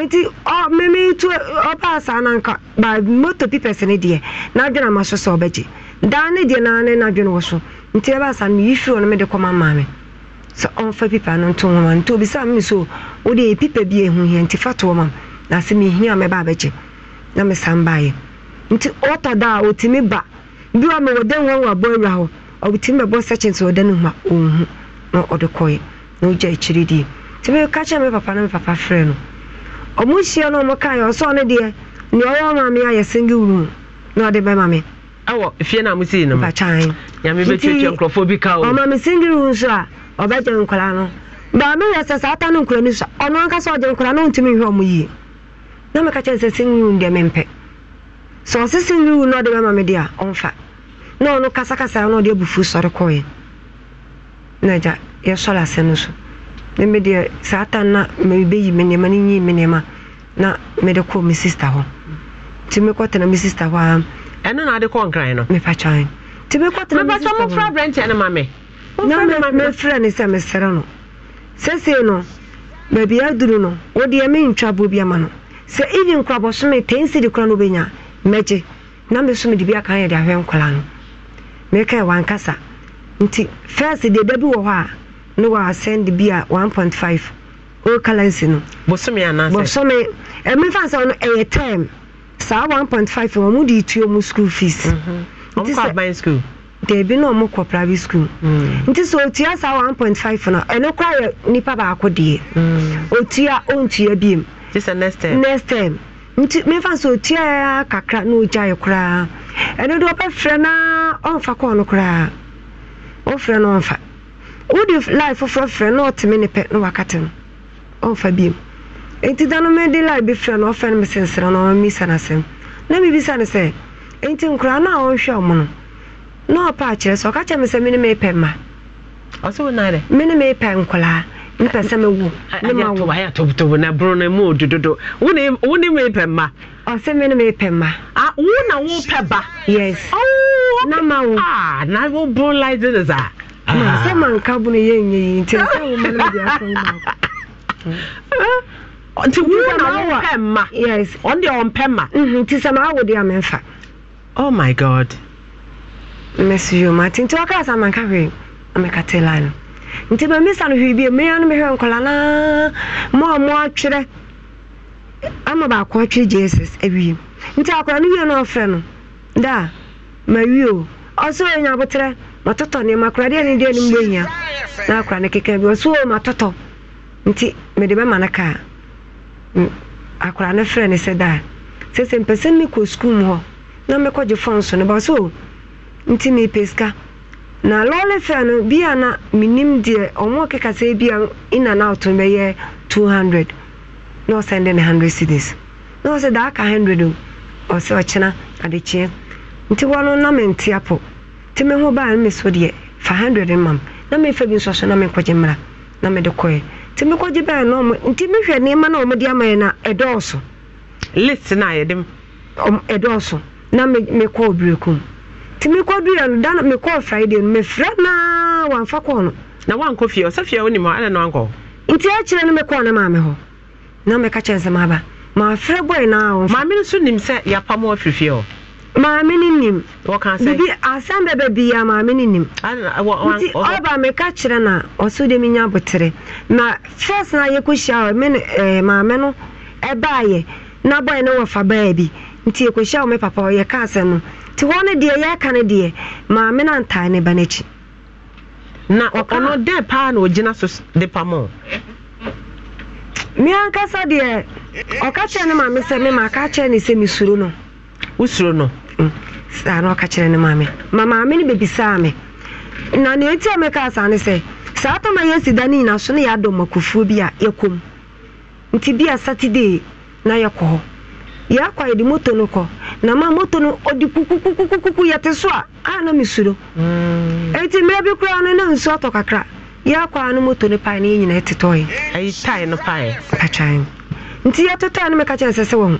Speaker 9: nti mmemme tu e, ọba saa na nka ba moto pipɛs ne deɛ n'adwene ama so sɛ gye daa ne deɛ naa n'adwene wɔ so nti ɛbaa asaa no yi firi kɔma sɛ pipa no nto nti obi so e pipa bi nti fa na sɛ mehia a mɛba abɛgye na mesan baeɛ nti ɔtɔ da a ɔtumi ba bi wa mewɔ dan wa wɔ abɔ awia hɔ sɛkyin sɛ ɔda a ɔnhu na ɔde kɔɛ nti ɔmo hyia na ɔmo ya ɔsɔ ne deɛ nea ɔwɔ ayɛ na ɔde na
Speaker 1: yi mu nyame bɛ nkurɔfoɔ bi ka
Speaker 3: o. ɔmo
Speaker 9: ame single room so a ɔbɛgye nkwadaa no baami yɛ sɛ saa ata no nkwadaa no so ɔno ankasa ɔgye nkwadaa no ntumi nhwɛ yie na mɛka kyɛn sɛ single room deɛ mɛmpɛ sɛ ɔsi single room na ɔde bɛma me deɛ ɔmfa na ɔno kasakasa na ɔde abufu meme deɛ saa ta na mebɛyi me nneɛma no nyi me nneɛma na mede kɔ me sister hɔ nti mekɔtena me sister hɔ a ɛno na ade kɔ nkran no mepatwan nti mekɔtena mepatwa mofra aberɛnteɛ no ma me na mefrɛ ne sɛ mesrɛ no sɛsei no baabi aduru no wodeɛ mentwa boɔ bi ama no sɛ even kora bɔsome ten sidi kora no wobɛnya mɛgye na me so mede bi aka yɛde ahwɛ nkɔla no meka wankasa nti first deɛ da bi wɔ hɔ a ne send bi a 1.5 o currency no bosome anaasɛ bosome ɛmefa sɛ no ɛyɛ term saa 1.5 wɔn mu de tuo mu school fees mhm. wɔn kɔ aban school deebi na wɔn kɔ private school mm. nti sɛ otua saa 1.5 no ɛno kora yɛ nipa baako deɛ mm. otua ontua biem sɛ next term next term nti mefa sɛ otua kakra na ogya yɛ koraa ɛno de wɔbɛfrɛ na ɔmfa kɔɔ no koraa wɔfrɛ no ɔmfa wode lie foforɔ frɛ na ɔteme ne pɛ na wakate no ɔmfa biom enti da no mede life bi frɛ no ɔfɛ no mesensera no ɔmamisa no asɛm na mebisa no sɛ enti nkoraa no a ɔnhwɛ ɔmo no na ɔpɛ akyerɛ sɛ ɔka kyerɛ me sɛ mene meepɛ ma mene meepɛ nkoraa mpɛ sɛ mewo ne ma wo ma
Speaker 1: ɔsɛ mene na wopɛ ba yes oh, na ma wo ah, na a ah?
Speaker 9: na ma nka bo no nti sɛ woma no mede asɛ wo nti wo na wompɛ yes ɔno ɔmpɛ ma nti sɛ ma awo a memfa oh my god mɛso nti wɔkaa sɛ manka hwee tela no nti mamisa no hwee no mehwɛ nkɔla naa ma ɔmo atwerɛ ama baako atwerɛ jesus awie nti akɔla no wie no ɔfrɛ no mawie o ɔsɛ ɔyɛ matɔtɔ ne makora ne deɛ no mbɔ na akora ne keka bi ɔso o matɔtɔ nti mede bɛma no kaa mm, akora no frɛ ne sɛ daa sɛ sɛ mpɛ sɛ sukuu mu hɔ na mɛkɔgye fɔn so no ba so nti mepɛ sika na lɔɔre fɛ no bia na menim deɛ ɔmo keka sɛ bia in and out bɛyɛ 200 na ɔsɛnde ne 100 cities na ɔsɛ daa ka 100 o ɔsɛ ɔkyena adekyeɛ nti wɔno na mente apɔ nti me ho baa me so deɛ fa hundred mam na mefa bi nsoaso na mekɔgye mmra na mede kɔɛ nti mekɔgye bɛɛ no ɔmo nti mehwɛ nneɛma na ɔmo de ama yɛ na ɛdɔɔso list na yɛde ɛdɔɔso na mekɔ obirekum nti mekɔ duya no dana mekɔ friday no mefrɛ naa wamfa kɔɔ no na
Speaker 1: wankɔ fie ɔsɛ fie wonim hɔ ana na wankɔ
Speaker 9: nti akyerɛ no mekɔɔ na maame hɔ na meka kyɛ nsɛm aba maafrɛ bɔe naa maame no so nim sɛ yɛapam afirifie hɔ maame no nim bibi asɛm bɛbɛ ya maame no nim nti ɔba meka kyerɛ na ɔso de menya butere na first na yɛkɔhyia me eh, maame no yɛ na bɔɛ no wɔfa baa bi nti yɛkɔhyia wo me papa yɛka asɛm no nti hɔ no deɛ yɛka no deɛ maame na antae ne ba no
Speaker 1: na ɔno paa na ogyina so de pamɔ
Speaker 9: me ankasa deɛ ɔka kyerɛ ne maame sɛ kyerɛ ne sɛ no wosuro no mm. saa na ɔka kyerɛ ne maame ma maame no bɛbisaa me na nea ɛti a mɛka saa ne sɛ saa tama yɛasi da no nyina so ne yɛadɔ makofuo bi a yɛkɔm nti bi a saturday na yɛkɔ hɔ yɛakɔ yɛde moto no kɔ na ma moto no ɔde kukukukukuku yɛte so a a na mesuro ɛnti mm. mmerɛ bi koraa no na nsu atɔ kakra yɛakɔ a no moto no pae ne yɛ nyina ɛtetɔe ayi tae no pae atwae nti yɛtetɔe no meka kyerɛ sɛ sɛ wɔhu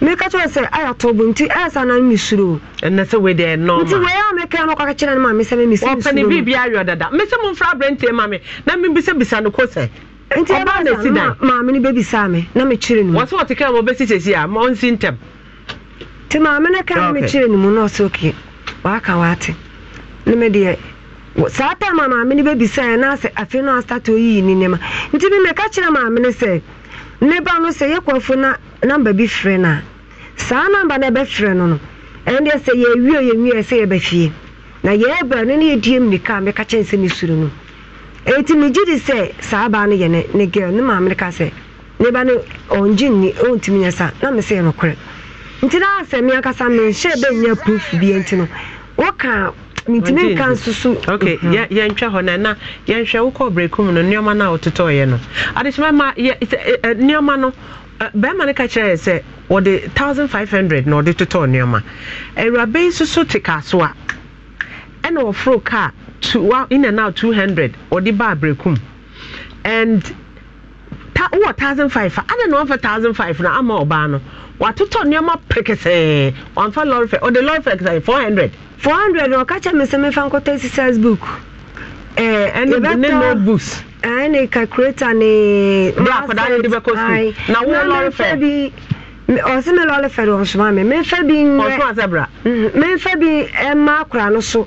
Speaker 9: meka kyerɛ sɛ ayɛ atɔ bo nti ayɛ sa nan mesuro ɛnɛ sɛ wei deɛ ɛnɔma nti wei a meka no kɔka kyerɛ no ma me sɛ me mesɛ mesuro biribi
Speaker 1: ayɔ dada me sɛ momfra aberɛntie ma me na mebisabisa no ko sɛ nti ɛba na si dan maame no bɛbisaa me na mekyerɛ no wɔ sɛ wɔte ka ma wobɛsi a ma ntɛm nti maame
Speaker 9: no ka na mekyerɛ no mu na ɔsɛ oke waaka waate ne me saa tam a maame no bɛbisaa na sɛ afei no astate ɔyiyi ne nneɛma nti me meka kyerɛ maame no sɛ ne ba no sɛ yɛkɔfo na namba bi firi no a saa namba ebe firi no no ɛno deɛ sɛ yɛwie yɛwie sɛ yɛbɛfie na yɛɛbrɛ no ne yɛdie mmirika a meka kyɛn sɛ ne suro no ɛnti megye di sɛ saa baa no yɛ ne ne girl ne maame no ka sɛ ne ba no ɔngye nni ɔntumi nyɛ sa na mesɛ yɛ nokorɛ nti na asɛ me ankasa menhyɛ nye proof bie nti no woka mentumi nka nsusu. so ok mhm.
Speaker 1: yɛntwa hɔ no na yɛnhwɛ wokɔ berɛku mu no nneɔma no a wototɔɔyɛ no
Speaker 9: adekyɛmɛma
Speaker 1: nneɔma no bɛrima no ka kyerɛ sɛ wɔde thousand five hundred na ɔde totɔ nneɛma awuraba yi soso te kaaso a ɛna wɔforo kaa two wa in and out two hundred ɔde ba abrekum and ta wɔ thousand five a ada na thousand five na ama ɔbaa no watotɔ nneɛma pɛkɛsɛɛ wɔn fa lɔri fɛ ɔde lɔri fɛ four hundred
Speaker 9: four hundred na ɔka kyerɛ mi sɛ mi fa
Speaker 1: nkɔtɔ exercise book
Speaker 9: ɛne eh, ne notebooks ɛne eh, calculator ne bra akwadaa ne de bɛkɔ sukuu na wo lɔre fɛ ɔsɛ me lɔre fɛ de ɔsoma me mefa bi nyɛ ɔsoma sɛ bra mefa bi ɛma akora no so.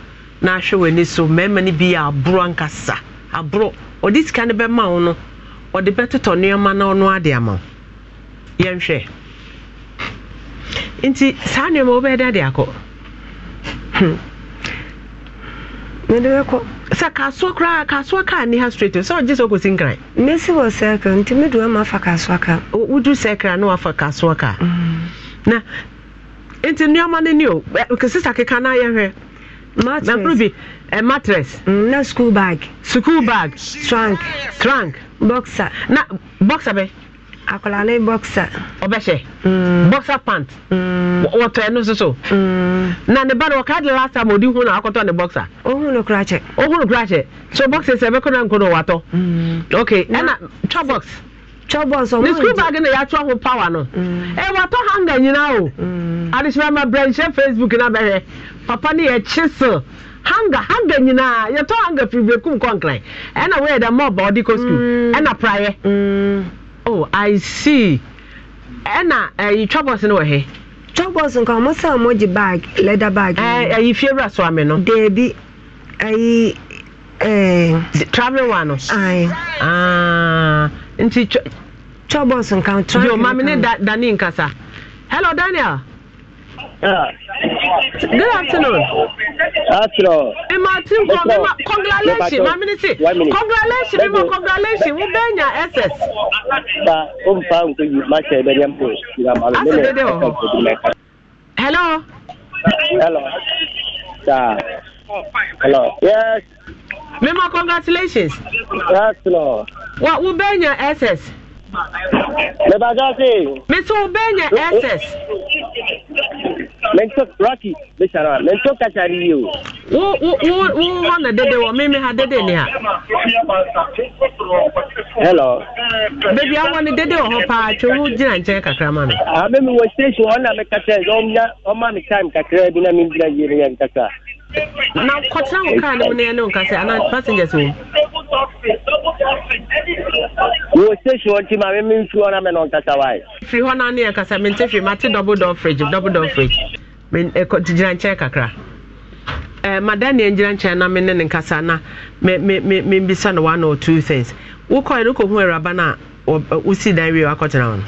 Speaker 1: na ahwɛ w'ani so mmarima no bi yɛ aboro ankasa aboro ɔde sika no bɛma wo no ɔde bɛtotɔ nneɛma na ɔno ade ama wo yɛnhwɛ nti saa nneɛma wobɛyɛ dɛ ade akɔ hmm. mede bɛkɔ sɛ kasoa koraa kasoa kaa ne ha straight sɛ ɔgye sɛ ɔkɔsi nkran
Speaker 9: mɛsi wɔ sɛkra nti medu ama afa kasoa ka wodu sɛkra na wafa kasoa ka mm. na
Speaker 1: nti nneɛma no ni o sisa keka no
Speaker 9: ayɛhwɛ mattress a mattress. Mm, na school bag. school bag. trunk. trunk. boxer. na boxer bɛ. akwadaa ne boxer.
Speaker 1: ɔbɛhyɛ. Mm. boxer pant. Mm. wɔtɔ ɛnu soso. Mm. na ne ba no ɔka de last time odi hun na akɔtɔ ne boxer. ohun no kura kyɛ. ohun no kura so boxer sɛ ɛbɛkɔ na nkono watɔ. Mm. okay ɛna twɛ box. twɛ box ɔmo n ne school bag na yɛatɔ ho power no. ɛ mm. watɔ hanga nyinaa o. Mm. adesimama brɛ n ṣe facebook na bɛhɛ. papa no yɛ kyesel hanga hanga nyinaa yɛtɔ hanga firifiiri kum kɔnkran ɛna wɔyɛ dɛ mɔba ɔde kɔ sukuu mm. ɛna praeɛ mm. oh i see
Speaker 9: ɛna ɛyi eh, twabɔs no wɔ he. twabɔs nka wɔn sɛ wɔn gye bag leather bag. ɛɛ ɛyi eh, eh, fie wura so ame no. deebi ɛyi ɛɛ. travelling wa no.
Speaker 1: ayi. Ah, nti twabɔs nka. yoo maame ne dani nkasa hello daniel. Good afternoon. Astro. Emma Tim from Emma. Congratulations, my minister. Congratulations, Emma. Congratulations. We bring your SS. Ba,
Speaker 10: um, pa, um, tu, ma, che, beri, um, push. Asa, beri,
Speaker 1: Hello. Hello. Da. Hello. Yes. Mema, congratulations. Astro. What, we bring your SS? mebagase.
Speaker 10: mesu benya ss. mento rocky mesara mento kachari yi o. wo wo wo na dede mi mi ha dede ni ha. hello. beebi ni dede wɔ hɔ paa tso wo gyina kakra ma mi. a mɛ mi wɔ mi kasa yi mi kakra bi na mi gyina
Speaker 1: na kɔtena wo kaa no mu na ɛne nka sɛ ana passengers wɔ
Speaker 10: wɔ station nti ma me memfiri na me na wae
Speaker 1: firi hɔ na ne yɛkasa mente hwee mate double door fridge double door fridge gyina eh, nkyɛn kakra eh, madam ne gyina nkyɛn na ne nkasa na membisa no one or two things wokɔɛ no kɔhu awuraba no a wosi dan wie wakɔtena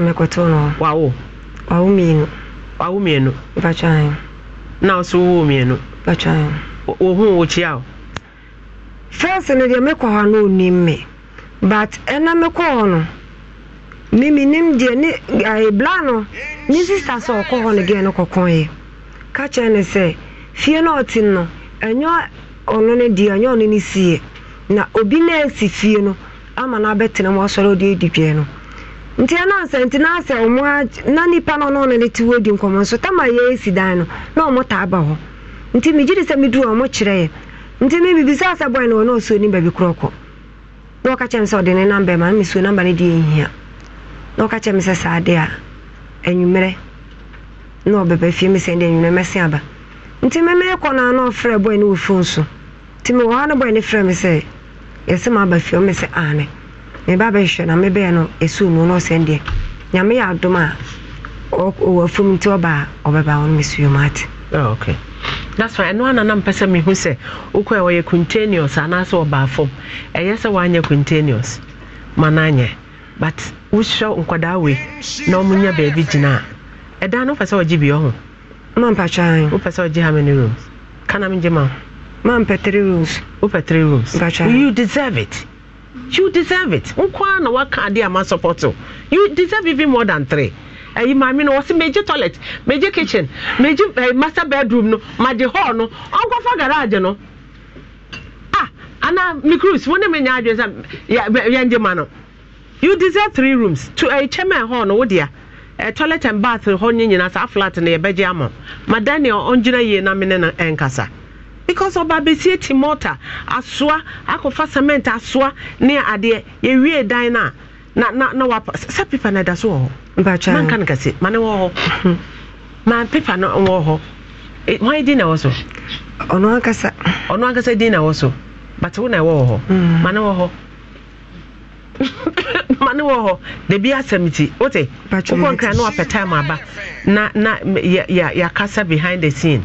Speaker 9: no no wawo wawo mmienu wawo mmienu na ɔso wowɔ mmienu wɔ ho wɔkyia o fɛs no deɛ mekɔ hɔ no ɔnim me but ɛna mekɔ hɔ no miminim deɛ ne ɛbla no ne sista sɛ ɔkɔ hɔ no gɛɛ no kɔkɔeɛ ka kyerɛ ne sɛ fie no ɔte no ɛnyɛ ɔno no deɛ ɛnyɛ ɔno no sie na obi na asi fie no ama no abɛtena mu ɔsɔre ɔde adi dwɛ no nti anansa nti na asɛ ɔmo na nipa no ɔno ɔno ne ti wɔ di nkɔmɔ nso tama yɛ esi dan no na ɔmo ta aba hɔ nti megye de sɛ meduru ɔmo kyerɛ yɛ nti mi me bibisa asɛ bɔn no ɔno ɔsuo ni baabi korɔ kɔ na ɔka kyɛm sɛ ɔde ne namba ma mi suo namba ne deɛ nhia na ɔka kyɛm sɛ saa de a anwummerɛ na ɔbɛba fie mi sɛ de anwummerɛ mɛse aba nti me meekɔ no a na ɔfrɛ bɔn no wɔ fon so nti mewɔ ha no bɔn no frɛ mi sɛ yɛsɛ ma aba fie ɔmo sɛ aane meba bɛhwɛ na mebɛɛ no no na ɔsɛn deɛ nyame yɛ adom a ɔwɔ nti ɔba a ɔbɛba wo no mesuo ate ah,
Speaker 1: that's right ɛno ana na mpɛ sɛ mehu sɛ wokɔɛ wɔyɛ continuous anaasɛ ọbaa fam ɛyɛ sɛ woanyɛ continuous ma no anyɛ but nkwadaa wei na ɔmo nya baabi gyina a no wopɛ sɛ mampatwan wopɛ sɛ rooms kana megye ma
Speaker 9: mampɛ rooms wopɛ rooms you deserve
Speaker 1: it you deserve it nkwa na waka ade ama support o you deserve even more than three ɛyi maame no wɔsi meji toilet meji kitchen meji ɛɛ master bedroom no maji hall no ɔnkɔfa garage no ah ana mi cruise wɔn ne mi nya adwene sɛ yɛ yɛn gye ma no you deserve three rooms to ɛɛ chairman hall no wodia ɛɛ toilet and bath hɔ nyinaa saa flat no yɛ bɛgye ama madaniel ɔngyina yie na mi ne no ɛnkasa because ọba besie ti mọta asoa akɔfa cement asoa ne adeɛ yɛwie dan no na na na wapa sa pepa na ɛda so wɔ hɔ manka no kɛse ma ne wɔ hɔ mhm. ma pepa no wɔ hɔ hwan e, din na ɛwɔ so ɔno ankasa ɔno ankasa din na ɛwɔ so but wo na ɛwɔ wɔ hɔ mm. ma ne wɔ hɔ ma ne wɔ hɔ dabi asɛm ti wote wokɔ nkra na wapɛ time aba na na yɛakasa behind the scene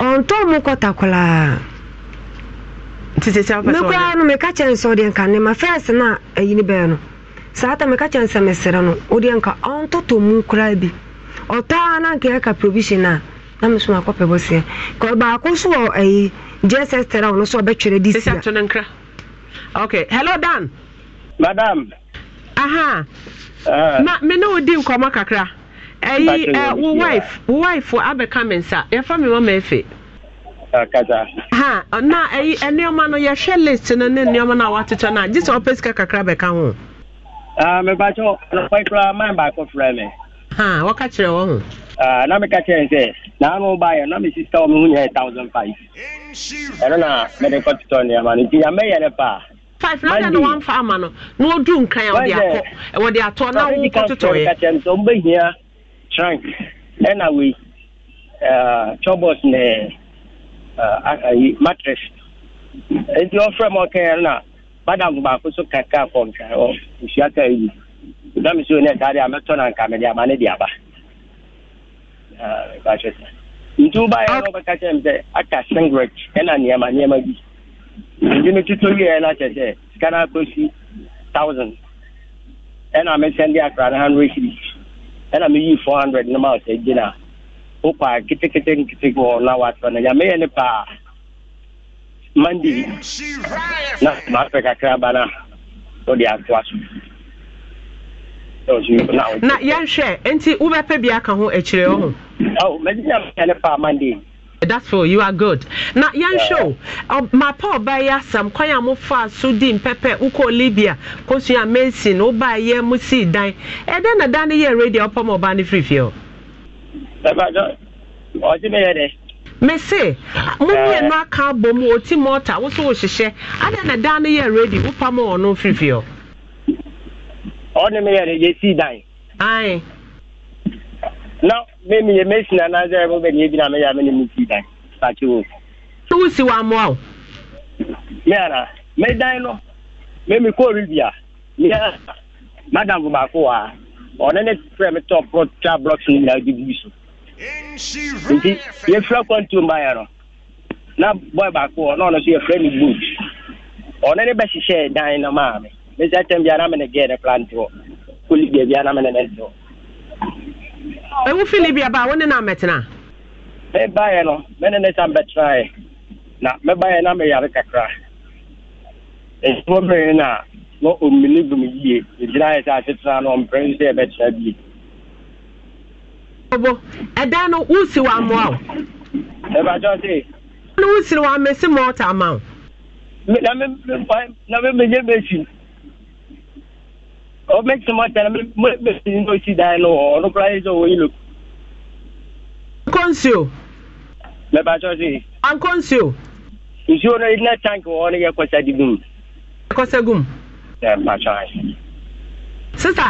Speaker 9: ɔntɔ eh, mu kɔta koraa mekoraa no meka kyerɛ sɛ wodeɛ nka nnema fɛs na a ayini bɛɛ no saa ta meka kyerɛ sɛ mesere no wodeɛ nka ɔntɔtɔ mu koraa bi ɔtaa na nka ɛka provision a na meso akɔpɛ bɔseɛ baako so wɔ ayi jss tera wo no so ɔbɛtwerɛ de sia Ok,
Speaker 1: hello dan madam aha uh. Eh. na me ne wodi nkɔmmɔ kakra ɛyi uh, eh, wo wife wo wife abɛka nsa yɛfa efe ah, ha na ɛyi eh, nneɛma no yɛhwɛ list no ne nneɛma no a watetɛ no gye sɛ ɔpɛ sika kakra bɛka ho
Speaker 10: ah, mebakyɛ man ha
Speaker 1: wɔka kyerɛ wɔ ho
Speaker 10: ah, na meka kyerɛ sɛ na me sister wɔ me ho nyɛ thousand five ɛno na mede kɔtotɔ nneɛma no nti yamɛyɛ ne
Speaker 1: five na ama no na
Speaker 10: Trank ɛna wei chobos ne matres nti ɔfrɛ m ɔkaɛ na madam baako so kaka kɔnka ɔ ka yi na me ne saa a mɛtɔ na nka mede ama ne de aba nti wobɛka m sɛ aka singret ɛna nneɛma nneɛma bi nti wieɛ no sɛ thousand ɛna mesɛnde akra no hundred ɛna meyii four hundred no ma ɔsɛ gyina wokɔ a ketekete nkete wɔ na watrɔ no nyameyɛ ne paa mande na maafɛ kakra ba no wode atoa
Speaker 1: so na yɛnhwɛ nti wobɛpɛ bi aka ho akyirɛ e wo ho mɛgyina meyɛ ne paa mande that's for you are good na yɛnhwɛ o mapa ɔbaeɛ asɛm ya a mofaa so di mpɛpɛ wokɔ libia kɔsua masin wobaeɛ mo sii dan ɛdɛ na da no yɛ radio wopɔ ma ɔbaa no firifie ɔ mese momienu aka abɔ mu ɔti a wo so wohyehyɛ adɛ ah, na da no yɛ radio wopa ma ɔno firifie ɔ ɔne meyɛ no yɛsii dan ae
Speaker 10: na mẹ́mi yẹ mẹ́sìn náà náà sẹ́yìn mo bẹ̀ na ebi náà mẹ́yà mẹ́ni mi ti dàn pàṣẹ o. ṣé wọ́n sì wá mọ́ ọ. mi àná mẹ́ dán lọ mẹ́mi kó rí bìà mi àná madam baako wa ọ̀nà ne fẹ́ mi tọ́ pọ́tà blọọkì ní ìlà ojú bíbí so. nti yẹ fẹ́ kọ́ntì ọmọ yẹn no na bọ́ọ̀ baako ọ̀nà ọ̀nà so yẹ fẹ́ mi gbòòd ọ̀nà ne bẹ́ hyehyẹ dan na maame mẹ́sàn-án tẹ̀ bi anamẹ́nẹ̀ gẹ́ẹ̀ ne plantiwọ̀ kólí bẹ̀ẹ̀ bi anamẹ́nẹ̀ nẹ̀ dọ̀ ɛwo fi libia ba wo ne na mɛtena mebaeɛ no me ne ne sa mbɛtenaeɛ na mebaeɛ na meyare kakra ɛfo mmere no a na ɔmmini gum yie ɛgyinaeɛ sɛ asetena no ɔmprɛ sɛ ɛbɛtena bie
Speaker 1: bobo ɛdan no wosi wɔ amoa o ɛbakyɛ se no wosiri wɔ amɛsi mɔɔta ama o na me na me megye bɛsi
Speaker 10: make some more time make you no see die no no price or you look. Akonsuo. Mẹ̀bà Chọ́sí. Akonsuo.
Speaker 1: Nsuo náà iná tank wọ́n ní yẹ kọ́sẹ́ di gum. Kọ́sẹ́ gum. Ẹ̀ màá ṣọ́ àyè. Sísà.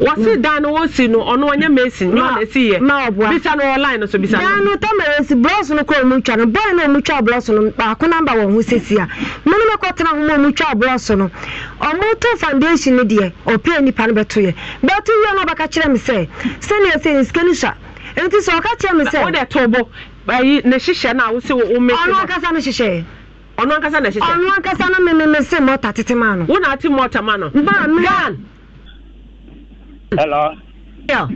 Speaker 1: wɔsi hmm. dan no wɔsi no ɔno ɔna esi yɛ
Speaker 9: na ɔboa bisa no no so bisa no. dan no tamara no kɔ ɔmu namba wɔn ho sisi a kɔ tena ho no ɔmu to foundation no deɛ nipa no bɛto yɛ bɛto yɛ no ɔbɛka kyerɛ mi sɛ nsike no sa nti sɛ ɔka kyerɛ na awosi wo ɔmu na ɔno ankasa no hyehyɛ ɔno ankasa na hyehyɛ ɔno ankasa no mɔta tete maa no. wọn na ati mɔta maa no. mbaa mi. gan
Speaker 1: Hello. Yeah.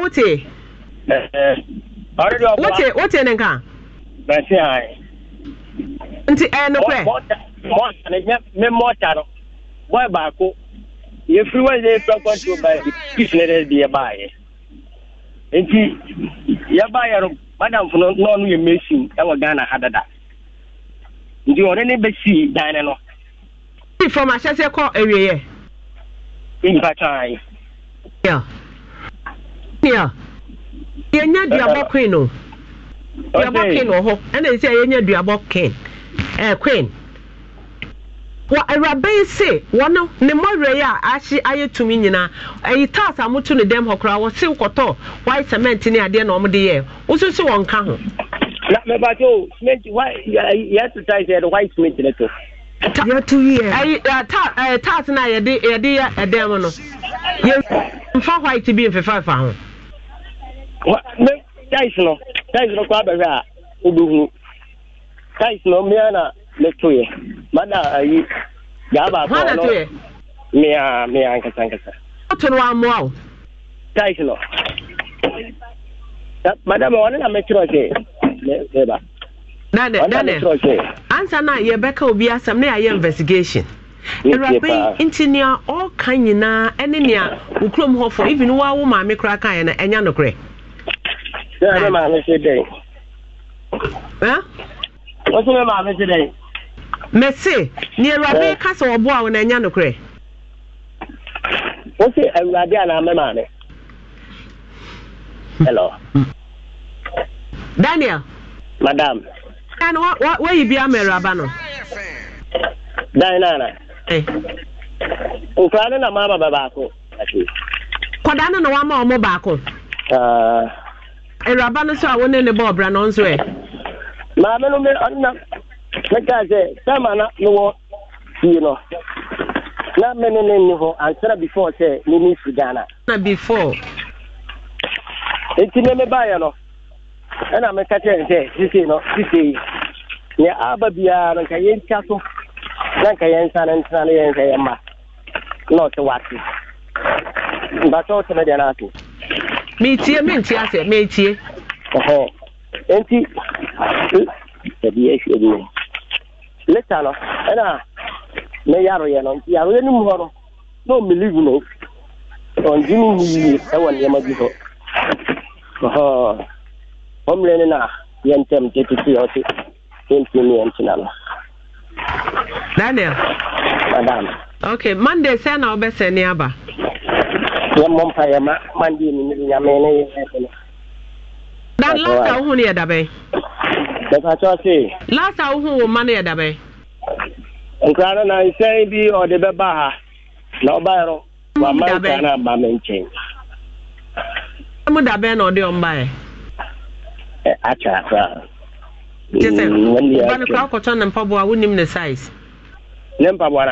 Speaker 1: wote. Ọrịa ọbụla. Wote wote ne nka. Nti ẹ nukwẹ. Mọta ne
Speaker 10: mme mọta no. baako. fẹ baa ne de yẹ yẹ. Nti yẹ yẹ no madam funu n'ọnu yẹ mesin ẹwọ Ghana ha dada. Nti bẹ si dan ne
Speaker 1: from ahyɛsɛ kɔ awieɛ. mpataa. ya ya yɛnya duabɔ queen o duabɔ queen wɔ hɔ ɛna nsɛ yɛnya duabɔ queen ɛɛ eh, queen wɔ awuraba yi se wɔn ne mmɔwerɛ yi a ahye ayɛ tumi nyinaa ɛyi taas a moto ne dɛm hɔ koraa wɔsew kɔtɔ white cement ne adeɛ na wɔn de yɛ woso wɔn ka ho.
Speaker 10: na mɛ bàtɛ o cement white yɛ exercise yɛ de white cement ne to. yɛ
Speaker 1: uh, uh, na yɛde yɛde yɛ ɛdɛm mu no yɛ nfa white bi nfefa nfa ho. wa ne tais no tais no kɔ abɛhwɛ
Speaker 10: a o tais no na ne to mada ayi ga baako ɔno hɔn na to yɛ.
Speaker 1: no o. tais no Madama, ɔno na mɛtiri ba. ansa na yɛbɛka obi asɛm na yɛayɛ investigation awuraba yi nti nea ɔka nyinaa ɛne nea wo kurom hɔ fo even na maame koraa kaeɛ no ɛnya nokorɛ mese nea awuraba ka sɛ wɔboa wo no ɛnya nokorɛ
Speaker 11: maame hmm.
Speaker 1: daniel madam Ah, Nana, what what where you be a merabano?
Speaker 10: Dinana. Eh. Ukana na mama babako.
Speaker 1: Kwada no na wama omo baako. Ah. Eraba eh, no so a wone ne ball bra no nso e. Maame no me anna. Meka se sama na no wo
Speaker 10: you know. Na me ne ne ni ho answer before say ni ni fi Ghana.
Speaker 1: Na before.
Speaker 10: Enti ne me ba ya no. ɛna mɛka kyerɛ ne sɛ sisei no sisei nea aba biara no nka yɛntwa so na nka yɛnsa no ntena no yɛnsɛ yɛmma na ɔte wate mbatɛ wo tɛmɛ deɛ no ato metie mentie asɛ metie enti ɛdeɛhwɛ bi leta no ɛna ne yaroyɛ no nti yaroyɛ no mu hɔ no na ɔmelive no ɔngye ne yie ɛwɔ nneɛma bi hɔ hom lene na yɛntɛm e gye titi hɔ se yɛntim ne yɛntena no
Speaker 1: daniel madam okay monday sɛ na wobɛsɛne aba yɛmmɔ mpa
Speaker 10: yɛma monday ne mede nyame ne eh? yɛsɛ eh? no
Speaker 1: dan last a wohu no yɛ dabɛn mɛpakyɛ se last a wohu wo ma no yɛ dabɛn nkra no
Speaker 10: na nsɛn bi ɔde bɛba ha eh? na ɔbaɛ no wama nkra no aba me nkyɛn
Speaker 1: mu dabɛn na ɔde ɔmbaɛ
Speaker 10: akyɛ akora kyɛ sɛ woba no kora
Speaker 1: wokɔtɔ ne mpaboa wonim ne size
Speaker 10: ne mpaboa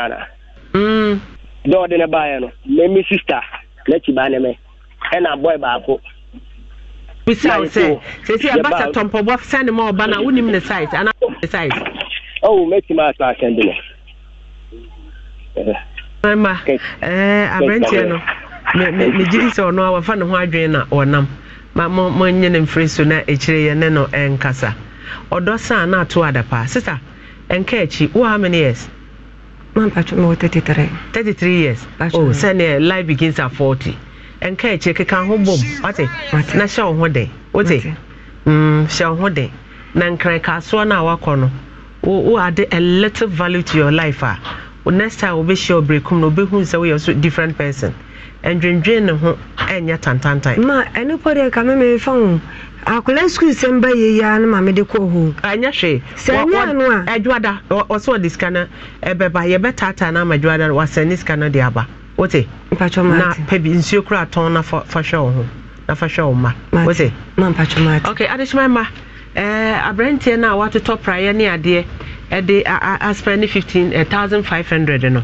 Speaker 10: mm. no ana dɛ ne baeɛ no meme sister n'akyi baa ne me ɛna bɔe baako bisa wo sɛ sɛsi ɛba sɛ tɔ
Speaker 1: mpaboa sɛne ma ɔba no a wonim ne size anaa ne size oh mɛtumi asa asɛnde no eh. mma eh, aberanteɛ no megye di sɛ ɔno a wafa ne ho adwene na ma mo mo nye ne mfiri so na ekyire yɛ ne no ɛnkasa ɔdɔ san na ato adapa sista nka akyi wo how many years.
Speaker 9: mampatwo mewɔ 33
Speaker 1: 33 years oh sɛneɛ life begins at 40 ɛnka akyi keka ho bom wate na hyɛ wo ho den wote mm, hyɛ wo ho den na nkrankasoɔ no a wakɔ no wo ade a little value to your life ah. a next time be wobɛhyia ɔberɛkum no wobɛhu sɛ woyɛ a different person ndwendwen ne ho ɛnyɛ tantantan.
Speaker 9: ma ɛne pɔ deɛ ka mɛmɛ fa ho akwadaa sukuu sɛm ba yie ya ne
Speaker 1: maame de kɔ hoo. ɛnyɛ hwee sɛ ɛnyɛ ano a. adwada ɔsɛ ɔde sika no ɛbɛba yɛbɛtaataa no ama adwada no wasɛn ne sika no de aba wote. mpatwa maa na pɛbi nsuo kura tɔn na fa hwɛ wɔn ho na fa hwɛ wɔn ma Ote. ma mpatwa maa ti. ok adehyemɛ ma ɛɛ eh, aberanteɛ na watu watotɔ praeɛ ne adeɛ ɛde aspɛ ne fifteen eh, thousand five hundred no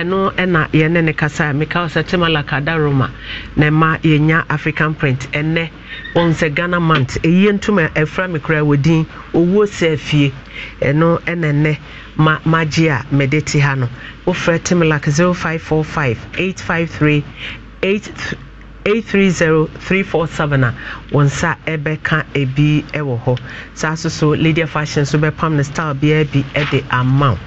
Speaker 1: ɛno ɛna yɛne ne kasa meka sɛ timala Roma na ma yɛnya african print ɛnɛ wɔn sɛ ghana mant ɛyie ntoma ɛfra e me kora wɔ din owuo sɛ afie ɛno ɛna ɛnɛ ma magye a mede te ha no wofrɛ timlak 0545 853 830347 a wɔn nsa ɛbɛka ebi ɛwɔ hɔ saa so so Lydia fashion nso bɛpam ne style biara bi ɛde ama wo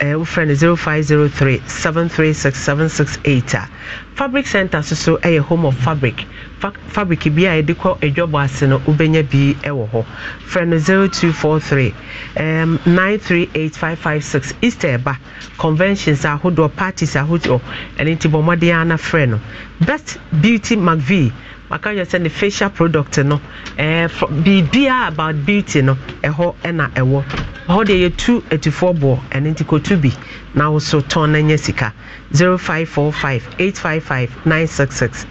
Speaker 1: ɛɛ wofrɛ no 0503 736 768 a fabric center soso yɛ home of fabric Fa fabric bi a yɛde kɔ adwabɔ ase no wobɛnya bi wɔ hɔ frɛ no 0243 um, 938556 easter ɛba conventions ahodoɔ parties ahodoɔ ɛno nti bɔ mmɔden ana frɛ no best beauty mcvie maka yɛ sɛ ne facial product no ɛɛ eh, biribiara about beauty no ɛhɔ ɛna ɛwɔ hɔ deɛ yɛtu atufoɔ boɔ ɛno nti kɔtu bi na woso tɔn na nyɛ sika 0545 855 966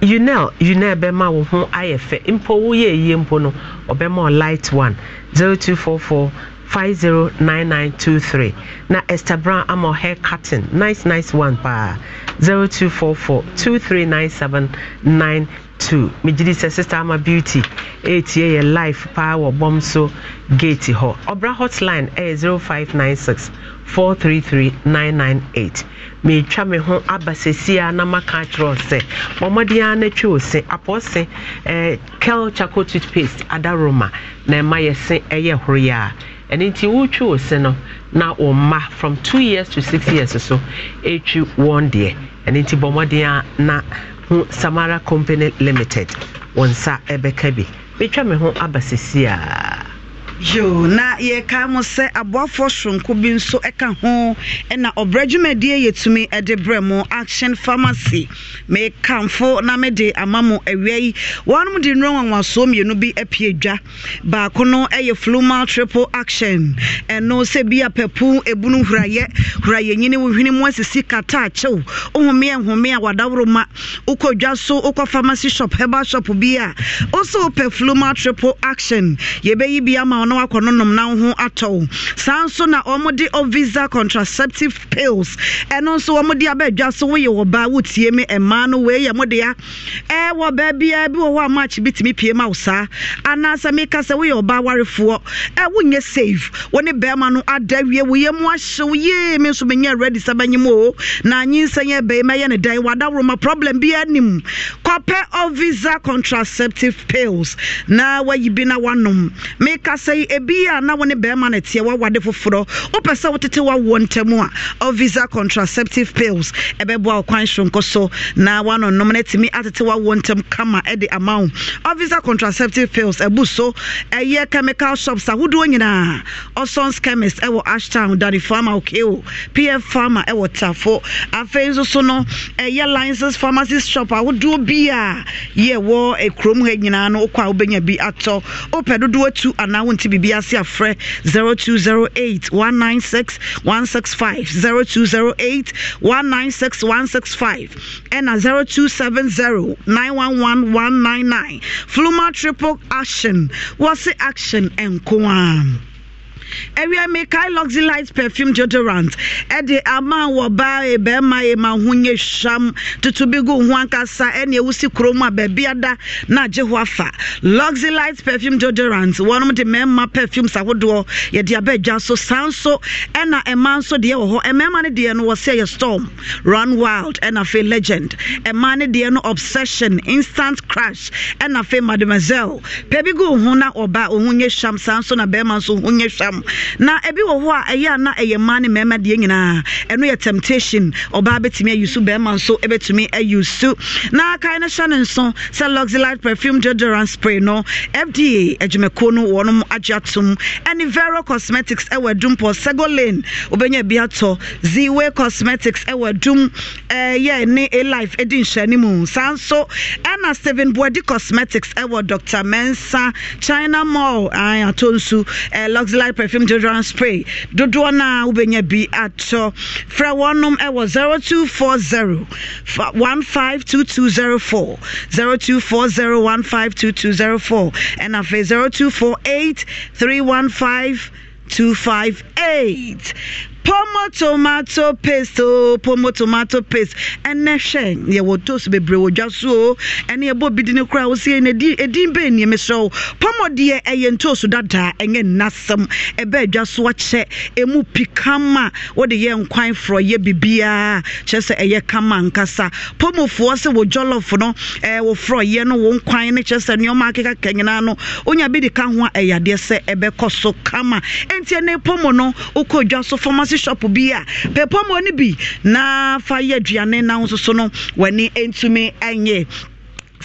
Speaker 1: unel unel bɛma wo ho ayɛ fɛ mpo woyɛ yie mpo no ɔbɛma o light one 0244 509923 na Esther Brown ama hair cutting nice nice one paa 0244 2397 two megyedi sɛ sister ama beauty ɛretie yɛ live paa wɔ bɔm so gate hɔ ɔbra hotline ɛyɛ 0596 433998 meretwa me ho aba sesia na maka akyerɛ sɛ bɔmmɔden ara no twe o se apɔɔ se eh, kel chaco toothpaste adaroma na ɛma yɛ se ɛyɛ eh, horoyɛ a ɛno nti wotwe o se no na wo mma from 2 years to 6 years so ɛtwi wɔn deɛ ɛno nti bɔmmɔden a na ho samara company limited wɔn nsa ɛbɛka bi metwa me ho aba sisi
Speaker 12: yo na yɛka mo sɛ aboafoɔ soronko bi nso ɛka ho ɛna ɔbrɛ dwumadie yɛtumi ɛde brɛ mo action pharmacy mekamfo na mede ama mo awia yi wɔnom de nnuro nwanwasoɔ mmienu bi apie dwa baako no ɛyɛ flumal triple action ɛno sɛ bi apɛpo ebunu hurayɛ hurayɛ nyini wohwene mu asisi kata akyew ohome ɛhome a wadaworo ma wokɔ dwa so wokɔ pharmacy shop heba shop bi a ɔsɛ wopɛ flumal triple action yɛbɛyi bi ama na wakɔ no nom na ho atɔ wo saa nso na wɔde ovisa contraceptive pills ɛno nso wɔde abɛadwa so woyɛ wɔ baa wotie me mmaa no wei yɛ mo dea ɛwɔ baabiaa bi wɔ hɔ a match bi tumi pie ma wo saa anaasɛ meka sɛ woyɛ ɔbaa warefoɔ ɛ wonyɛ save wo ne bɛrima no ada wie wo yɛ mu ahyew yee me nso menyɛ ready sɛ bɛnyem o na anyinsɛ yɛ bɛi mɛyɛ ne dan wadaworoma problem bi anim kɔpɛ ovisa contraceptive pills na wayi bi na wanom meka sɛ afei ebi a na wɔne bɛrima no teɛ wawade foforɔ wopɛ sɛ wotete wawoɔ ntam a visa contraceptive pills ɛbɛboa wo kwan soronko so na wanonom no atumi atete wawoɔ ntam kama de ama wo visa contraceptive pills ɛbu so ɛyɛ chemical shops ahodoɔ nyinaa ɔsons chemist ɛwɔ ashtown dane farma okeo pf farma ɛwɔ tafo afei nso so no ɛyɛ license pharmacy shop ahodoɔ bi a yɛwɔ eh, kurom ha nyinaa no wokɔ a wobɛnya bi atɔ wopɛ dodoɔ atu anaa wonti te biribi ase afrɛ 0208 196 165 0208 ɛna 0270 fluma triple action wɔse action nko a ɛwia mikael Light perfume deodorant ɛde ama wɔ baa yɛ e bɛrima yɛ ma e ho nyɛ hwam tutu bi gu ho ankasa ɛne ewusi kurom a baabi ada na agye ho afa luxelite perfume deodorant wɔn de mmarima perfumes ahodoɔ yɛde aba adwa so saa nso ɛna mmaa e nso deɛ wɔ hɔ mmarima no deɛ no wɔsɛ yɛ storm run wild ɛna fe legend mmaa no deɛ no obsession instant crash ɛna fe mademoiselle pɛ bi gu ho na ɔba ohun nyɛ hwam saa nso na bɛrima nso ho nyɛ hwam ntɛm na ebi wɔ hɔ a ɛyɛ ana ɛyɛ mmaa ne mmarima deɛ nyinaa ɛno yɛ temptation ɔbaa betumi ayi so bɛrima nso bɛtumi ayi so na kae no hyɛ ne nso sɛ luxelite perfume deodorant spray no fda adwumakuo no wɔnom agye atom ɛne vero cosmetics ɛwɔ adum pɔ segolane wobɛnya bi atɔ ziwe cosmetics ɛwɔ adum ɛyɛ eh, ne alife ɛdi nhyɛne mu saa nso ɛna steven boadi cosmetics ɛwɔ dr mensa china mall atɔ nsu eh, luxelite perfume deodorant spray dodoɔ no a wobɛnya bi atɔ frɛ wɔnom ɛwɔ 0240 152204 0240152204 ɛna afei 0248 315 258 pomo tomato paste o oh, pomo tomato paste ɛnɛ hwɛ yɛwɔ toast bebree wɔ dwa so o ɛne ɛbɔ bi di ne kora wosie no ɛdin bɛɛ nneɛma srɛ wo pomo deɛ ɛyɛ ntooso dada ɛnyɛ nnasɛm ɛbɛɛ dwa so akyɛ ɛmu pikama wode yɛ nkwan forɔ yɛ bibiaa kyerɛ sɛ ɛyɛ kama nkasa pomofoɔ sɛ wɔ jɔlɔf no ɛɛ wɔ forɔyɛ no wɔ nkwan ne kyerɛ sɛ nneɛma akekaka nyinaa no wonya bi de ka ho a ɛyɛ e adeɛ sɛ ɛbɛkɔ e so kama ɛnti e pomo no wokɔ dwa so pharmacy coffee shop bi a pɛpɔmɔ no bi na fa yɛ aduane na nso so no w'ani ntumi nyɛ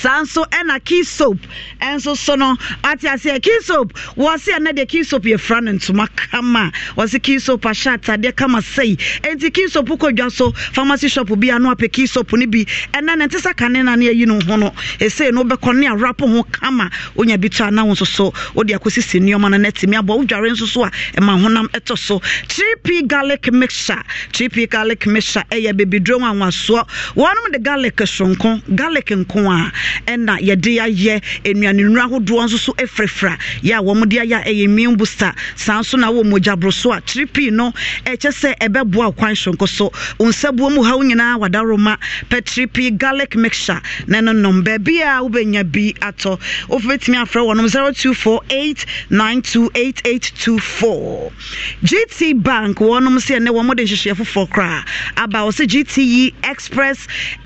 Speaker 12: saa nso ɛna key soap ɛnso so no ate aseɛ key soap wɔse ɛnɛ deɛ key soap yɛfra no ntoma kama wɔse key soap ahyɛ atadeɛ kama sɛi enti key soap kɔ dwa so pharmacy shop bi ano apɛ key soap no bi ɛnɛ ne nte sɛ kane na ne ayi no ho no ɛsei no wobɛkɔ ne arapo ho kama wonya bi to ana nso so wode akɔsisi nneɔma no na atumi abɔ wodware nso so a ɛma honam ɛtɔ so 3p garlic mixture 3p garlic mixture ɛyɛ bebiduro nwanwasoɔ wɔnom de garlic sonko garlic nko a ɛna yɛde ayɛ nnuane nnuro ahodoɔ nso so afirafira yɛ a wɔn de ayɛ ɛyɛ meal booster saa nso na wɔn mogya boro so a tripi no ɛkyɛ sɛ ɛbɛboa kwan soronko so nsabuo mu ha nyinaa wadaroma pɛ tripi garlic mixture na ɛno nom baabi a wobɛnya bi atɔ wofɛtumi afrɛ wɔnom 0248 928824 gt bank wɔnom sɛ ɛnɛ wɔn de nhyehyɛ foforɔ koraa aba wɔ sɛ gte express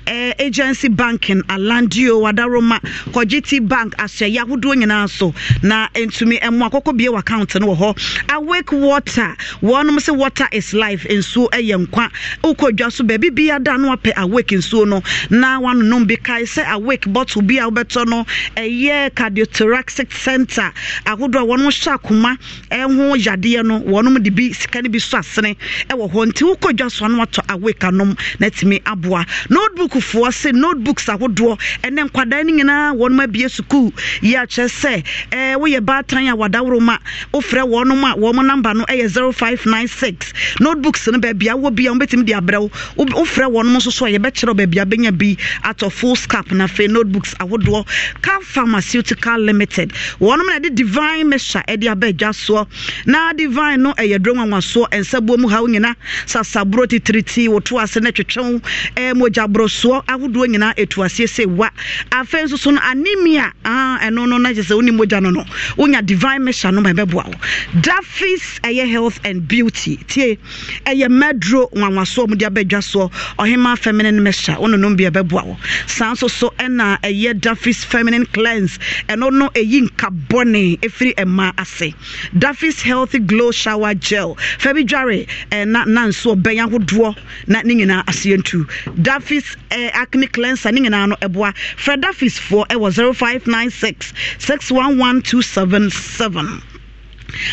Speaker 12: eh, agency banking alandio awadaroma kɔgye t bank ahyɛyɛ ahodoɔ nyinaa so na ntumi ɛmo akɔkɔ bie account no wɔ hɔ awake water wɔnom sɛ water is life nsuo ɛyɛ nkwa wokɔ dwa so baabi bia da no apɛ awake nsuo no na wanonom bi kae sɛ awake bottle bi a wobɛtɔ no ɛyɛ cardiothoracic center ahodoɔ a wɔnom hyɛ akoma ɛho yadeɛ no wɔnom de bi sika no bi so asene ɛwɔ hɔ nti wokɔ dwa so ano watɔ awake anom na atumi aboa notebookfoɔ sɛ notebooks ahodoɔ ɛne akwadaa no nyinaa wɔnom abie sukuu yi akyerɛ sɛ ɛɛ woyɛ baatan a wadaworo ma wofrɛ wɔnom a wɔn namba no ɛyɛ zero five nine six notebooks no baabi awɔ bi a wɔbɛtumi de abrɛ wo wofrɛ wɔnom nso so a yɛbɛkyerɛ baabi abɛnya bi atɔ full scap na afei notebooks ahodoɔ car pharmaceutical limited wɔnom na yɛde divine mesha ɛde aba adwa soɔ na divine no ɛyɛ duro nwanwasoɔ nsabuo mu ha wo nyinaa sasaburo titiriti woto ase na twetwe wo ɛɛ mogya borɔsoɔ ahodoɔ nyinaa etu aseɛ sɛ wa afei nso so no anemia ah, ɛno no na gye sɛ wonim mogya no no wonya divine measure no ma ɛbɛboa wo dafis ɛyɛ health and beauty tie ɛyɛ maduro nwanwasoɔ mode abɛdwa soɔ ɔhema feminine measure wononom bi ɛbɛboa wo saa nso so ɛna ɛyɛ dafis feminine cleanse ɛno no ɛyi nkabɔne ɛfiri ɛma ase dafis healthy glow shower gel fa bi dware na na nso ɔbɛn ahodoɔ na ne nyinaa aseɛ ntu dafis acne cleanser ne nyinaa no ɛboa frɛ frɛ dafisfoɔ ɛwɔ 0596 611277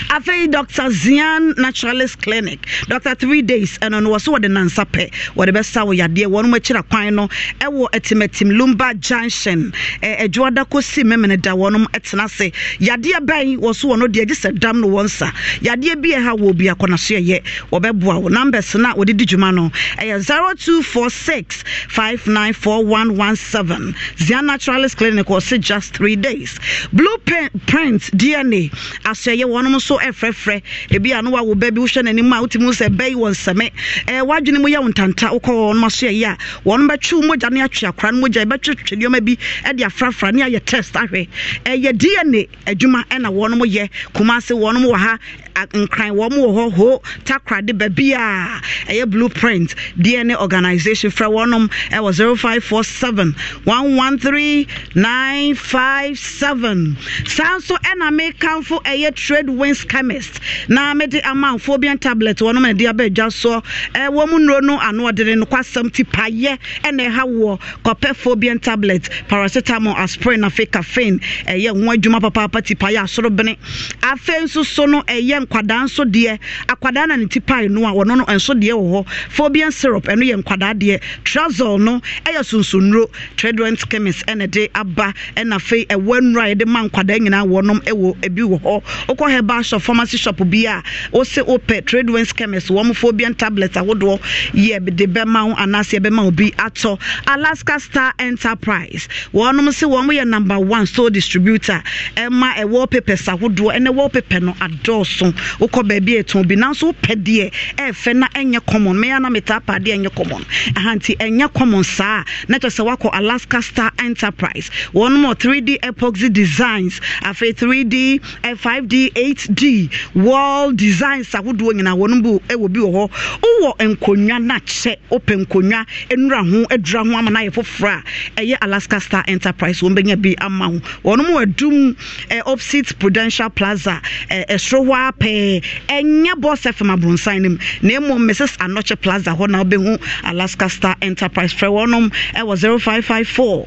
Speaker 12: afei dr zian naturalist clinic dr three days ɛno no wɔ so wɔde nansa pɛ wɔde bɛsa wo yadeɛ wɔnom akyira kwan no ɛwɔ atimatim lumba junction adwoada kɔsi memene da wɔnom tena ase yadeɛ bɛn wɔ so wɔ no deɛ gye sɛ dam no wɔn nsa yadeɛ bi ɛha wɔ bi akɔnaso ɛyɛ wɔbɛboa wo numbers no a wɔde di dwuma no ɛyɛ 0246 594117 zian naturalist clinic wɔ se just three days blue print dna asɛyɛ wɔn wɔnom nso ɛfrɛfrɛ ebi a no wawo bɛ bi wohwɛ n'anim a wotumi sɛ bɛyi wɔn nsɛmɛ ɛɛ wadwene mu yɛ wɔn ntanta wokɔ wɔnom aso yɛyi a wɔnom bɛtwe mogya ne atwe akora no mogya ɛbɛtwetwe nneɛma bi ɛde afrafra ne ayɛ test ahwɛ ɛyɛ dna adwuma ɛna wɔnom yɛ kumase wɔnom wɔ ha nkran wɔn wɔ hɔ ho takoradi baabi a ɛyɛ blueprint dna organisation frɛ wɔnom ɛwɔ zero five four seven one one three nine five seven saa nso ɛna mekanfo ɛyɛ trade winds chemist na mede amanfoɔ bi tablet wɔnom na ɛde abɛɛdwa soɔ ɛwɔ mu nnuro no ano ɔdene no kwasɛm ti payɛ ɛna ɛha wɔ kɔpɛfoɔ bi tablet paracetamol aspirin afei caffeine ɛyɛ ho adwuma papaapa ti payɛ asorobene afei nso so no ɛyɛ nkwadaa nso deɛ akwadaa na ne ti pie no a wɔno no nso deɛ wɔ hɔ Phobian syrup ɛno yɛ nkwadaa deɛ trazol no ɛyɛ sunsonnuro tradent chemist ɛna de aba ɛna fe ɛwɔ nnuro a yɛde ma nkwadaa nyinaa wɔnom ɛwɔ ebi wɔ hɔ wokɔ herbal shop pharmacy shop bi a wose wopɛ tradent chemist wɔn phobian tablet ahodoɔ yɛ de bɛma ho anaasɛ bɛma obi atɔ alaska star enterprise wɔnom sɛ wɔn yɛ number one store distributor ɛma ɛwɔ papers ahodoɔ ɛna ɛwɔ paper no adɔɔso common wokɔ baabi ɛtɔn bi nanso wopɛ deɛ ɛɛfɛ na ɛnyɛ common mɛyɛ na metaa pa adeɛ ɛnyɛ common ahanti ɛnyɛ common saa na kyerɛ sɛ wakɔ alaska star enterprise wɔnom 3d epoxy designs afei 3d 5d 8d wall designs ahodoɔ nyinaa wɔnom bi ɛwɔ bi wɔ hɔ wowɔ nkonnwa na kyɛ wopɛ nkonnwa nnura ho adura ho ama no ayɛ foforɔ a ɛyɛ alaska star enterprise wɔn bɛnya bi ama ho wɔnom wɔ adum eh, opposite prudential plaza eh, ɛsoro hɔ a pɛɛ ɛnyɛ bɔs fm abrɔnsan no mu na mmom mrs anɔkye plaza hɔ na wobɛhu alaska star enterprise frɛ wɔnom ɛwɔ 0554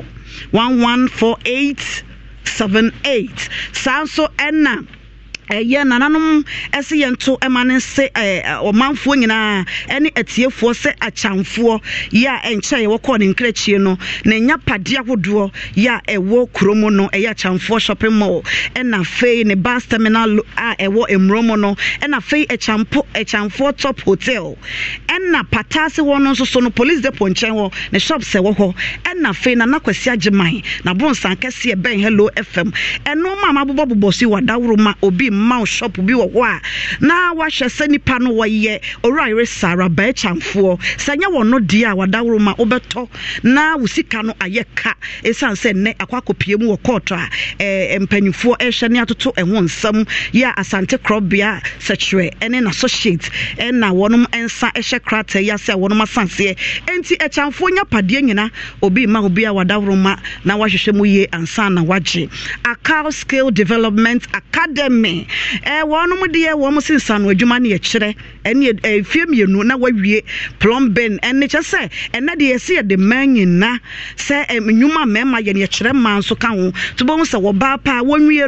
Speaker 12: 1148 78 saa nso ɛna ɛyɛ eh, nananom ɛsɛ yɛn to ɛma ne nse ɛɛ ɔmanfoɔ nyinaa ɛne ɛtiefoɔ sɛ akyamfoɔ yɛ eh, a ɛnkyɛn yɛwɔ kɔɔ ne nkrakyie no na nya padeɛ ahodoɔ yɛ a ɛwɔ eh, kurom no ɛyɛ akyamfoɔ shopping mall ɛna afei ne bus terminal a ɛwɔ mmuro mu no ɛna afei ɛkyampo ɛkyamfoɔ top hotel ɛna pataase hɔ no nso so no police depot nkyɛn hɔ ne sɛ wɔ hɔ ɛna afei nana kwasi agyeman na bonsan kɛseɛ bɛn hello fm ɛnoɔma a mabobɔbobɔ so yi wɔ adaworo ma obi mma shop bi wɔ hɔ a na wahyɛ sɛ nipa no wɔyɛ ɔwura yere sara bɛɛkyamfoɔ sɛ nyɛ wɔn no deɛ a wadaworo ma wobɛtɔ na wo sika no ayɛ ka ɛsiane sɛ nnɛ akɔ akɔpie mu wɔ kɔɔtɔ a ɛɛ mpanyinfoɔ ɛrehwɛ ne atoto ɛho nsɛm yɛ asante korɔbea sɛkyerɛ ɛne n'associate ɛna wɔn nsa ɛhyɛ krataa yi ase a wɔn asanseɛ nti ɛkyamfoɔ nya padeɛ nyinaa obi ma obi a wadaworo ma na wahwehwɛ mu yie ansa na wagye akaw skill development academy. Eh, wɔnom deɛ eh, wɔm se nsano na no yɛkyerɛ ɛne eh, fie mmienu na wawie plumbin ɛne nyina a mmarima yɛ mma yɛkyerɛ mmaa nso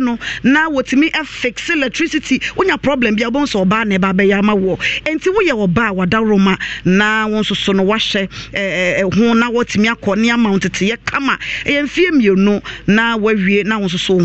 Speaker 12: no na wɔtumi afixe electricity wonya problem bia wobɛhu na ɛba bɛyɛ ama woɔ ɛnti woyɛ wɔbaa a na wo nso so no wahyɛ ho na wɔtumi akɔ ne ama wo kama na wawie na wo nso so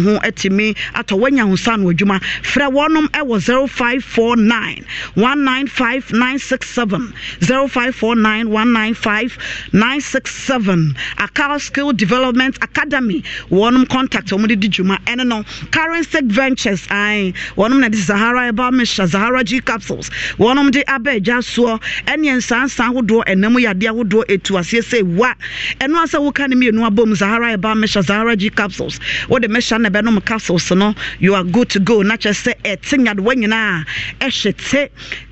Speaker 12: frɛ wɔnom ɛwɔ 0549 195967 Akal Skill Development Academy wɔnom contact wɔn de di dwuma ɛne no Current State Ventures ae wɔnom na de Zahara Herbal Mixture Zahara G capsules wɔnom de aba agya soɔ ɛne nsansan ahodoɔ ɛnam yadeɛ ahodoɔ etu aseɛ sɛ wa ɛno asɛ woka ne mmienu abom Zahara Herbal Mixture Zahara G capsules wɔde mɛhyɛ na ɛbɛnom capsules no you are good to go na kyɛ sɛ ɛte nyadewa nyinaa ɛhye te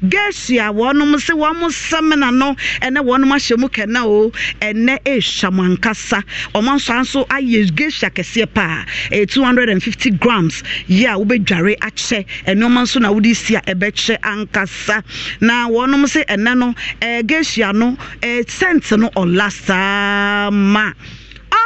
Speaker 12: gesu wɔnom sɛ wɔn sɛmina no ɛnɛ wɔnom ahyɛ mu kɛnɛ o ɛnɛ ɛrehwɛ mu ankasa wɔn nso nso ayɛ gesu akɛseɛ paa ɛyɛ two hundred and fifty grams yɛ a wobɛdware akyɛ ɛnneɛma nso na wode si a ɛbɛkyɛ ankasa na wɔnom sɛ ɛnɛ no ɛɛ gesu ano ɛɛ sɛnt no ɔla saa ma.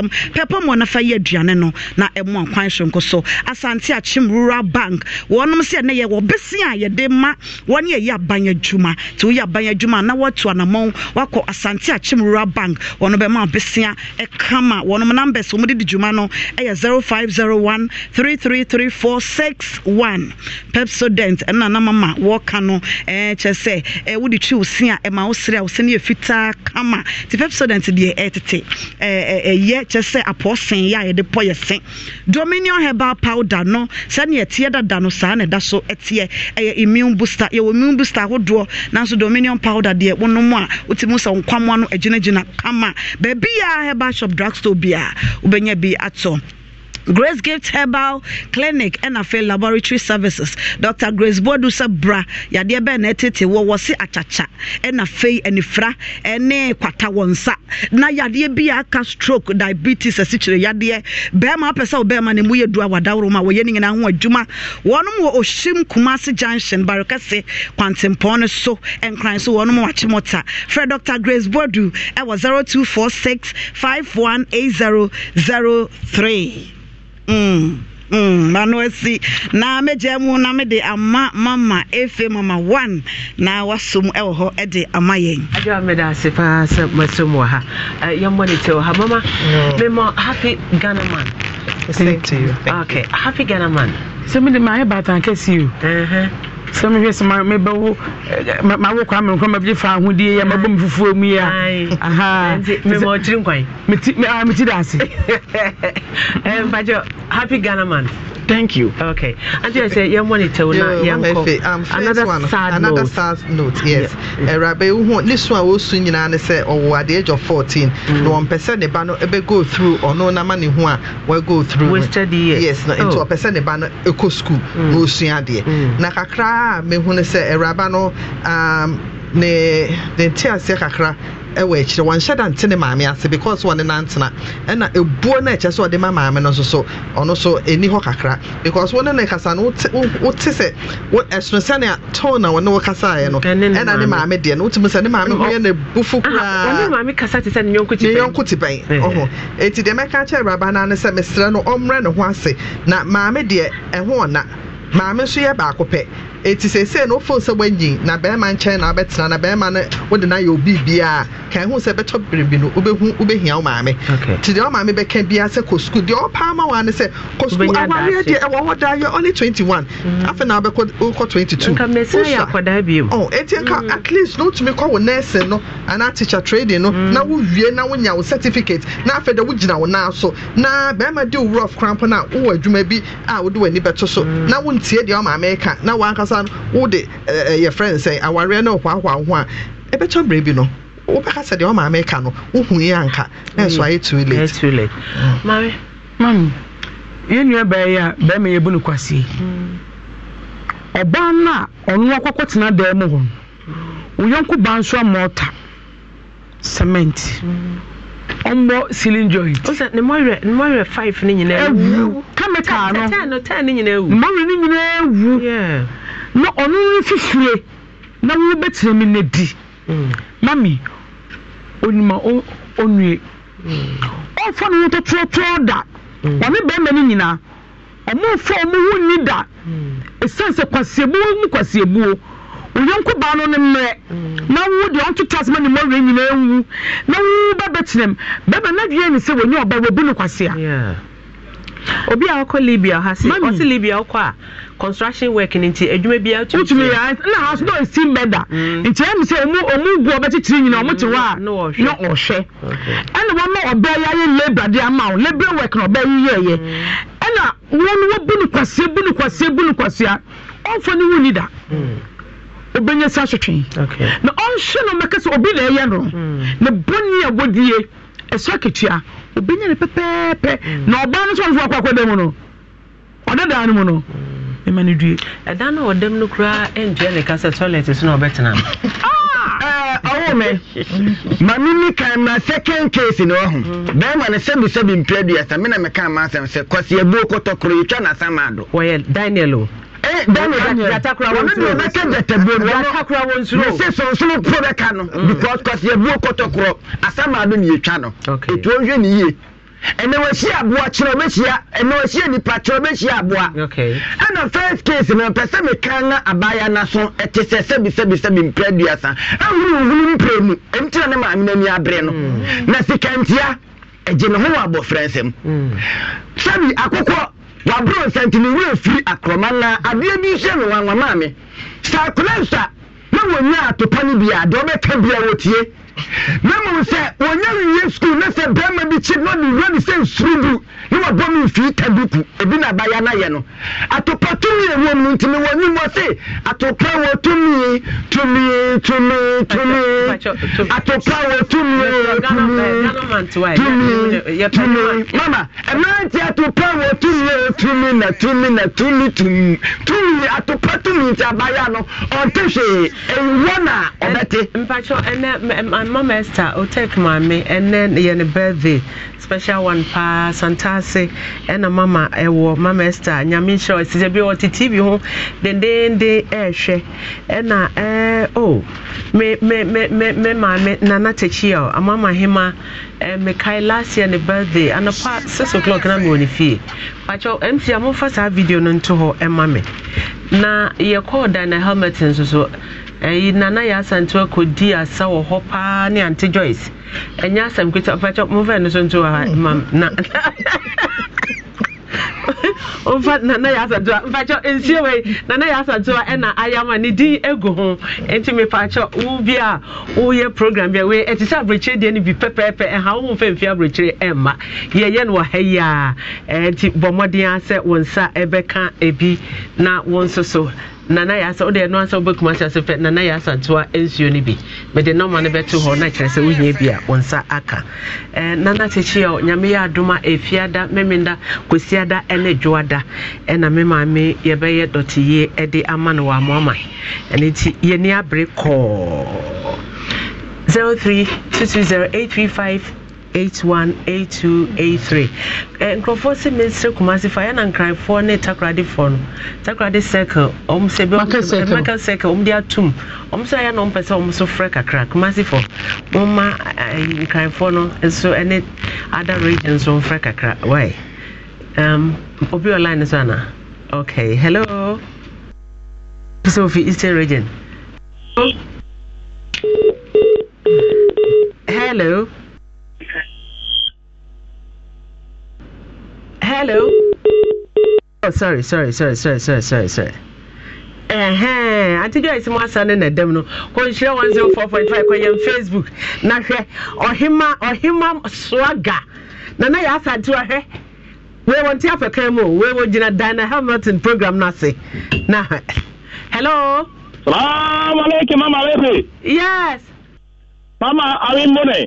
Speaker 12: com pɛpɛ ma ɔnafa yɛ aduane no na ɛmo akwan sonko so asante akyem rural bank wɔnom sɛ ɛnɛ yɛ wɔbɛse a yɛde ma wɔne yɛyɛ aban adwuma nti woyɛ aban adwuma na wɔatu anammɔn wakɔ asante akyem rural bank wɔno bɛma wobɛsea ɛkama wɔnom numbers wɔm de di dwuma no ɛyɛ 0501 333461 pepsodent ɛna namama wɔka no ɛɛ kyerɛ sɛ wode twi wo se a ɛma wo serɛ a wo se no yɛ fitaa kama nti pepsodent deɛ ɛtete ɛɛ ɛyɛ kyɛ sɛ apɔɔsen yɛ a yɛde pɔ yɛ se dominion herbal powder no sɛnea ɛteɛ dada no saa na ɛda so ɛteɛ ɛyɛ immune booster yɛwɔ immune booster ahodoɔ nanso dominion powder deɛ wonom a wotumi sɛ nkwamoa no agyinagyina kama baabi a herbal shop drugstore bi a wobɛnya bi atɔ grace gift herbal clinic ɛna afei laboratory services dr grace bodu bra yadeɛ bɛɛ wawasi ɛtete wɔ wɔse akyakya ɛna afei anifra ɛne na yadeɛ bi a stroke diabetes asikyire yadeɛ bɛrima bema sɛ bema bɛrima ne mu yɛ du a wadaworo ma wɔyɛ ne nyinaa ho adwuma wɔnom wɔ ohyim kumase junction barekɛse kwantempɔn no so nkran so wɔnom wakye mɔta frɛ dr grace bodu ɛwɔ 0246 518003 Mm, mm, mano asi na mɛgya mu na mede ama mama efe mama one na wasom ɛwɔ hɔ ɛde ama yɛn agya meda ase paa sɛ masom wɔ ha eh, yɛmmɔ ne
Speaker 1: tɛ wɔ ha mama mema happy ghana man Thank you. Okay, happy Ghana man. So, me, my bad, I can you. Uh huh sɛ mehwɛ sɛ mebɛwo
Speaker 3: eh, mawo kwa me nkɔ mabɛgye fa ahodie yɛ mabɔ me fufuo mu yi a ah,
Speaker 1: meti da ase eh, mpakyɛ happy ghana Thank you. Okay. Until I say you want to tell now, um,
Speaker 13: another one, sad another note. sad note. Yes. Yeah. Uh, Rabbi, this one was soon and say, oh, at the age of fourteen, mm. no one percent the banner ever go through or no namani one will go through. Wasted years. Yes. No, into oh. a percent the banner eco school. No, mm. soon idea. Mm. Nakakra a mehunu sɛ awuraba no um, ne ne nte aseɛ kakra ɛwɔ akyire wɔnhyɛ da nte ne maame ase because wɔne nantena ɛna ebuo no ɛkyɛ sɛ ɔde ma maame no nso so ɔno so ɛni hɔ kakra because wɔne ne kasa no wote sɛ ɛsono sɛnea tone na wɔne wo kasaeɛ no ɛna ne maame deɛ no wotumi sɛ ne maame ho yɛ kasa bufu koraa ne yɔnko te bɛn ɔho ɛnti deɛ mɛka kyɛ awuraba no ne sɛ mesrɛ no ɔmmerɛ ne ho ase na maame deɛ ɛho ɔna maame nso yɛ baako eti eh, sese na ofo sɛ wanyin na bɛrima nkyɛn na abɛtena na bɛrima no wode na yɛ obi bia kan ho sɛ bɛtɔ biribi no wobɛhu wobɛhia wo maame nti deɛ ɔmaame bɛka bia sɛ kɔ sukuu deɛ ɔpaa ma wa ne sɛ kɔ sukuu awareɛ deɛ ɛwɔ hɔ daa yɛ only twenty one mm. afei na wobɛkɔ wokɔ twenty two wosa eti nka mm. at least no tumi kɔ wo nursing no anaa teacher trading no mm. na wowie na wonya wo certificate na afei dɛ wogyina wo nan so na bɛrima de wo rough cramp na a wowɔ adwuma bi a wode w'ani bɛto so na wontie deɛ ɔmaame ka na wankasa ansa wode yɛ frɛ sɛ awareɛ no hwaahwaa ho eh, a ɛbɛtɔ berɛ bi no wobɛka sɛ deɛ no wohu yi anka na ɛso ayɛ too late a bɛrima yɛbu
Speaker 3: no kwasie a ɔno akɔkɔ tena dan mu hɔ wo yɔnko ba nso cement
Speaker 1: ɔmmɔ ceiling joint. chemical no no nyinaa na ɔno no fifire na
Speaker 3: wobɛtena mi no di mm. mami onima ɔnue mm. ɔmfa no ho da mm. ɔne bɛrima no nyinaa ɔmomfa ɔmo ho nni da ɛsiane sɛ kwaseɛbuo mu kwaseɛbuo oyɔnko baa no no mmerɛ na wo deɛ ɔntoto asɛma ne mmɔwerɛ nyinaa wu na wo bɛbɛtenam bɛrima
Speaker 1: no adwene ne sɛ wɔnyɛ wɔbu obi a ɔkɔ libya ha si ɔsi libya ɔkɔ a construction work ni nti adwuma bi atumi. ya na house no esi mbɛda nti ɛmu sɛ ɔmu ɔmu gu ɔbɛkyikyiri nyina ɔmu te hɔ a na ɔhwɛ
Speaker 3: ɛna wɔn ɔbɛ yɛ ayɛ labour de ama o labour na ɔbɛ yɛ yɛ ɛna wɔn wɔ ɔnfɔ da. Mm. obɛnya sa na
Speaker 1: ɔnhwɛ
Speaker 3: no sɛ obi mm. na ɛyɛ obɛnya ne pɛpɛɛpɛ na ɔbaa no nso ɔnfo akɔ akɔda mu no ɔda daa
Speaker 1: no mu no ɛma no due ɛda no ɔdam no koraa ɛntua ne ka sɛ toilet so na ɔbɛtena
Speaker 11: ɔwo ah! eh, me ma mimi ma second case ne ɔho bɛrima no sɛbisɛbi mpɛ aduasa me na meka ma asɛm sɛ kɔseabuo kɔtɔkoro yɛtwa no asama ado wɔyɛ mɛsɛ sonsono po bɛka no because cause yɛbuo kɔtɔkorɔ asama no ne yɛtwa no ɛtuo nhwɛ ne yie ɛnɛ wɔahyia kyerɛ wobɛhyia ɛnɛ wɔahyia nipa kyerɛ wobɛhyia aboa
Speaker 1: ɛna
Speaker 11: first case no pɛ sɛ meka na abaya no so ɛte sɛ sɛbisɛbisɛbi mpra aduasa ɛhuruhuru mprɛ mu ɛntina ne maame no ani aberɛ no na sikantia ɛgye ne ho wɔ abɔfrɛ nsɛm sɛbi akokɔ waburo nsɛntini wura firi akoroma na adeɛ bi hyɛ no wanwa maame sɛ akora nsa na wɔnya atopa no bi a deɛ ɔbɛka bi a wɔtie na mmom sɛ wɔnya wiye sukuu na sɛ barima bi kyi na ɔde wura ne sɛ nsuru gu ne wabɔ me mfiri ta duku ebi na abaya no ayɛ no atopa tumi ɛwɔ mu nti mewɔ anim wɔ se atopa wɔ tumi tumi tumi tumi atopa wɔ tumi tumi tumi mama ɛmante atopa wɔ tumi tumi na tumi na tumi tumi tumi atopa tumi nti abaya no ɔnte hwee ɛwɔ
Speaker 1: na ɔbɛte mpakyɛ ɛnɛ mama esther otek maame ɛnɛ yɛ ne birthday special one paa santa ase ɛna mama ɛwɔ mama esther nyame nhyira ɔsi sɛ bi ɔte tv ho dendenden ɛɛhwɛ ɛna ɛɛ o oh, me me me me me maame nana tekyi a amama hema ɛɛ mekae last year ne birthday anapa six o'clock na mi wɔ ne fie pakyɛw mc amofa saa video no nto hɔ ɛma me na yɛkɔɔ dan na helmet nso so. ɛyi nana yɛ asantewa di asa wɔ hɔ paa ne ante joyce ɛnyɛ asɛm kita ɔfɛkyɛ momfa no so ma na mfa nana yɛ asantewa mfakyɛ nsie wei nana yɛ asantewa ɛna ayama ne din egu ho nti mefakyɛ wo bi program bi a wei ɛte sɛ aburokyire bi pɛpɛɛpɛ ɛha wo aburokyire yɛyɛ no wɔ ha yi a ɛnti bɔ mmɔden nsa ebi na nso so nana yasa wode ɛno ansa wobɛkuma hyɛ so fɛ nana yasa ntoa nsuo no bi mede nɔma no bɛto hɔ na kyerɛ sɛ wohia bi a wo nsa aka eh, nana kyekyeɛ nyame yɛ adom a ɛfiada e memenda kɔsiada ɛne dwoada ɛna e me maame yɛbɛyɛ dɔteyie de ama no wɔ amoama ɛno nti yɛni abere kɔɔ 03 220 835 818283 nkurɔfoɔ sɛ mesere kumase fa yɛna nkranfoɔ ne takradefoɔ no takrade circle ɔm sɛ bɛmaka circle ɔm de atom ɔm sɛ ayɛ na ɔmpɛ sɛ ɔm so frɛ kakra kumasefoɔ moma eh, nkranfoɔ no nso ne other region so mfrɛ kakra wy um, obi online so ana okay hello sɛ ofi eastern region hello hello. Oh, sorry, sorry, sorry, sorry, sorry, sorry, sorry. ɛhɛn ati joyce mu asa ne na dɛm no kɔnhyira one zero four point five kɔyɛn facebook na hwɛ ɔhema ɔhema swaga nana yɛ asa ti ɔhwɛ wei wɔn ti afɛ kan mu o wei wɔn gyina dana hamilton program no ase na hello. salaamaleykum mama lefe. yes. mama
Speaker 10: awi mbone.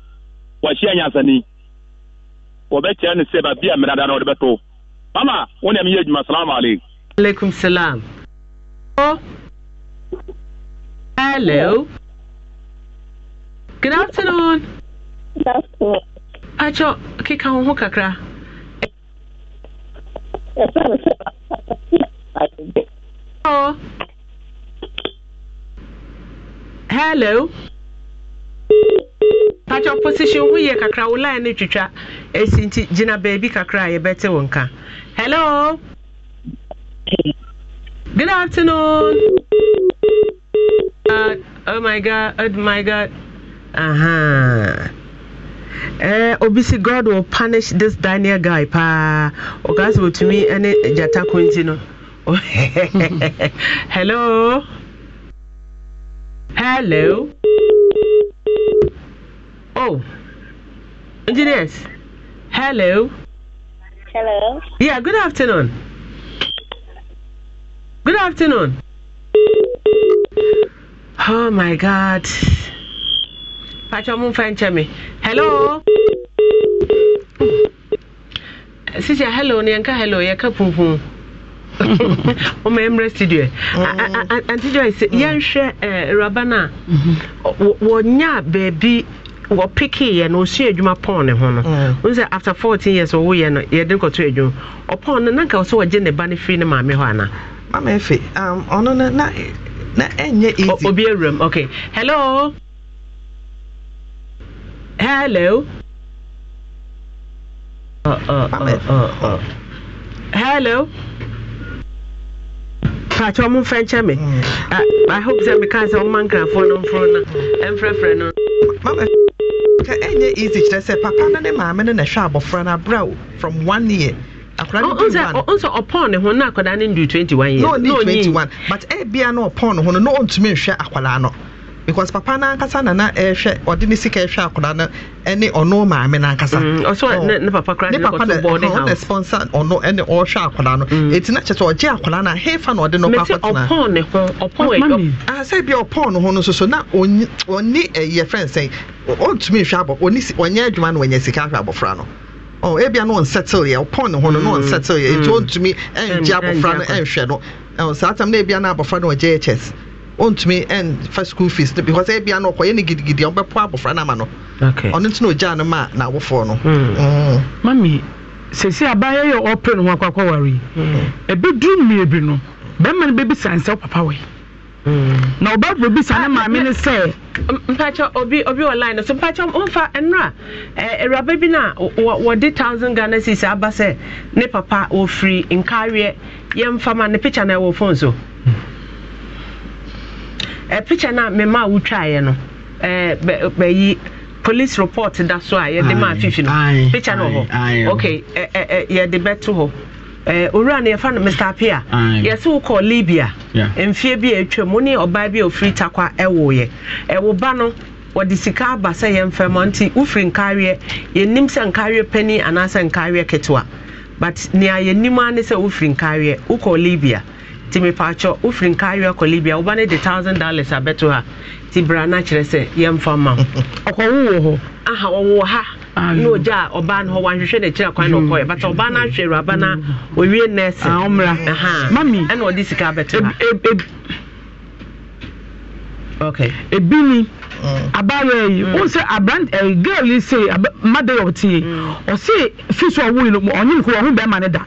Speaker 8: wɔahyia nyansani wɔbɛkyerɛ no sɛ baabi a mmerada no wɔde bɛto mama wo ne meyɛ adwuma salamu alaikum
Speaker 1: alaikum salam hello good afternoon akyɛ keka wo ho kakra hello pakyɛ position ho yie kakra wo line no twitwa ɛsi nti gyina baabi kakra a yɛbɛte wo nka hello good afternoon uh, oh my god oh my god uh-huh. Eh, obisi god will punish this daniel guy paa ɔka sɛ ɔtumi ne gyata ko no hello hello Oh, engineers. Hello. Hello. Yeah, good afternoon. Good afternoon. Oh my God. Pacho mo fan Hello. Sisi hello ni anka hello ya ka pumpum. ọmọ emre studio Auntie Joyce mm. yẹn hwẹ eh, raba na mm-hmm. wọnyá beebi wɔpikiiɛ no ɔsua adwuma pɔn ne ho no mm. wohu sɛ after 14 years ɔwoyɛ no yɛde nkɔto adwuma ɔpɔn no na sɛ wɔgye ne ba no firi ne maame hɔ anaa mama efe um, ɔno no na na ɛnyɛ easy obi awuram okay hello hello uh, uh, uh, uh, uh. hello mpakyɛ ɔmo mfa nkyɛ me i hope sɛ meka sɛ ɔma nkrafoɔ no mforo no ɛmfrɛfrɛ no mama ka ɛnyɛ
Speaker 13: easy kyerɛ sɛ papa no ne maame no na ɛhwɛ abɔfra no abrɛ from one year nso
Speaker 1: ɔpɔn ne ho na akwadaa no ndu 21 years na ɔnyi 21
Speaker 13: but ɛbia no ɔpɔn ne ho no na ɔntumi nhwɛ akwadaa no because papa n'ankasa na na ɛhwɛ ɔde ne sika ɛhwɛ akwadaa no ɛne ɔno maame n'ankasa. ɔsɔ mm, oh, oh. ne ne papa kura ne kɔtɔ bɔɔde ha o ne sponsor ɔno ɛne ɔhwɛ akwadaa no mm. eti na kyerɛ sɛ ɔgye akwadaa na hefa na ɔde no kɔ akɔtena. mɛ sɛ ɔpɔn
Speaker 1: ne ho ɔpɔn ɛyɔ.
Speaker 13: asɛ bi ɔpɔn ne ho no soso na ɔni ɛyɛ eh, fɛn sɛn ɔntumi nhwɛ abɔ ɔni ɔnyɛ adwuma na ɔnyɛ sika ahwɛ abɔfra no oh ebia no ɔnsettle yɛ ɔpɔn ne ho no no mm, ɔnsettle yɛ nti ɔntumi ɛngye abɔfra no ɛnhwɛ no ɛn oh, saa tam na ebia na abɔfra no ɔgye hs ɔntumi ɛnfa school fees no because ebi ano ɔkɔ yɛ ne gidigidi ɔbɛpo abɔfra no ama no ɔno nti na ogya no ma n'awofoɔ no. Hmm.
Speaker 3: Hmm. mami sese abaayɛ yɛ ɔpere no ho akɔkɔ wari yi hmm. ebi duru mmiri no
Speaker 1: bɛrima no bɛbi san sɛ papa wɔ na ɔbɛbɔ bi san ne ah, maame ne sɛ. mpakyɛ obi obi wɔ line no so mpakyɛ ɔmfa nnura awuraba bi na wɔde thousand ghana cedis aba sɛ ne papa wɔfiri nkareɛ yɛmfama ne picture na ɛwɔ phone so. Eh, picture na mema a wotwaeɛ no eh, bɛyi police report da so a yɛde ma afifi no picture no hɔ okay eh, yɛde bɛto hɔ owura no yɛfa no mr apia yɛse wokɔ libya mfeɛ bi a atwam wo ne ɔbaa bi a ɔfiri takwa ɛwoyɛ ɛwo ba no wɔde sika aba sɛ yɛmfɛm nti wofiri nkareɛ yɛnim sɛ nkareɛ pani anaasɛ nkareɛ ketewa but nea yɛnim a ne sɛ wofiri nkareɛ wokɔ libya timi paakyɛ wofiri nka awe akɔ libia woba no de thousand dollars abɛto ha nti bra no kyerɛ sɛ yɛmfa ma wo ɔkɔwo wɔ hɔ aha ɔwɔ ha na ogya a ɔbaa no hɔ wanhwehwɛ no akyira kwan na ɔkɔyɛ mm. but ɔbaa no mm. ahwɛ awuraba no ɔwie nɛsɛ ɛna ɔde sika abɛto ha
Speaker 3: ebi ni Mm. abaayewa mm. yi wọn sɛ abrant ɛɛ girl yi sɛ mmadụ yɛ yi ɔsi fi so yi no mu ɔnye nkuru ɔhụ bɛrima ne da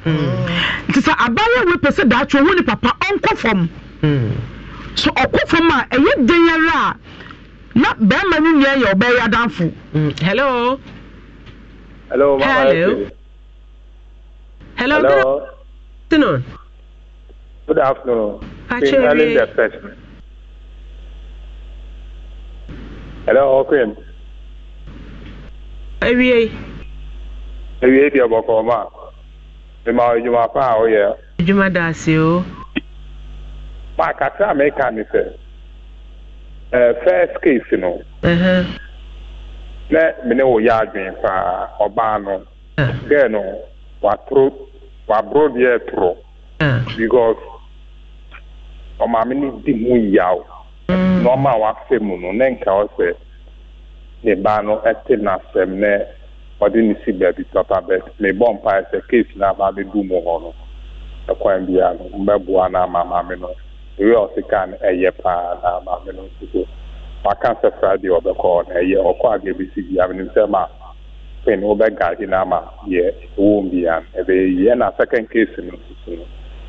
Speaker 3: nti sɛ abaayewa pɛ sɛ daatwe ɔhụ ne papa ɔnkɔ fam so ɔkɔ fam a ɛyɛ den
Speaker 1: yɛrɛ a na bɛrima no nyɛ yɛ ɔbɛyɛ adanfo. hello.
Speaker 8: hello mama hello. hello. hello. good afternoon. good afternoon. good Hello, Queen. Ewie. Ewie di ọgbọkọ ma. Ịma edwuma fa a oyɛ. Oh da ase o. Ma kakra mi ka mi first case nọ, Na mene wo yɛ adwene paa ɔbaa no. Gɛɛ no Because ɔmaame ni di ya yaw. nneɛma a waka mu no ne nka ɔsɛ ne ba no te n'asɛm ne ɔde ne si baabi papa bɛt mebɔ mpae sɛ keesi no aba abɛdu mu hɔ no ɛkwan biara no mbɛboa no ama maame no ewe ɔsi kaa no ɛyɛ paa na maame no nso so waka sɛ friday ɔbɛkɔ na ɛyɛ ɔkɔ a bɛbi si biara no nsɛm a pin wobɛgaade no ama yɛ wɔm biara no ɛbɛyɛ yie ɛna second case no nso so no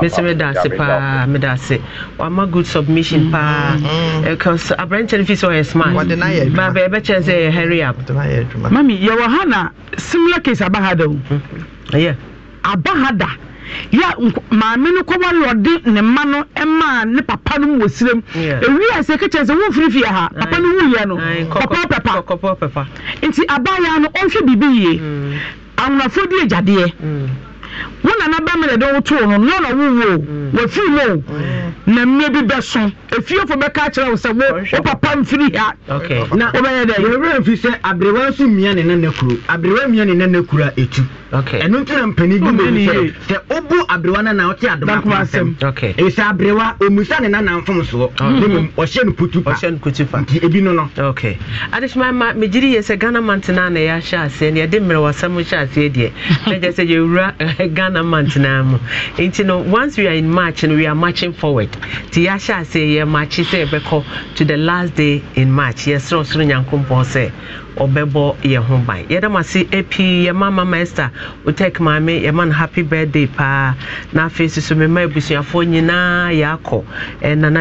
Speaker 8: mɛsɛ meda ase paa
Speaker 1: meda ase wama good submission paa aberɛnkyɛ no fi sɛ ɔyɛ smartbaba ɛbɛkyɛn sɛ ɛyɛ hurry up mami yɛwɔ ha na
Speaker 3: similar case aba ha da o ɛyɛ aba ha da ya maame no kɔba lɔde ne mma no ɛmaa ne papa no wɔ sirem ewi ase kɛkyɛn sɛ wɔn firifiri ha papa no wu yɛ no pɔpɔ pɛpa nti abaayaa no ɔnhwɛ biribi yie awonafo di agyadeɛ wọn nana bẹ́ẹ̀ mi dẹ̀dẹ̀ wọ́n tó o no ní ọ̀nà wúwo wọ́n fi mu o na mmiri bi bẹ so efiofo bẹ ká kyerɛ sɛ wo wo papa
Speaker 11: nfiri ha na wo bɛ yɛ dɛ yɛwerɛ mfi sɛ aberewa nso mmia e ne nana kuro aberewa mmia ne nana kuro a ɛtu ɛno nti na mpanin bi mu sɛ sɛ wobu aberewa no na wote adoma ko asɛm ɛsɛ aberewa ɔmusa ne nana mfom soɔ ne mmom ɔhyɛ no putu pa nti ebi no no
Speaker 1: adesoma ma megyeri yɛ sɛ ghana mantena na yɛahyɛ aseɛ ne yɛde mmerɛwasɛm hyɛ aseɛ deɛ ɛgyɛ sɛ yɛwura ghana month naa mu nti no once we are in march no we are marching forward ti yɛahyɛ ase yɛ march sɛ yɛbɛkɔ to the last day in march yɛsrɛ ɔsoro nyankopɔn sɛ ɔbɛbɔ yɛn ho ban yɛda mo ase epi yɛma mama esther otek maame yɛma no happy birthday paa na afei soso mema abusuafoɔ nyinaa yɛakɔ eh, nana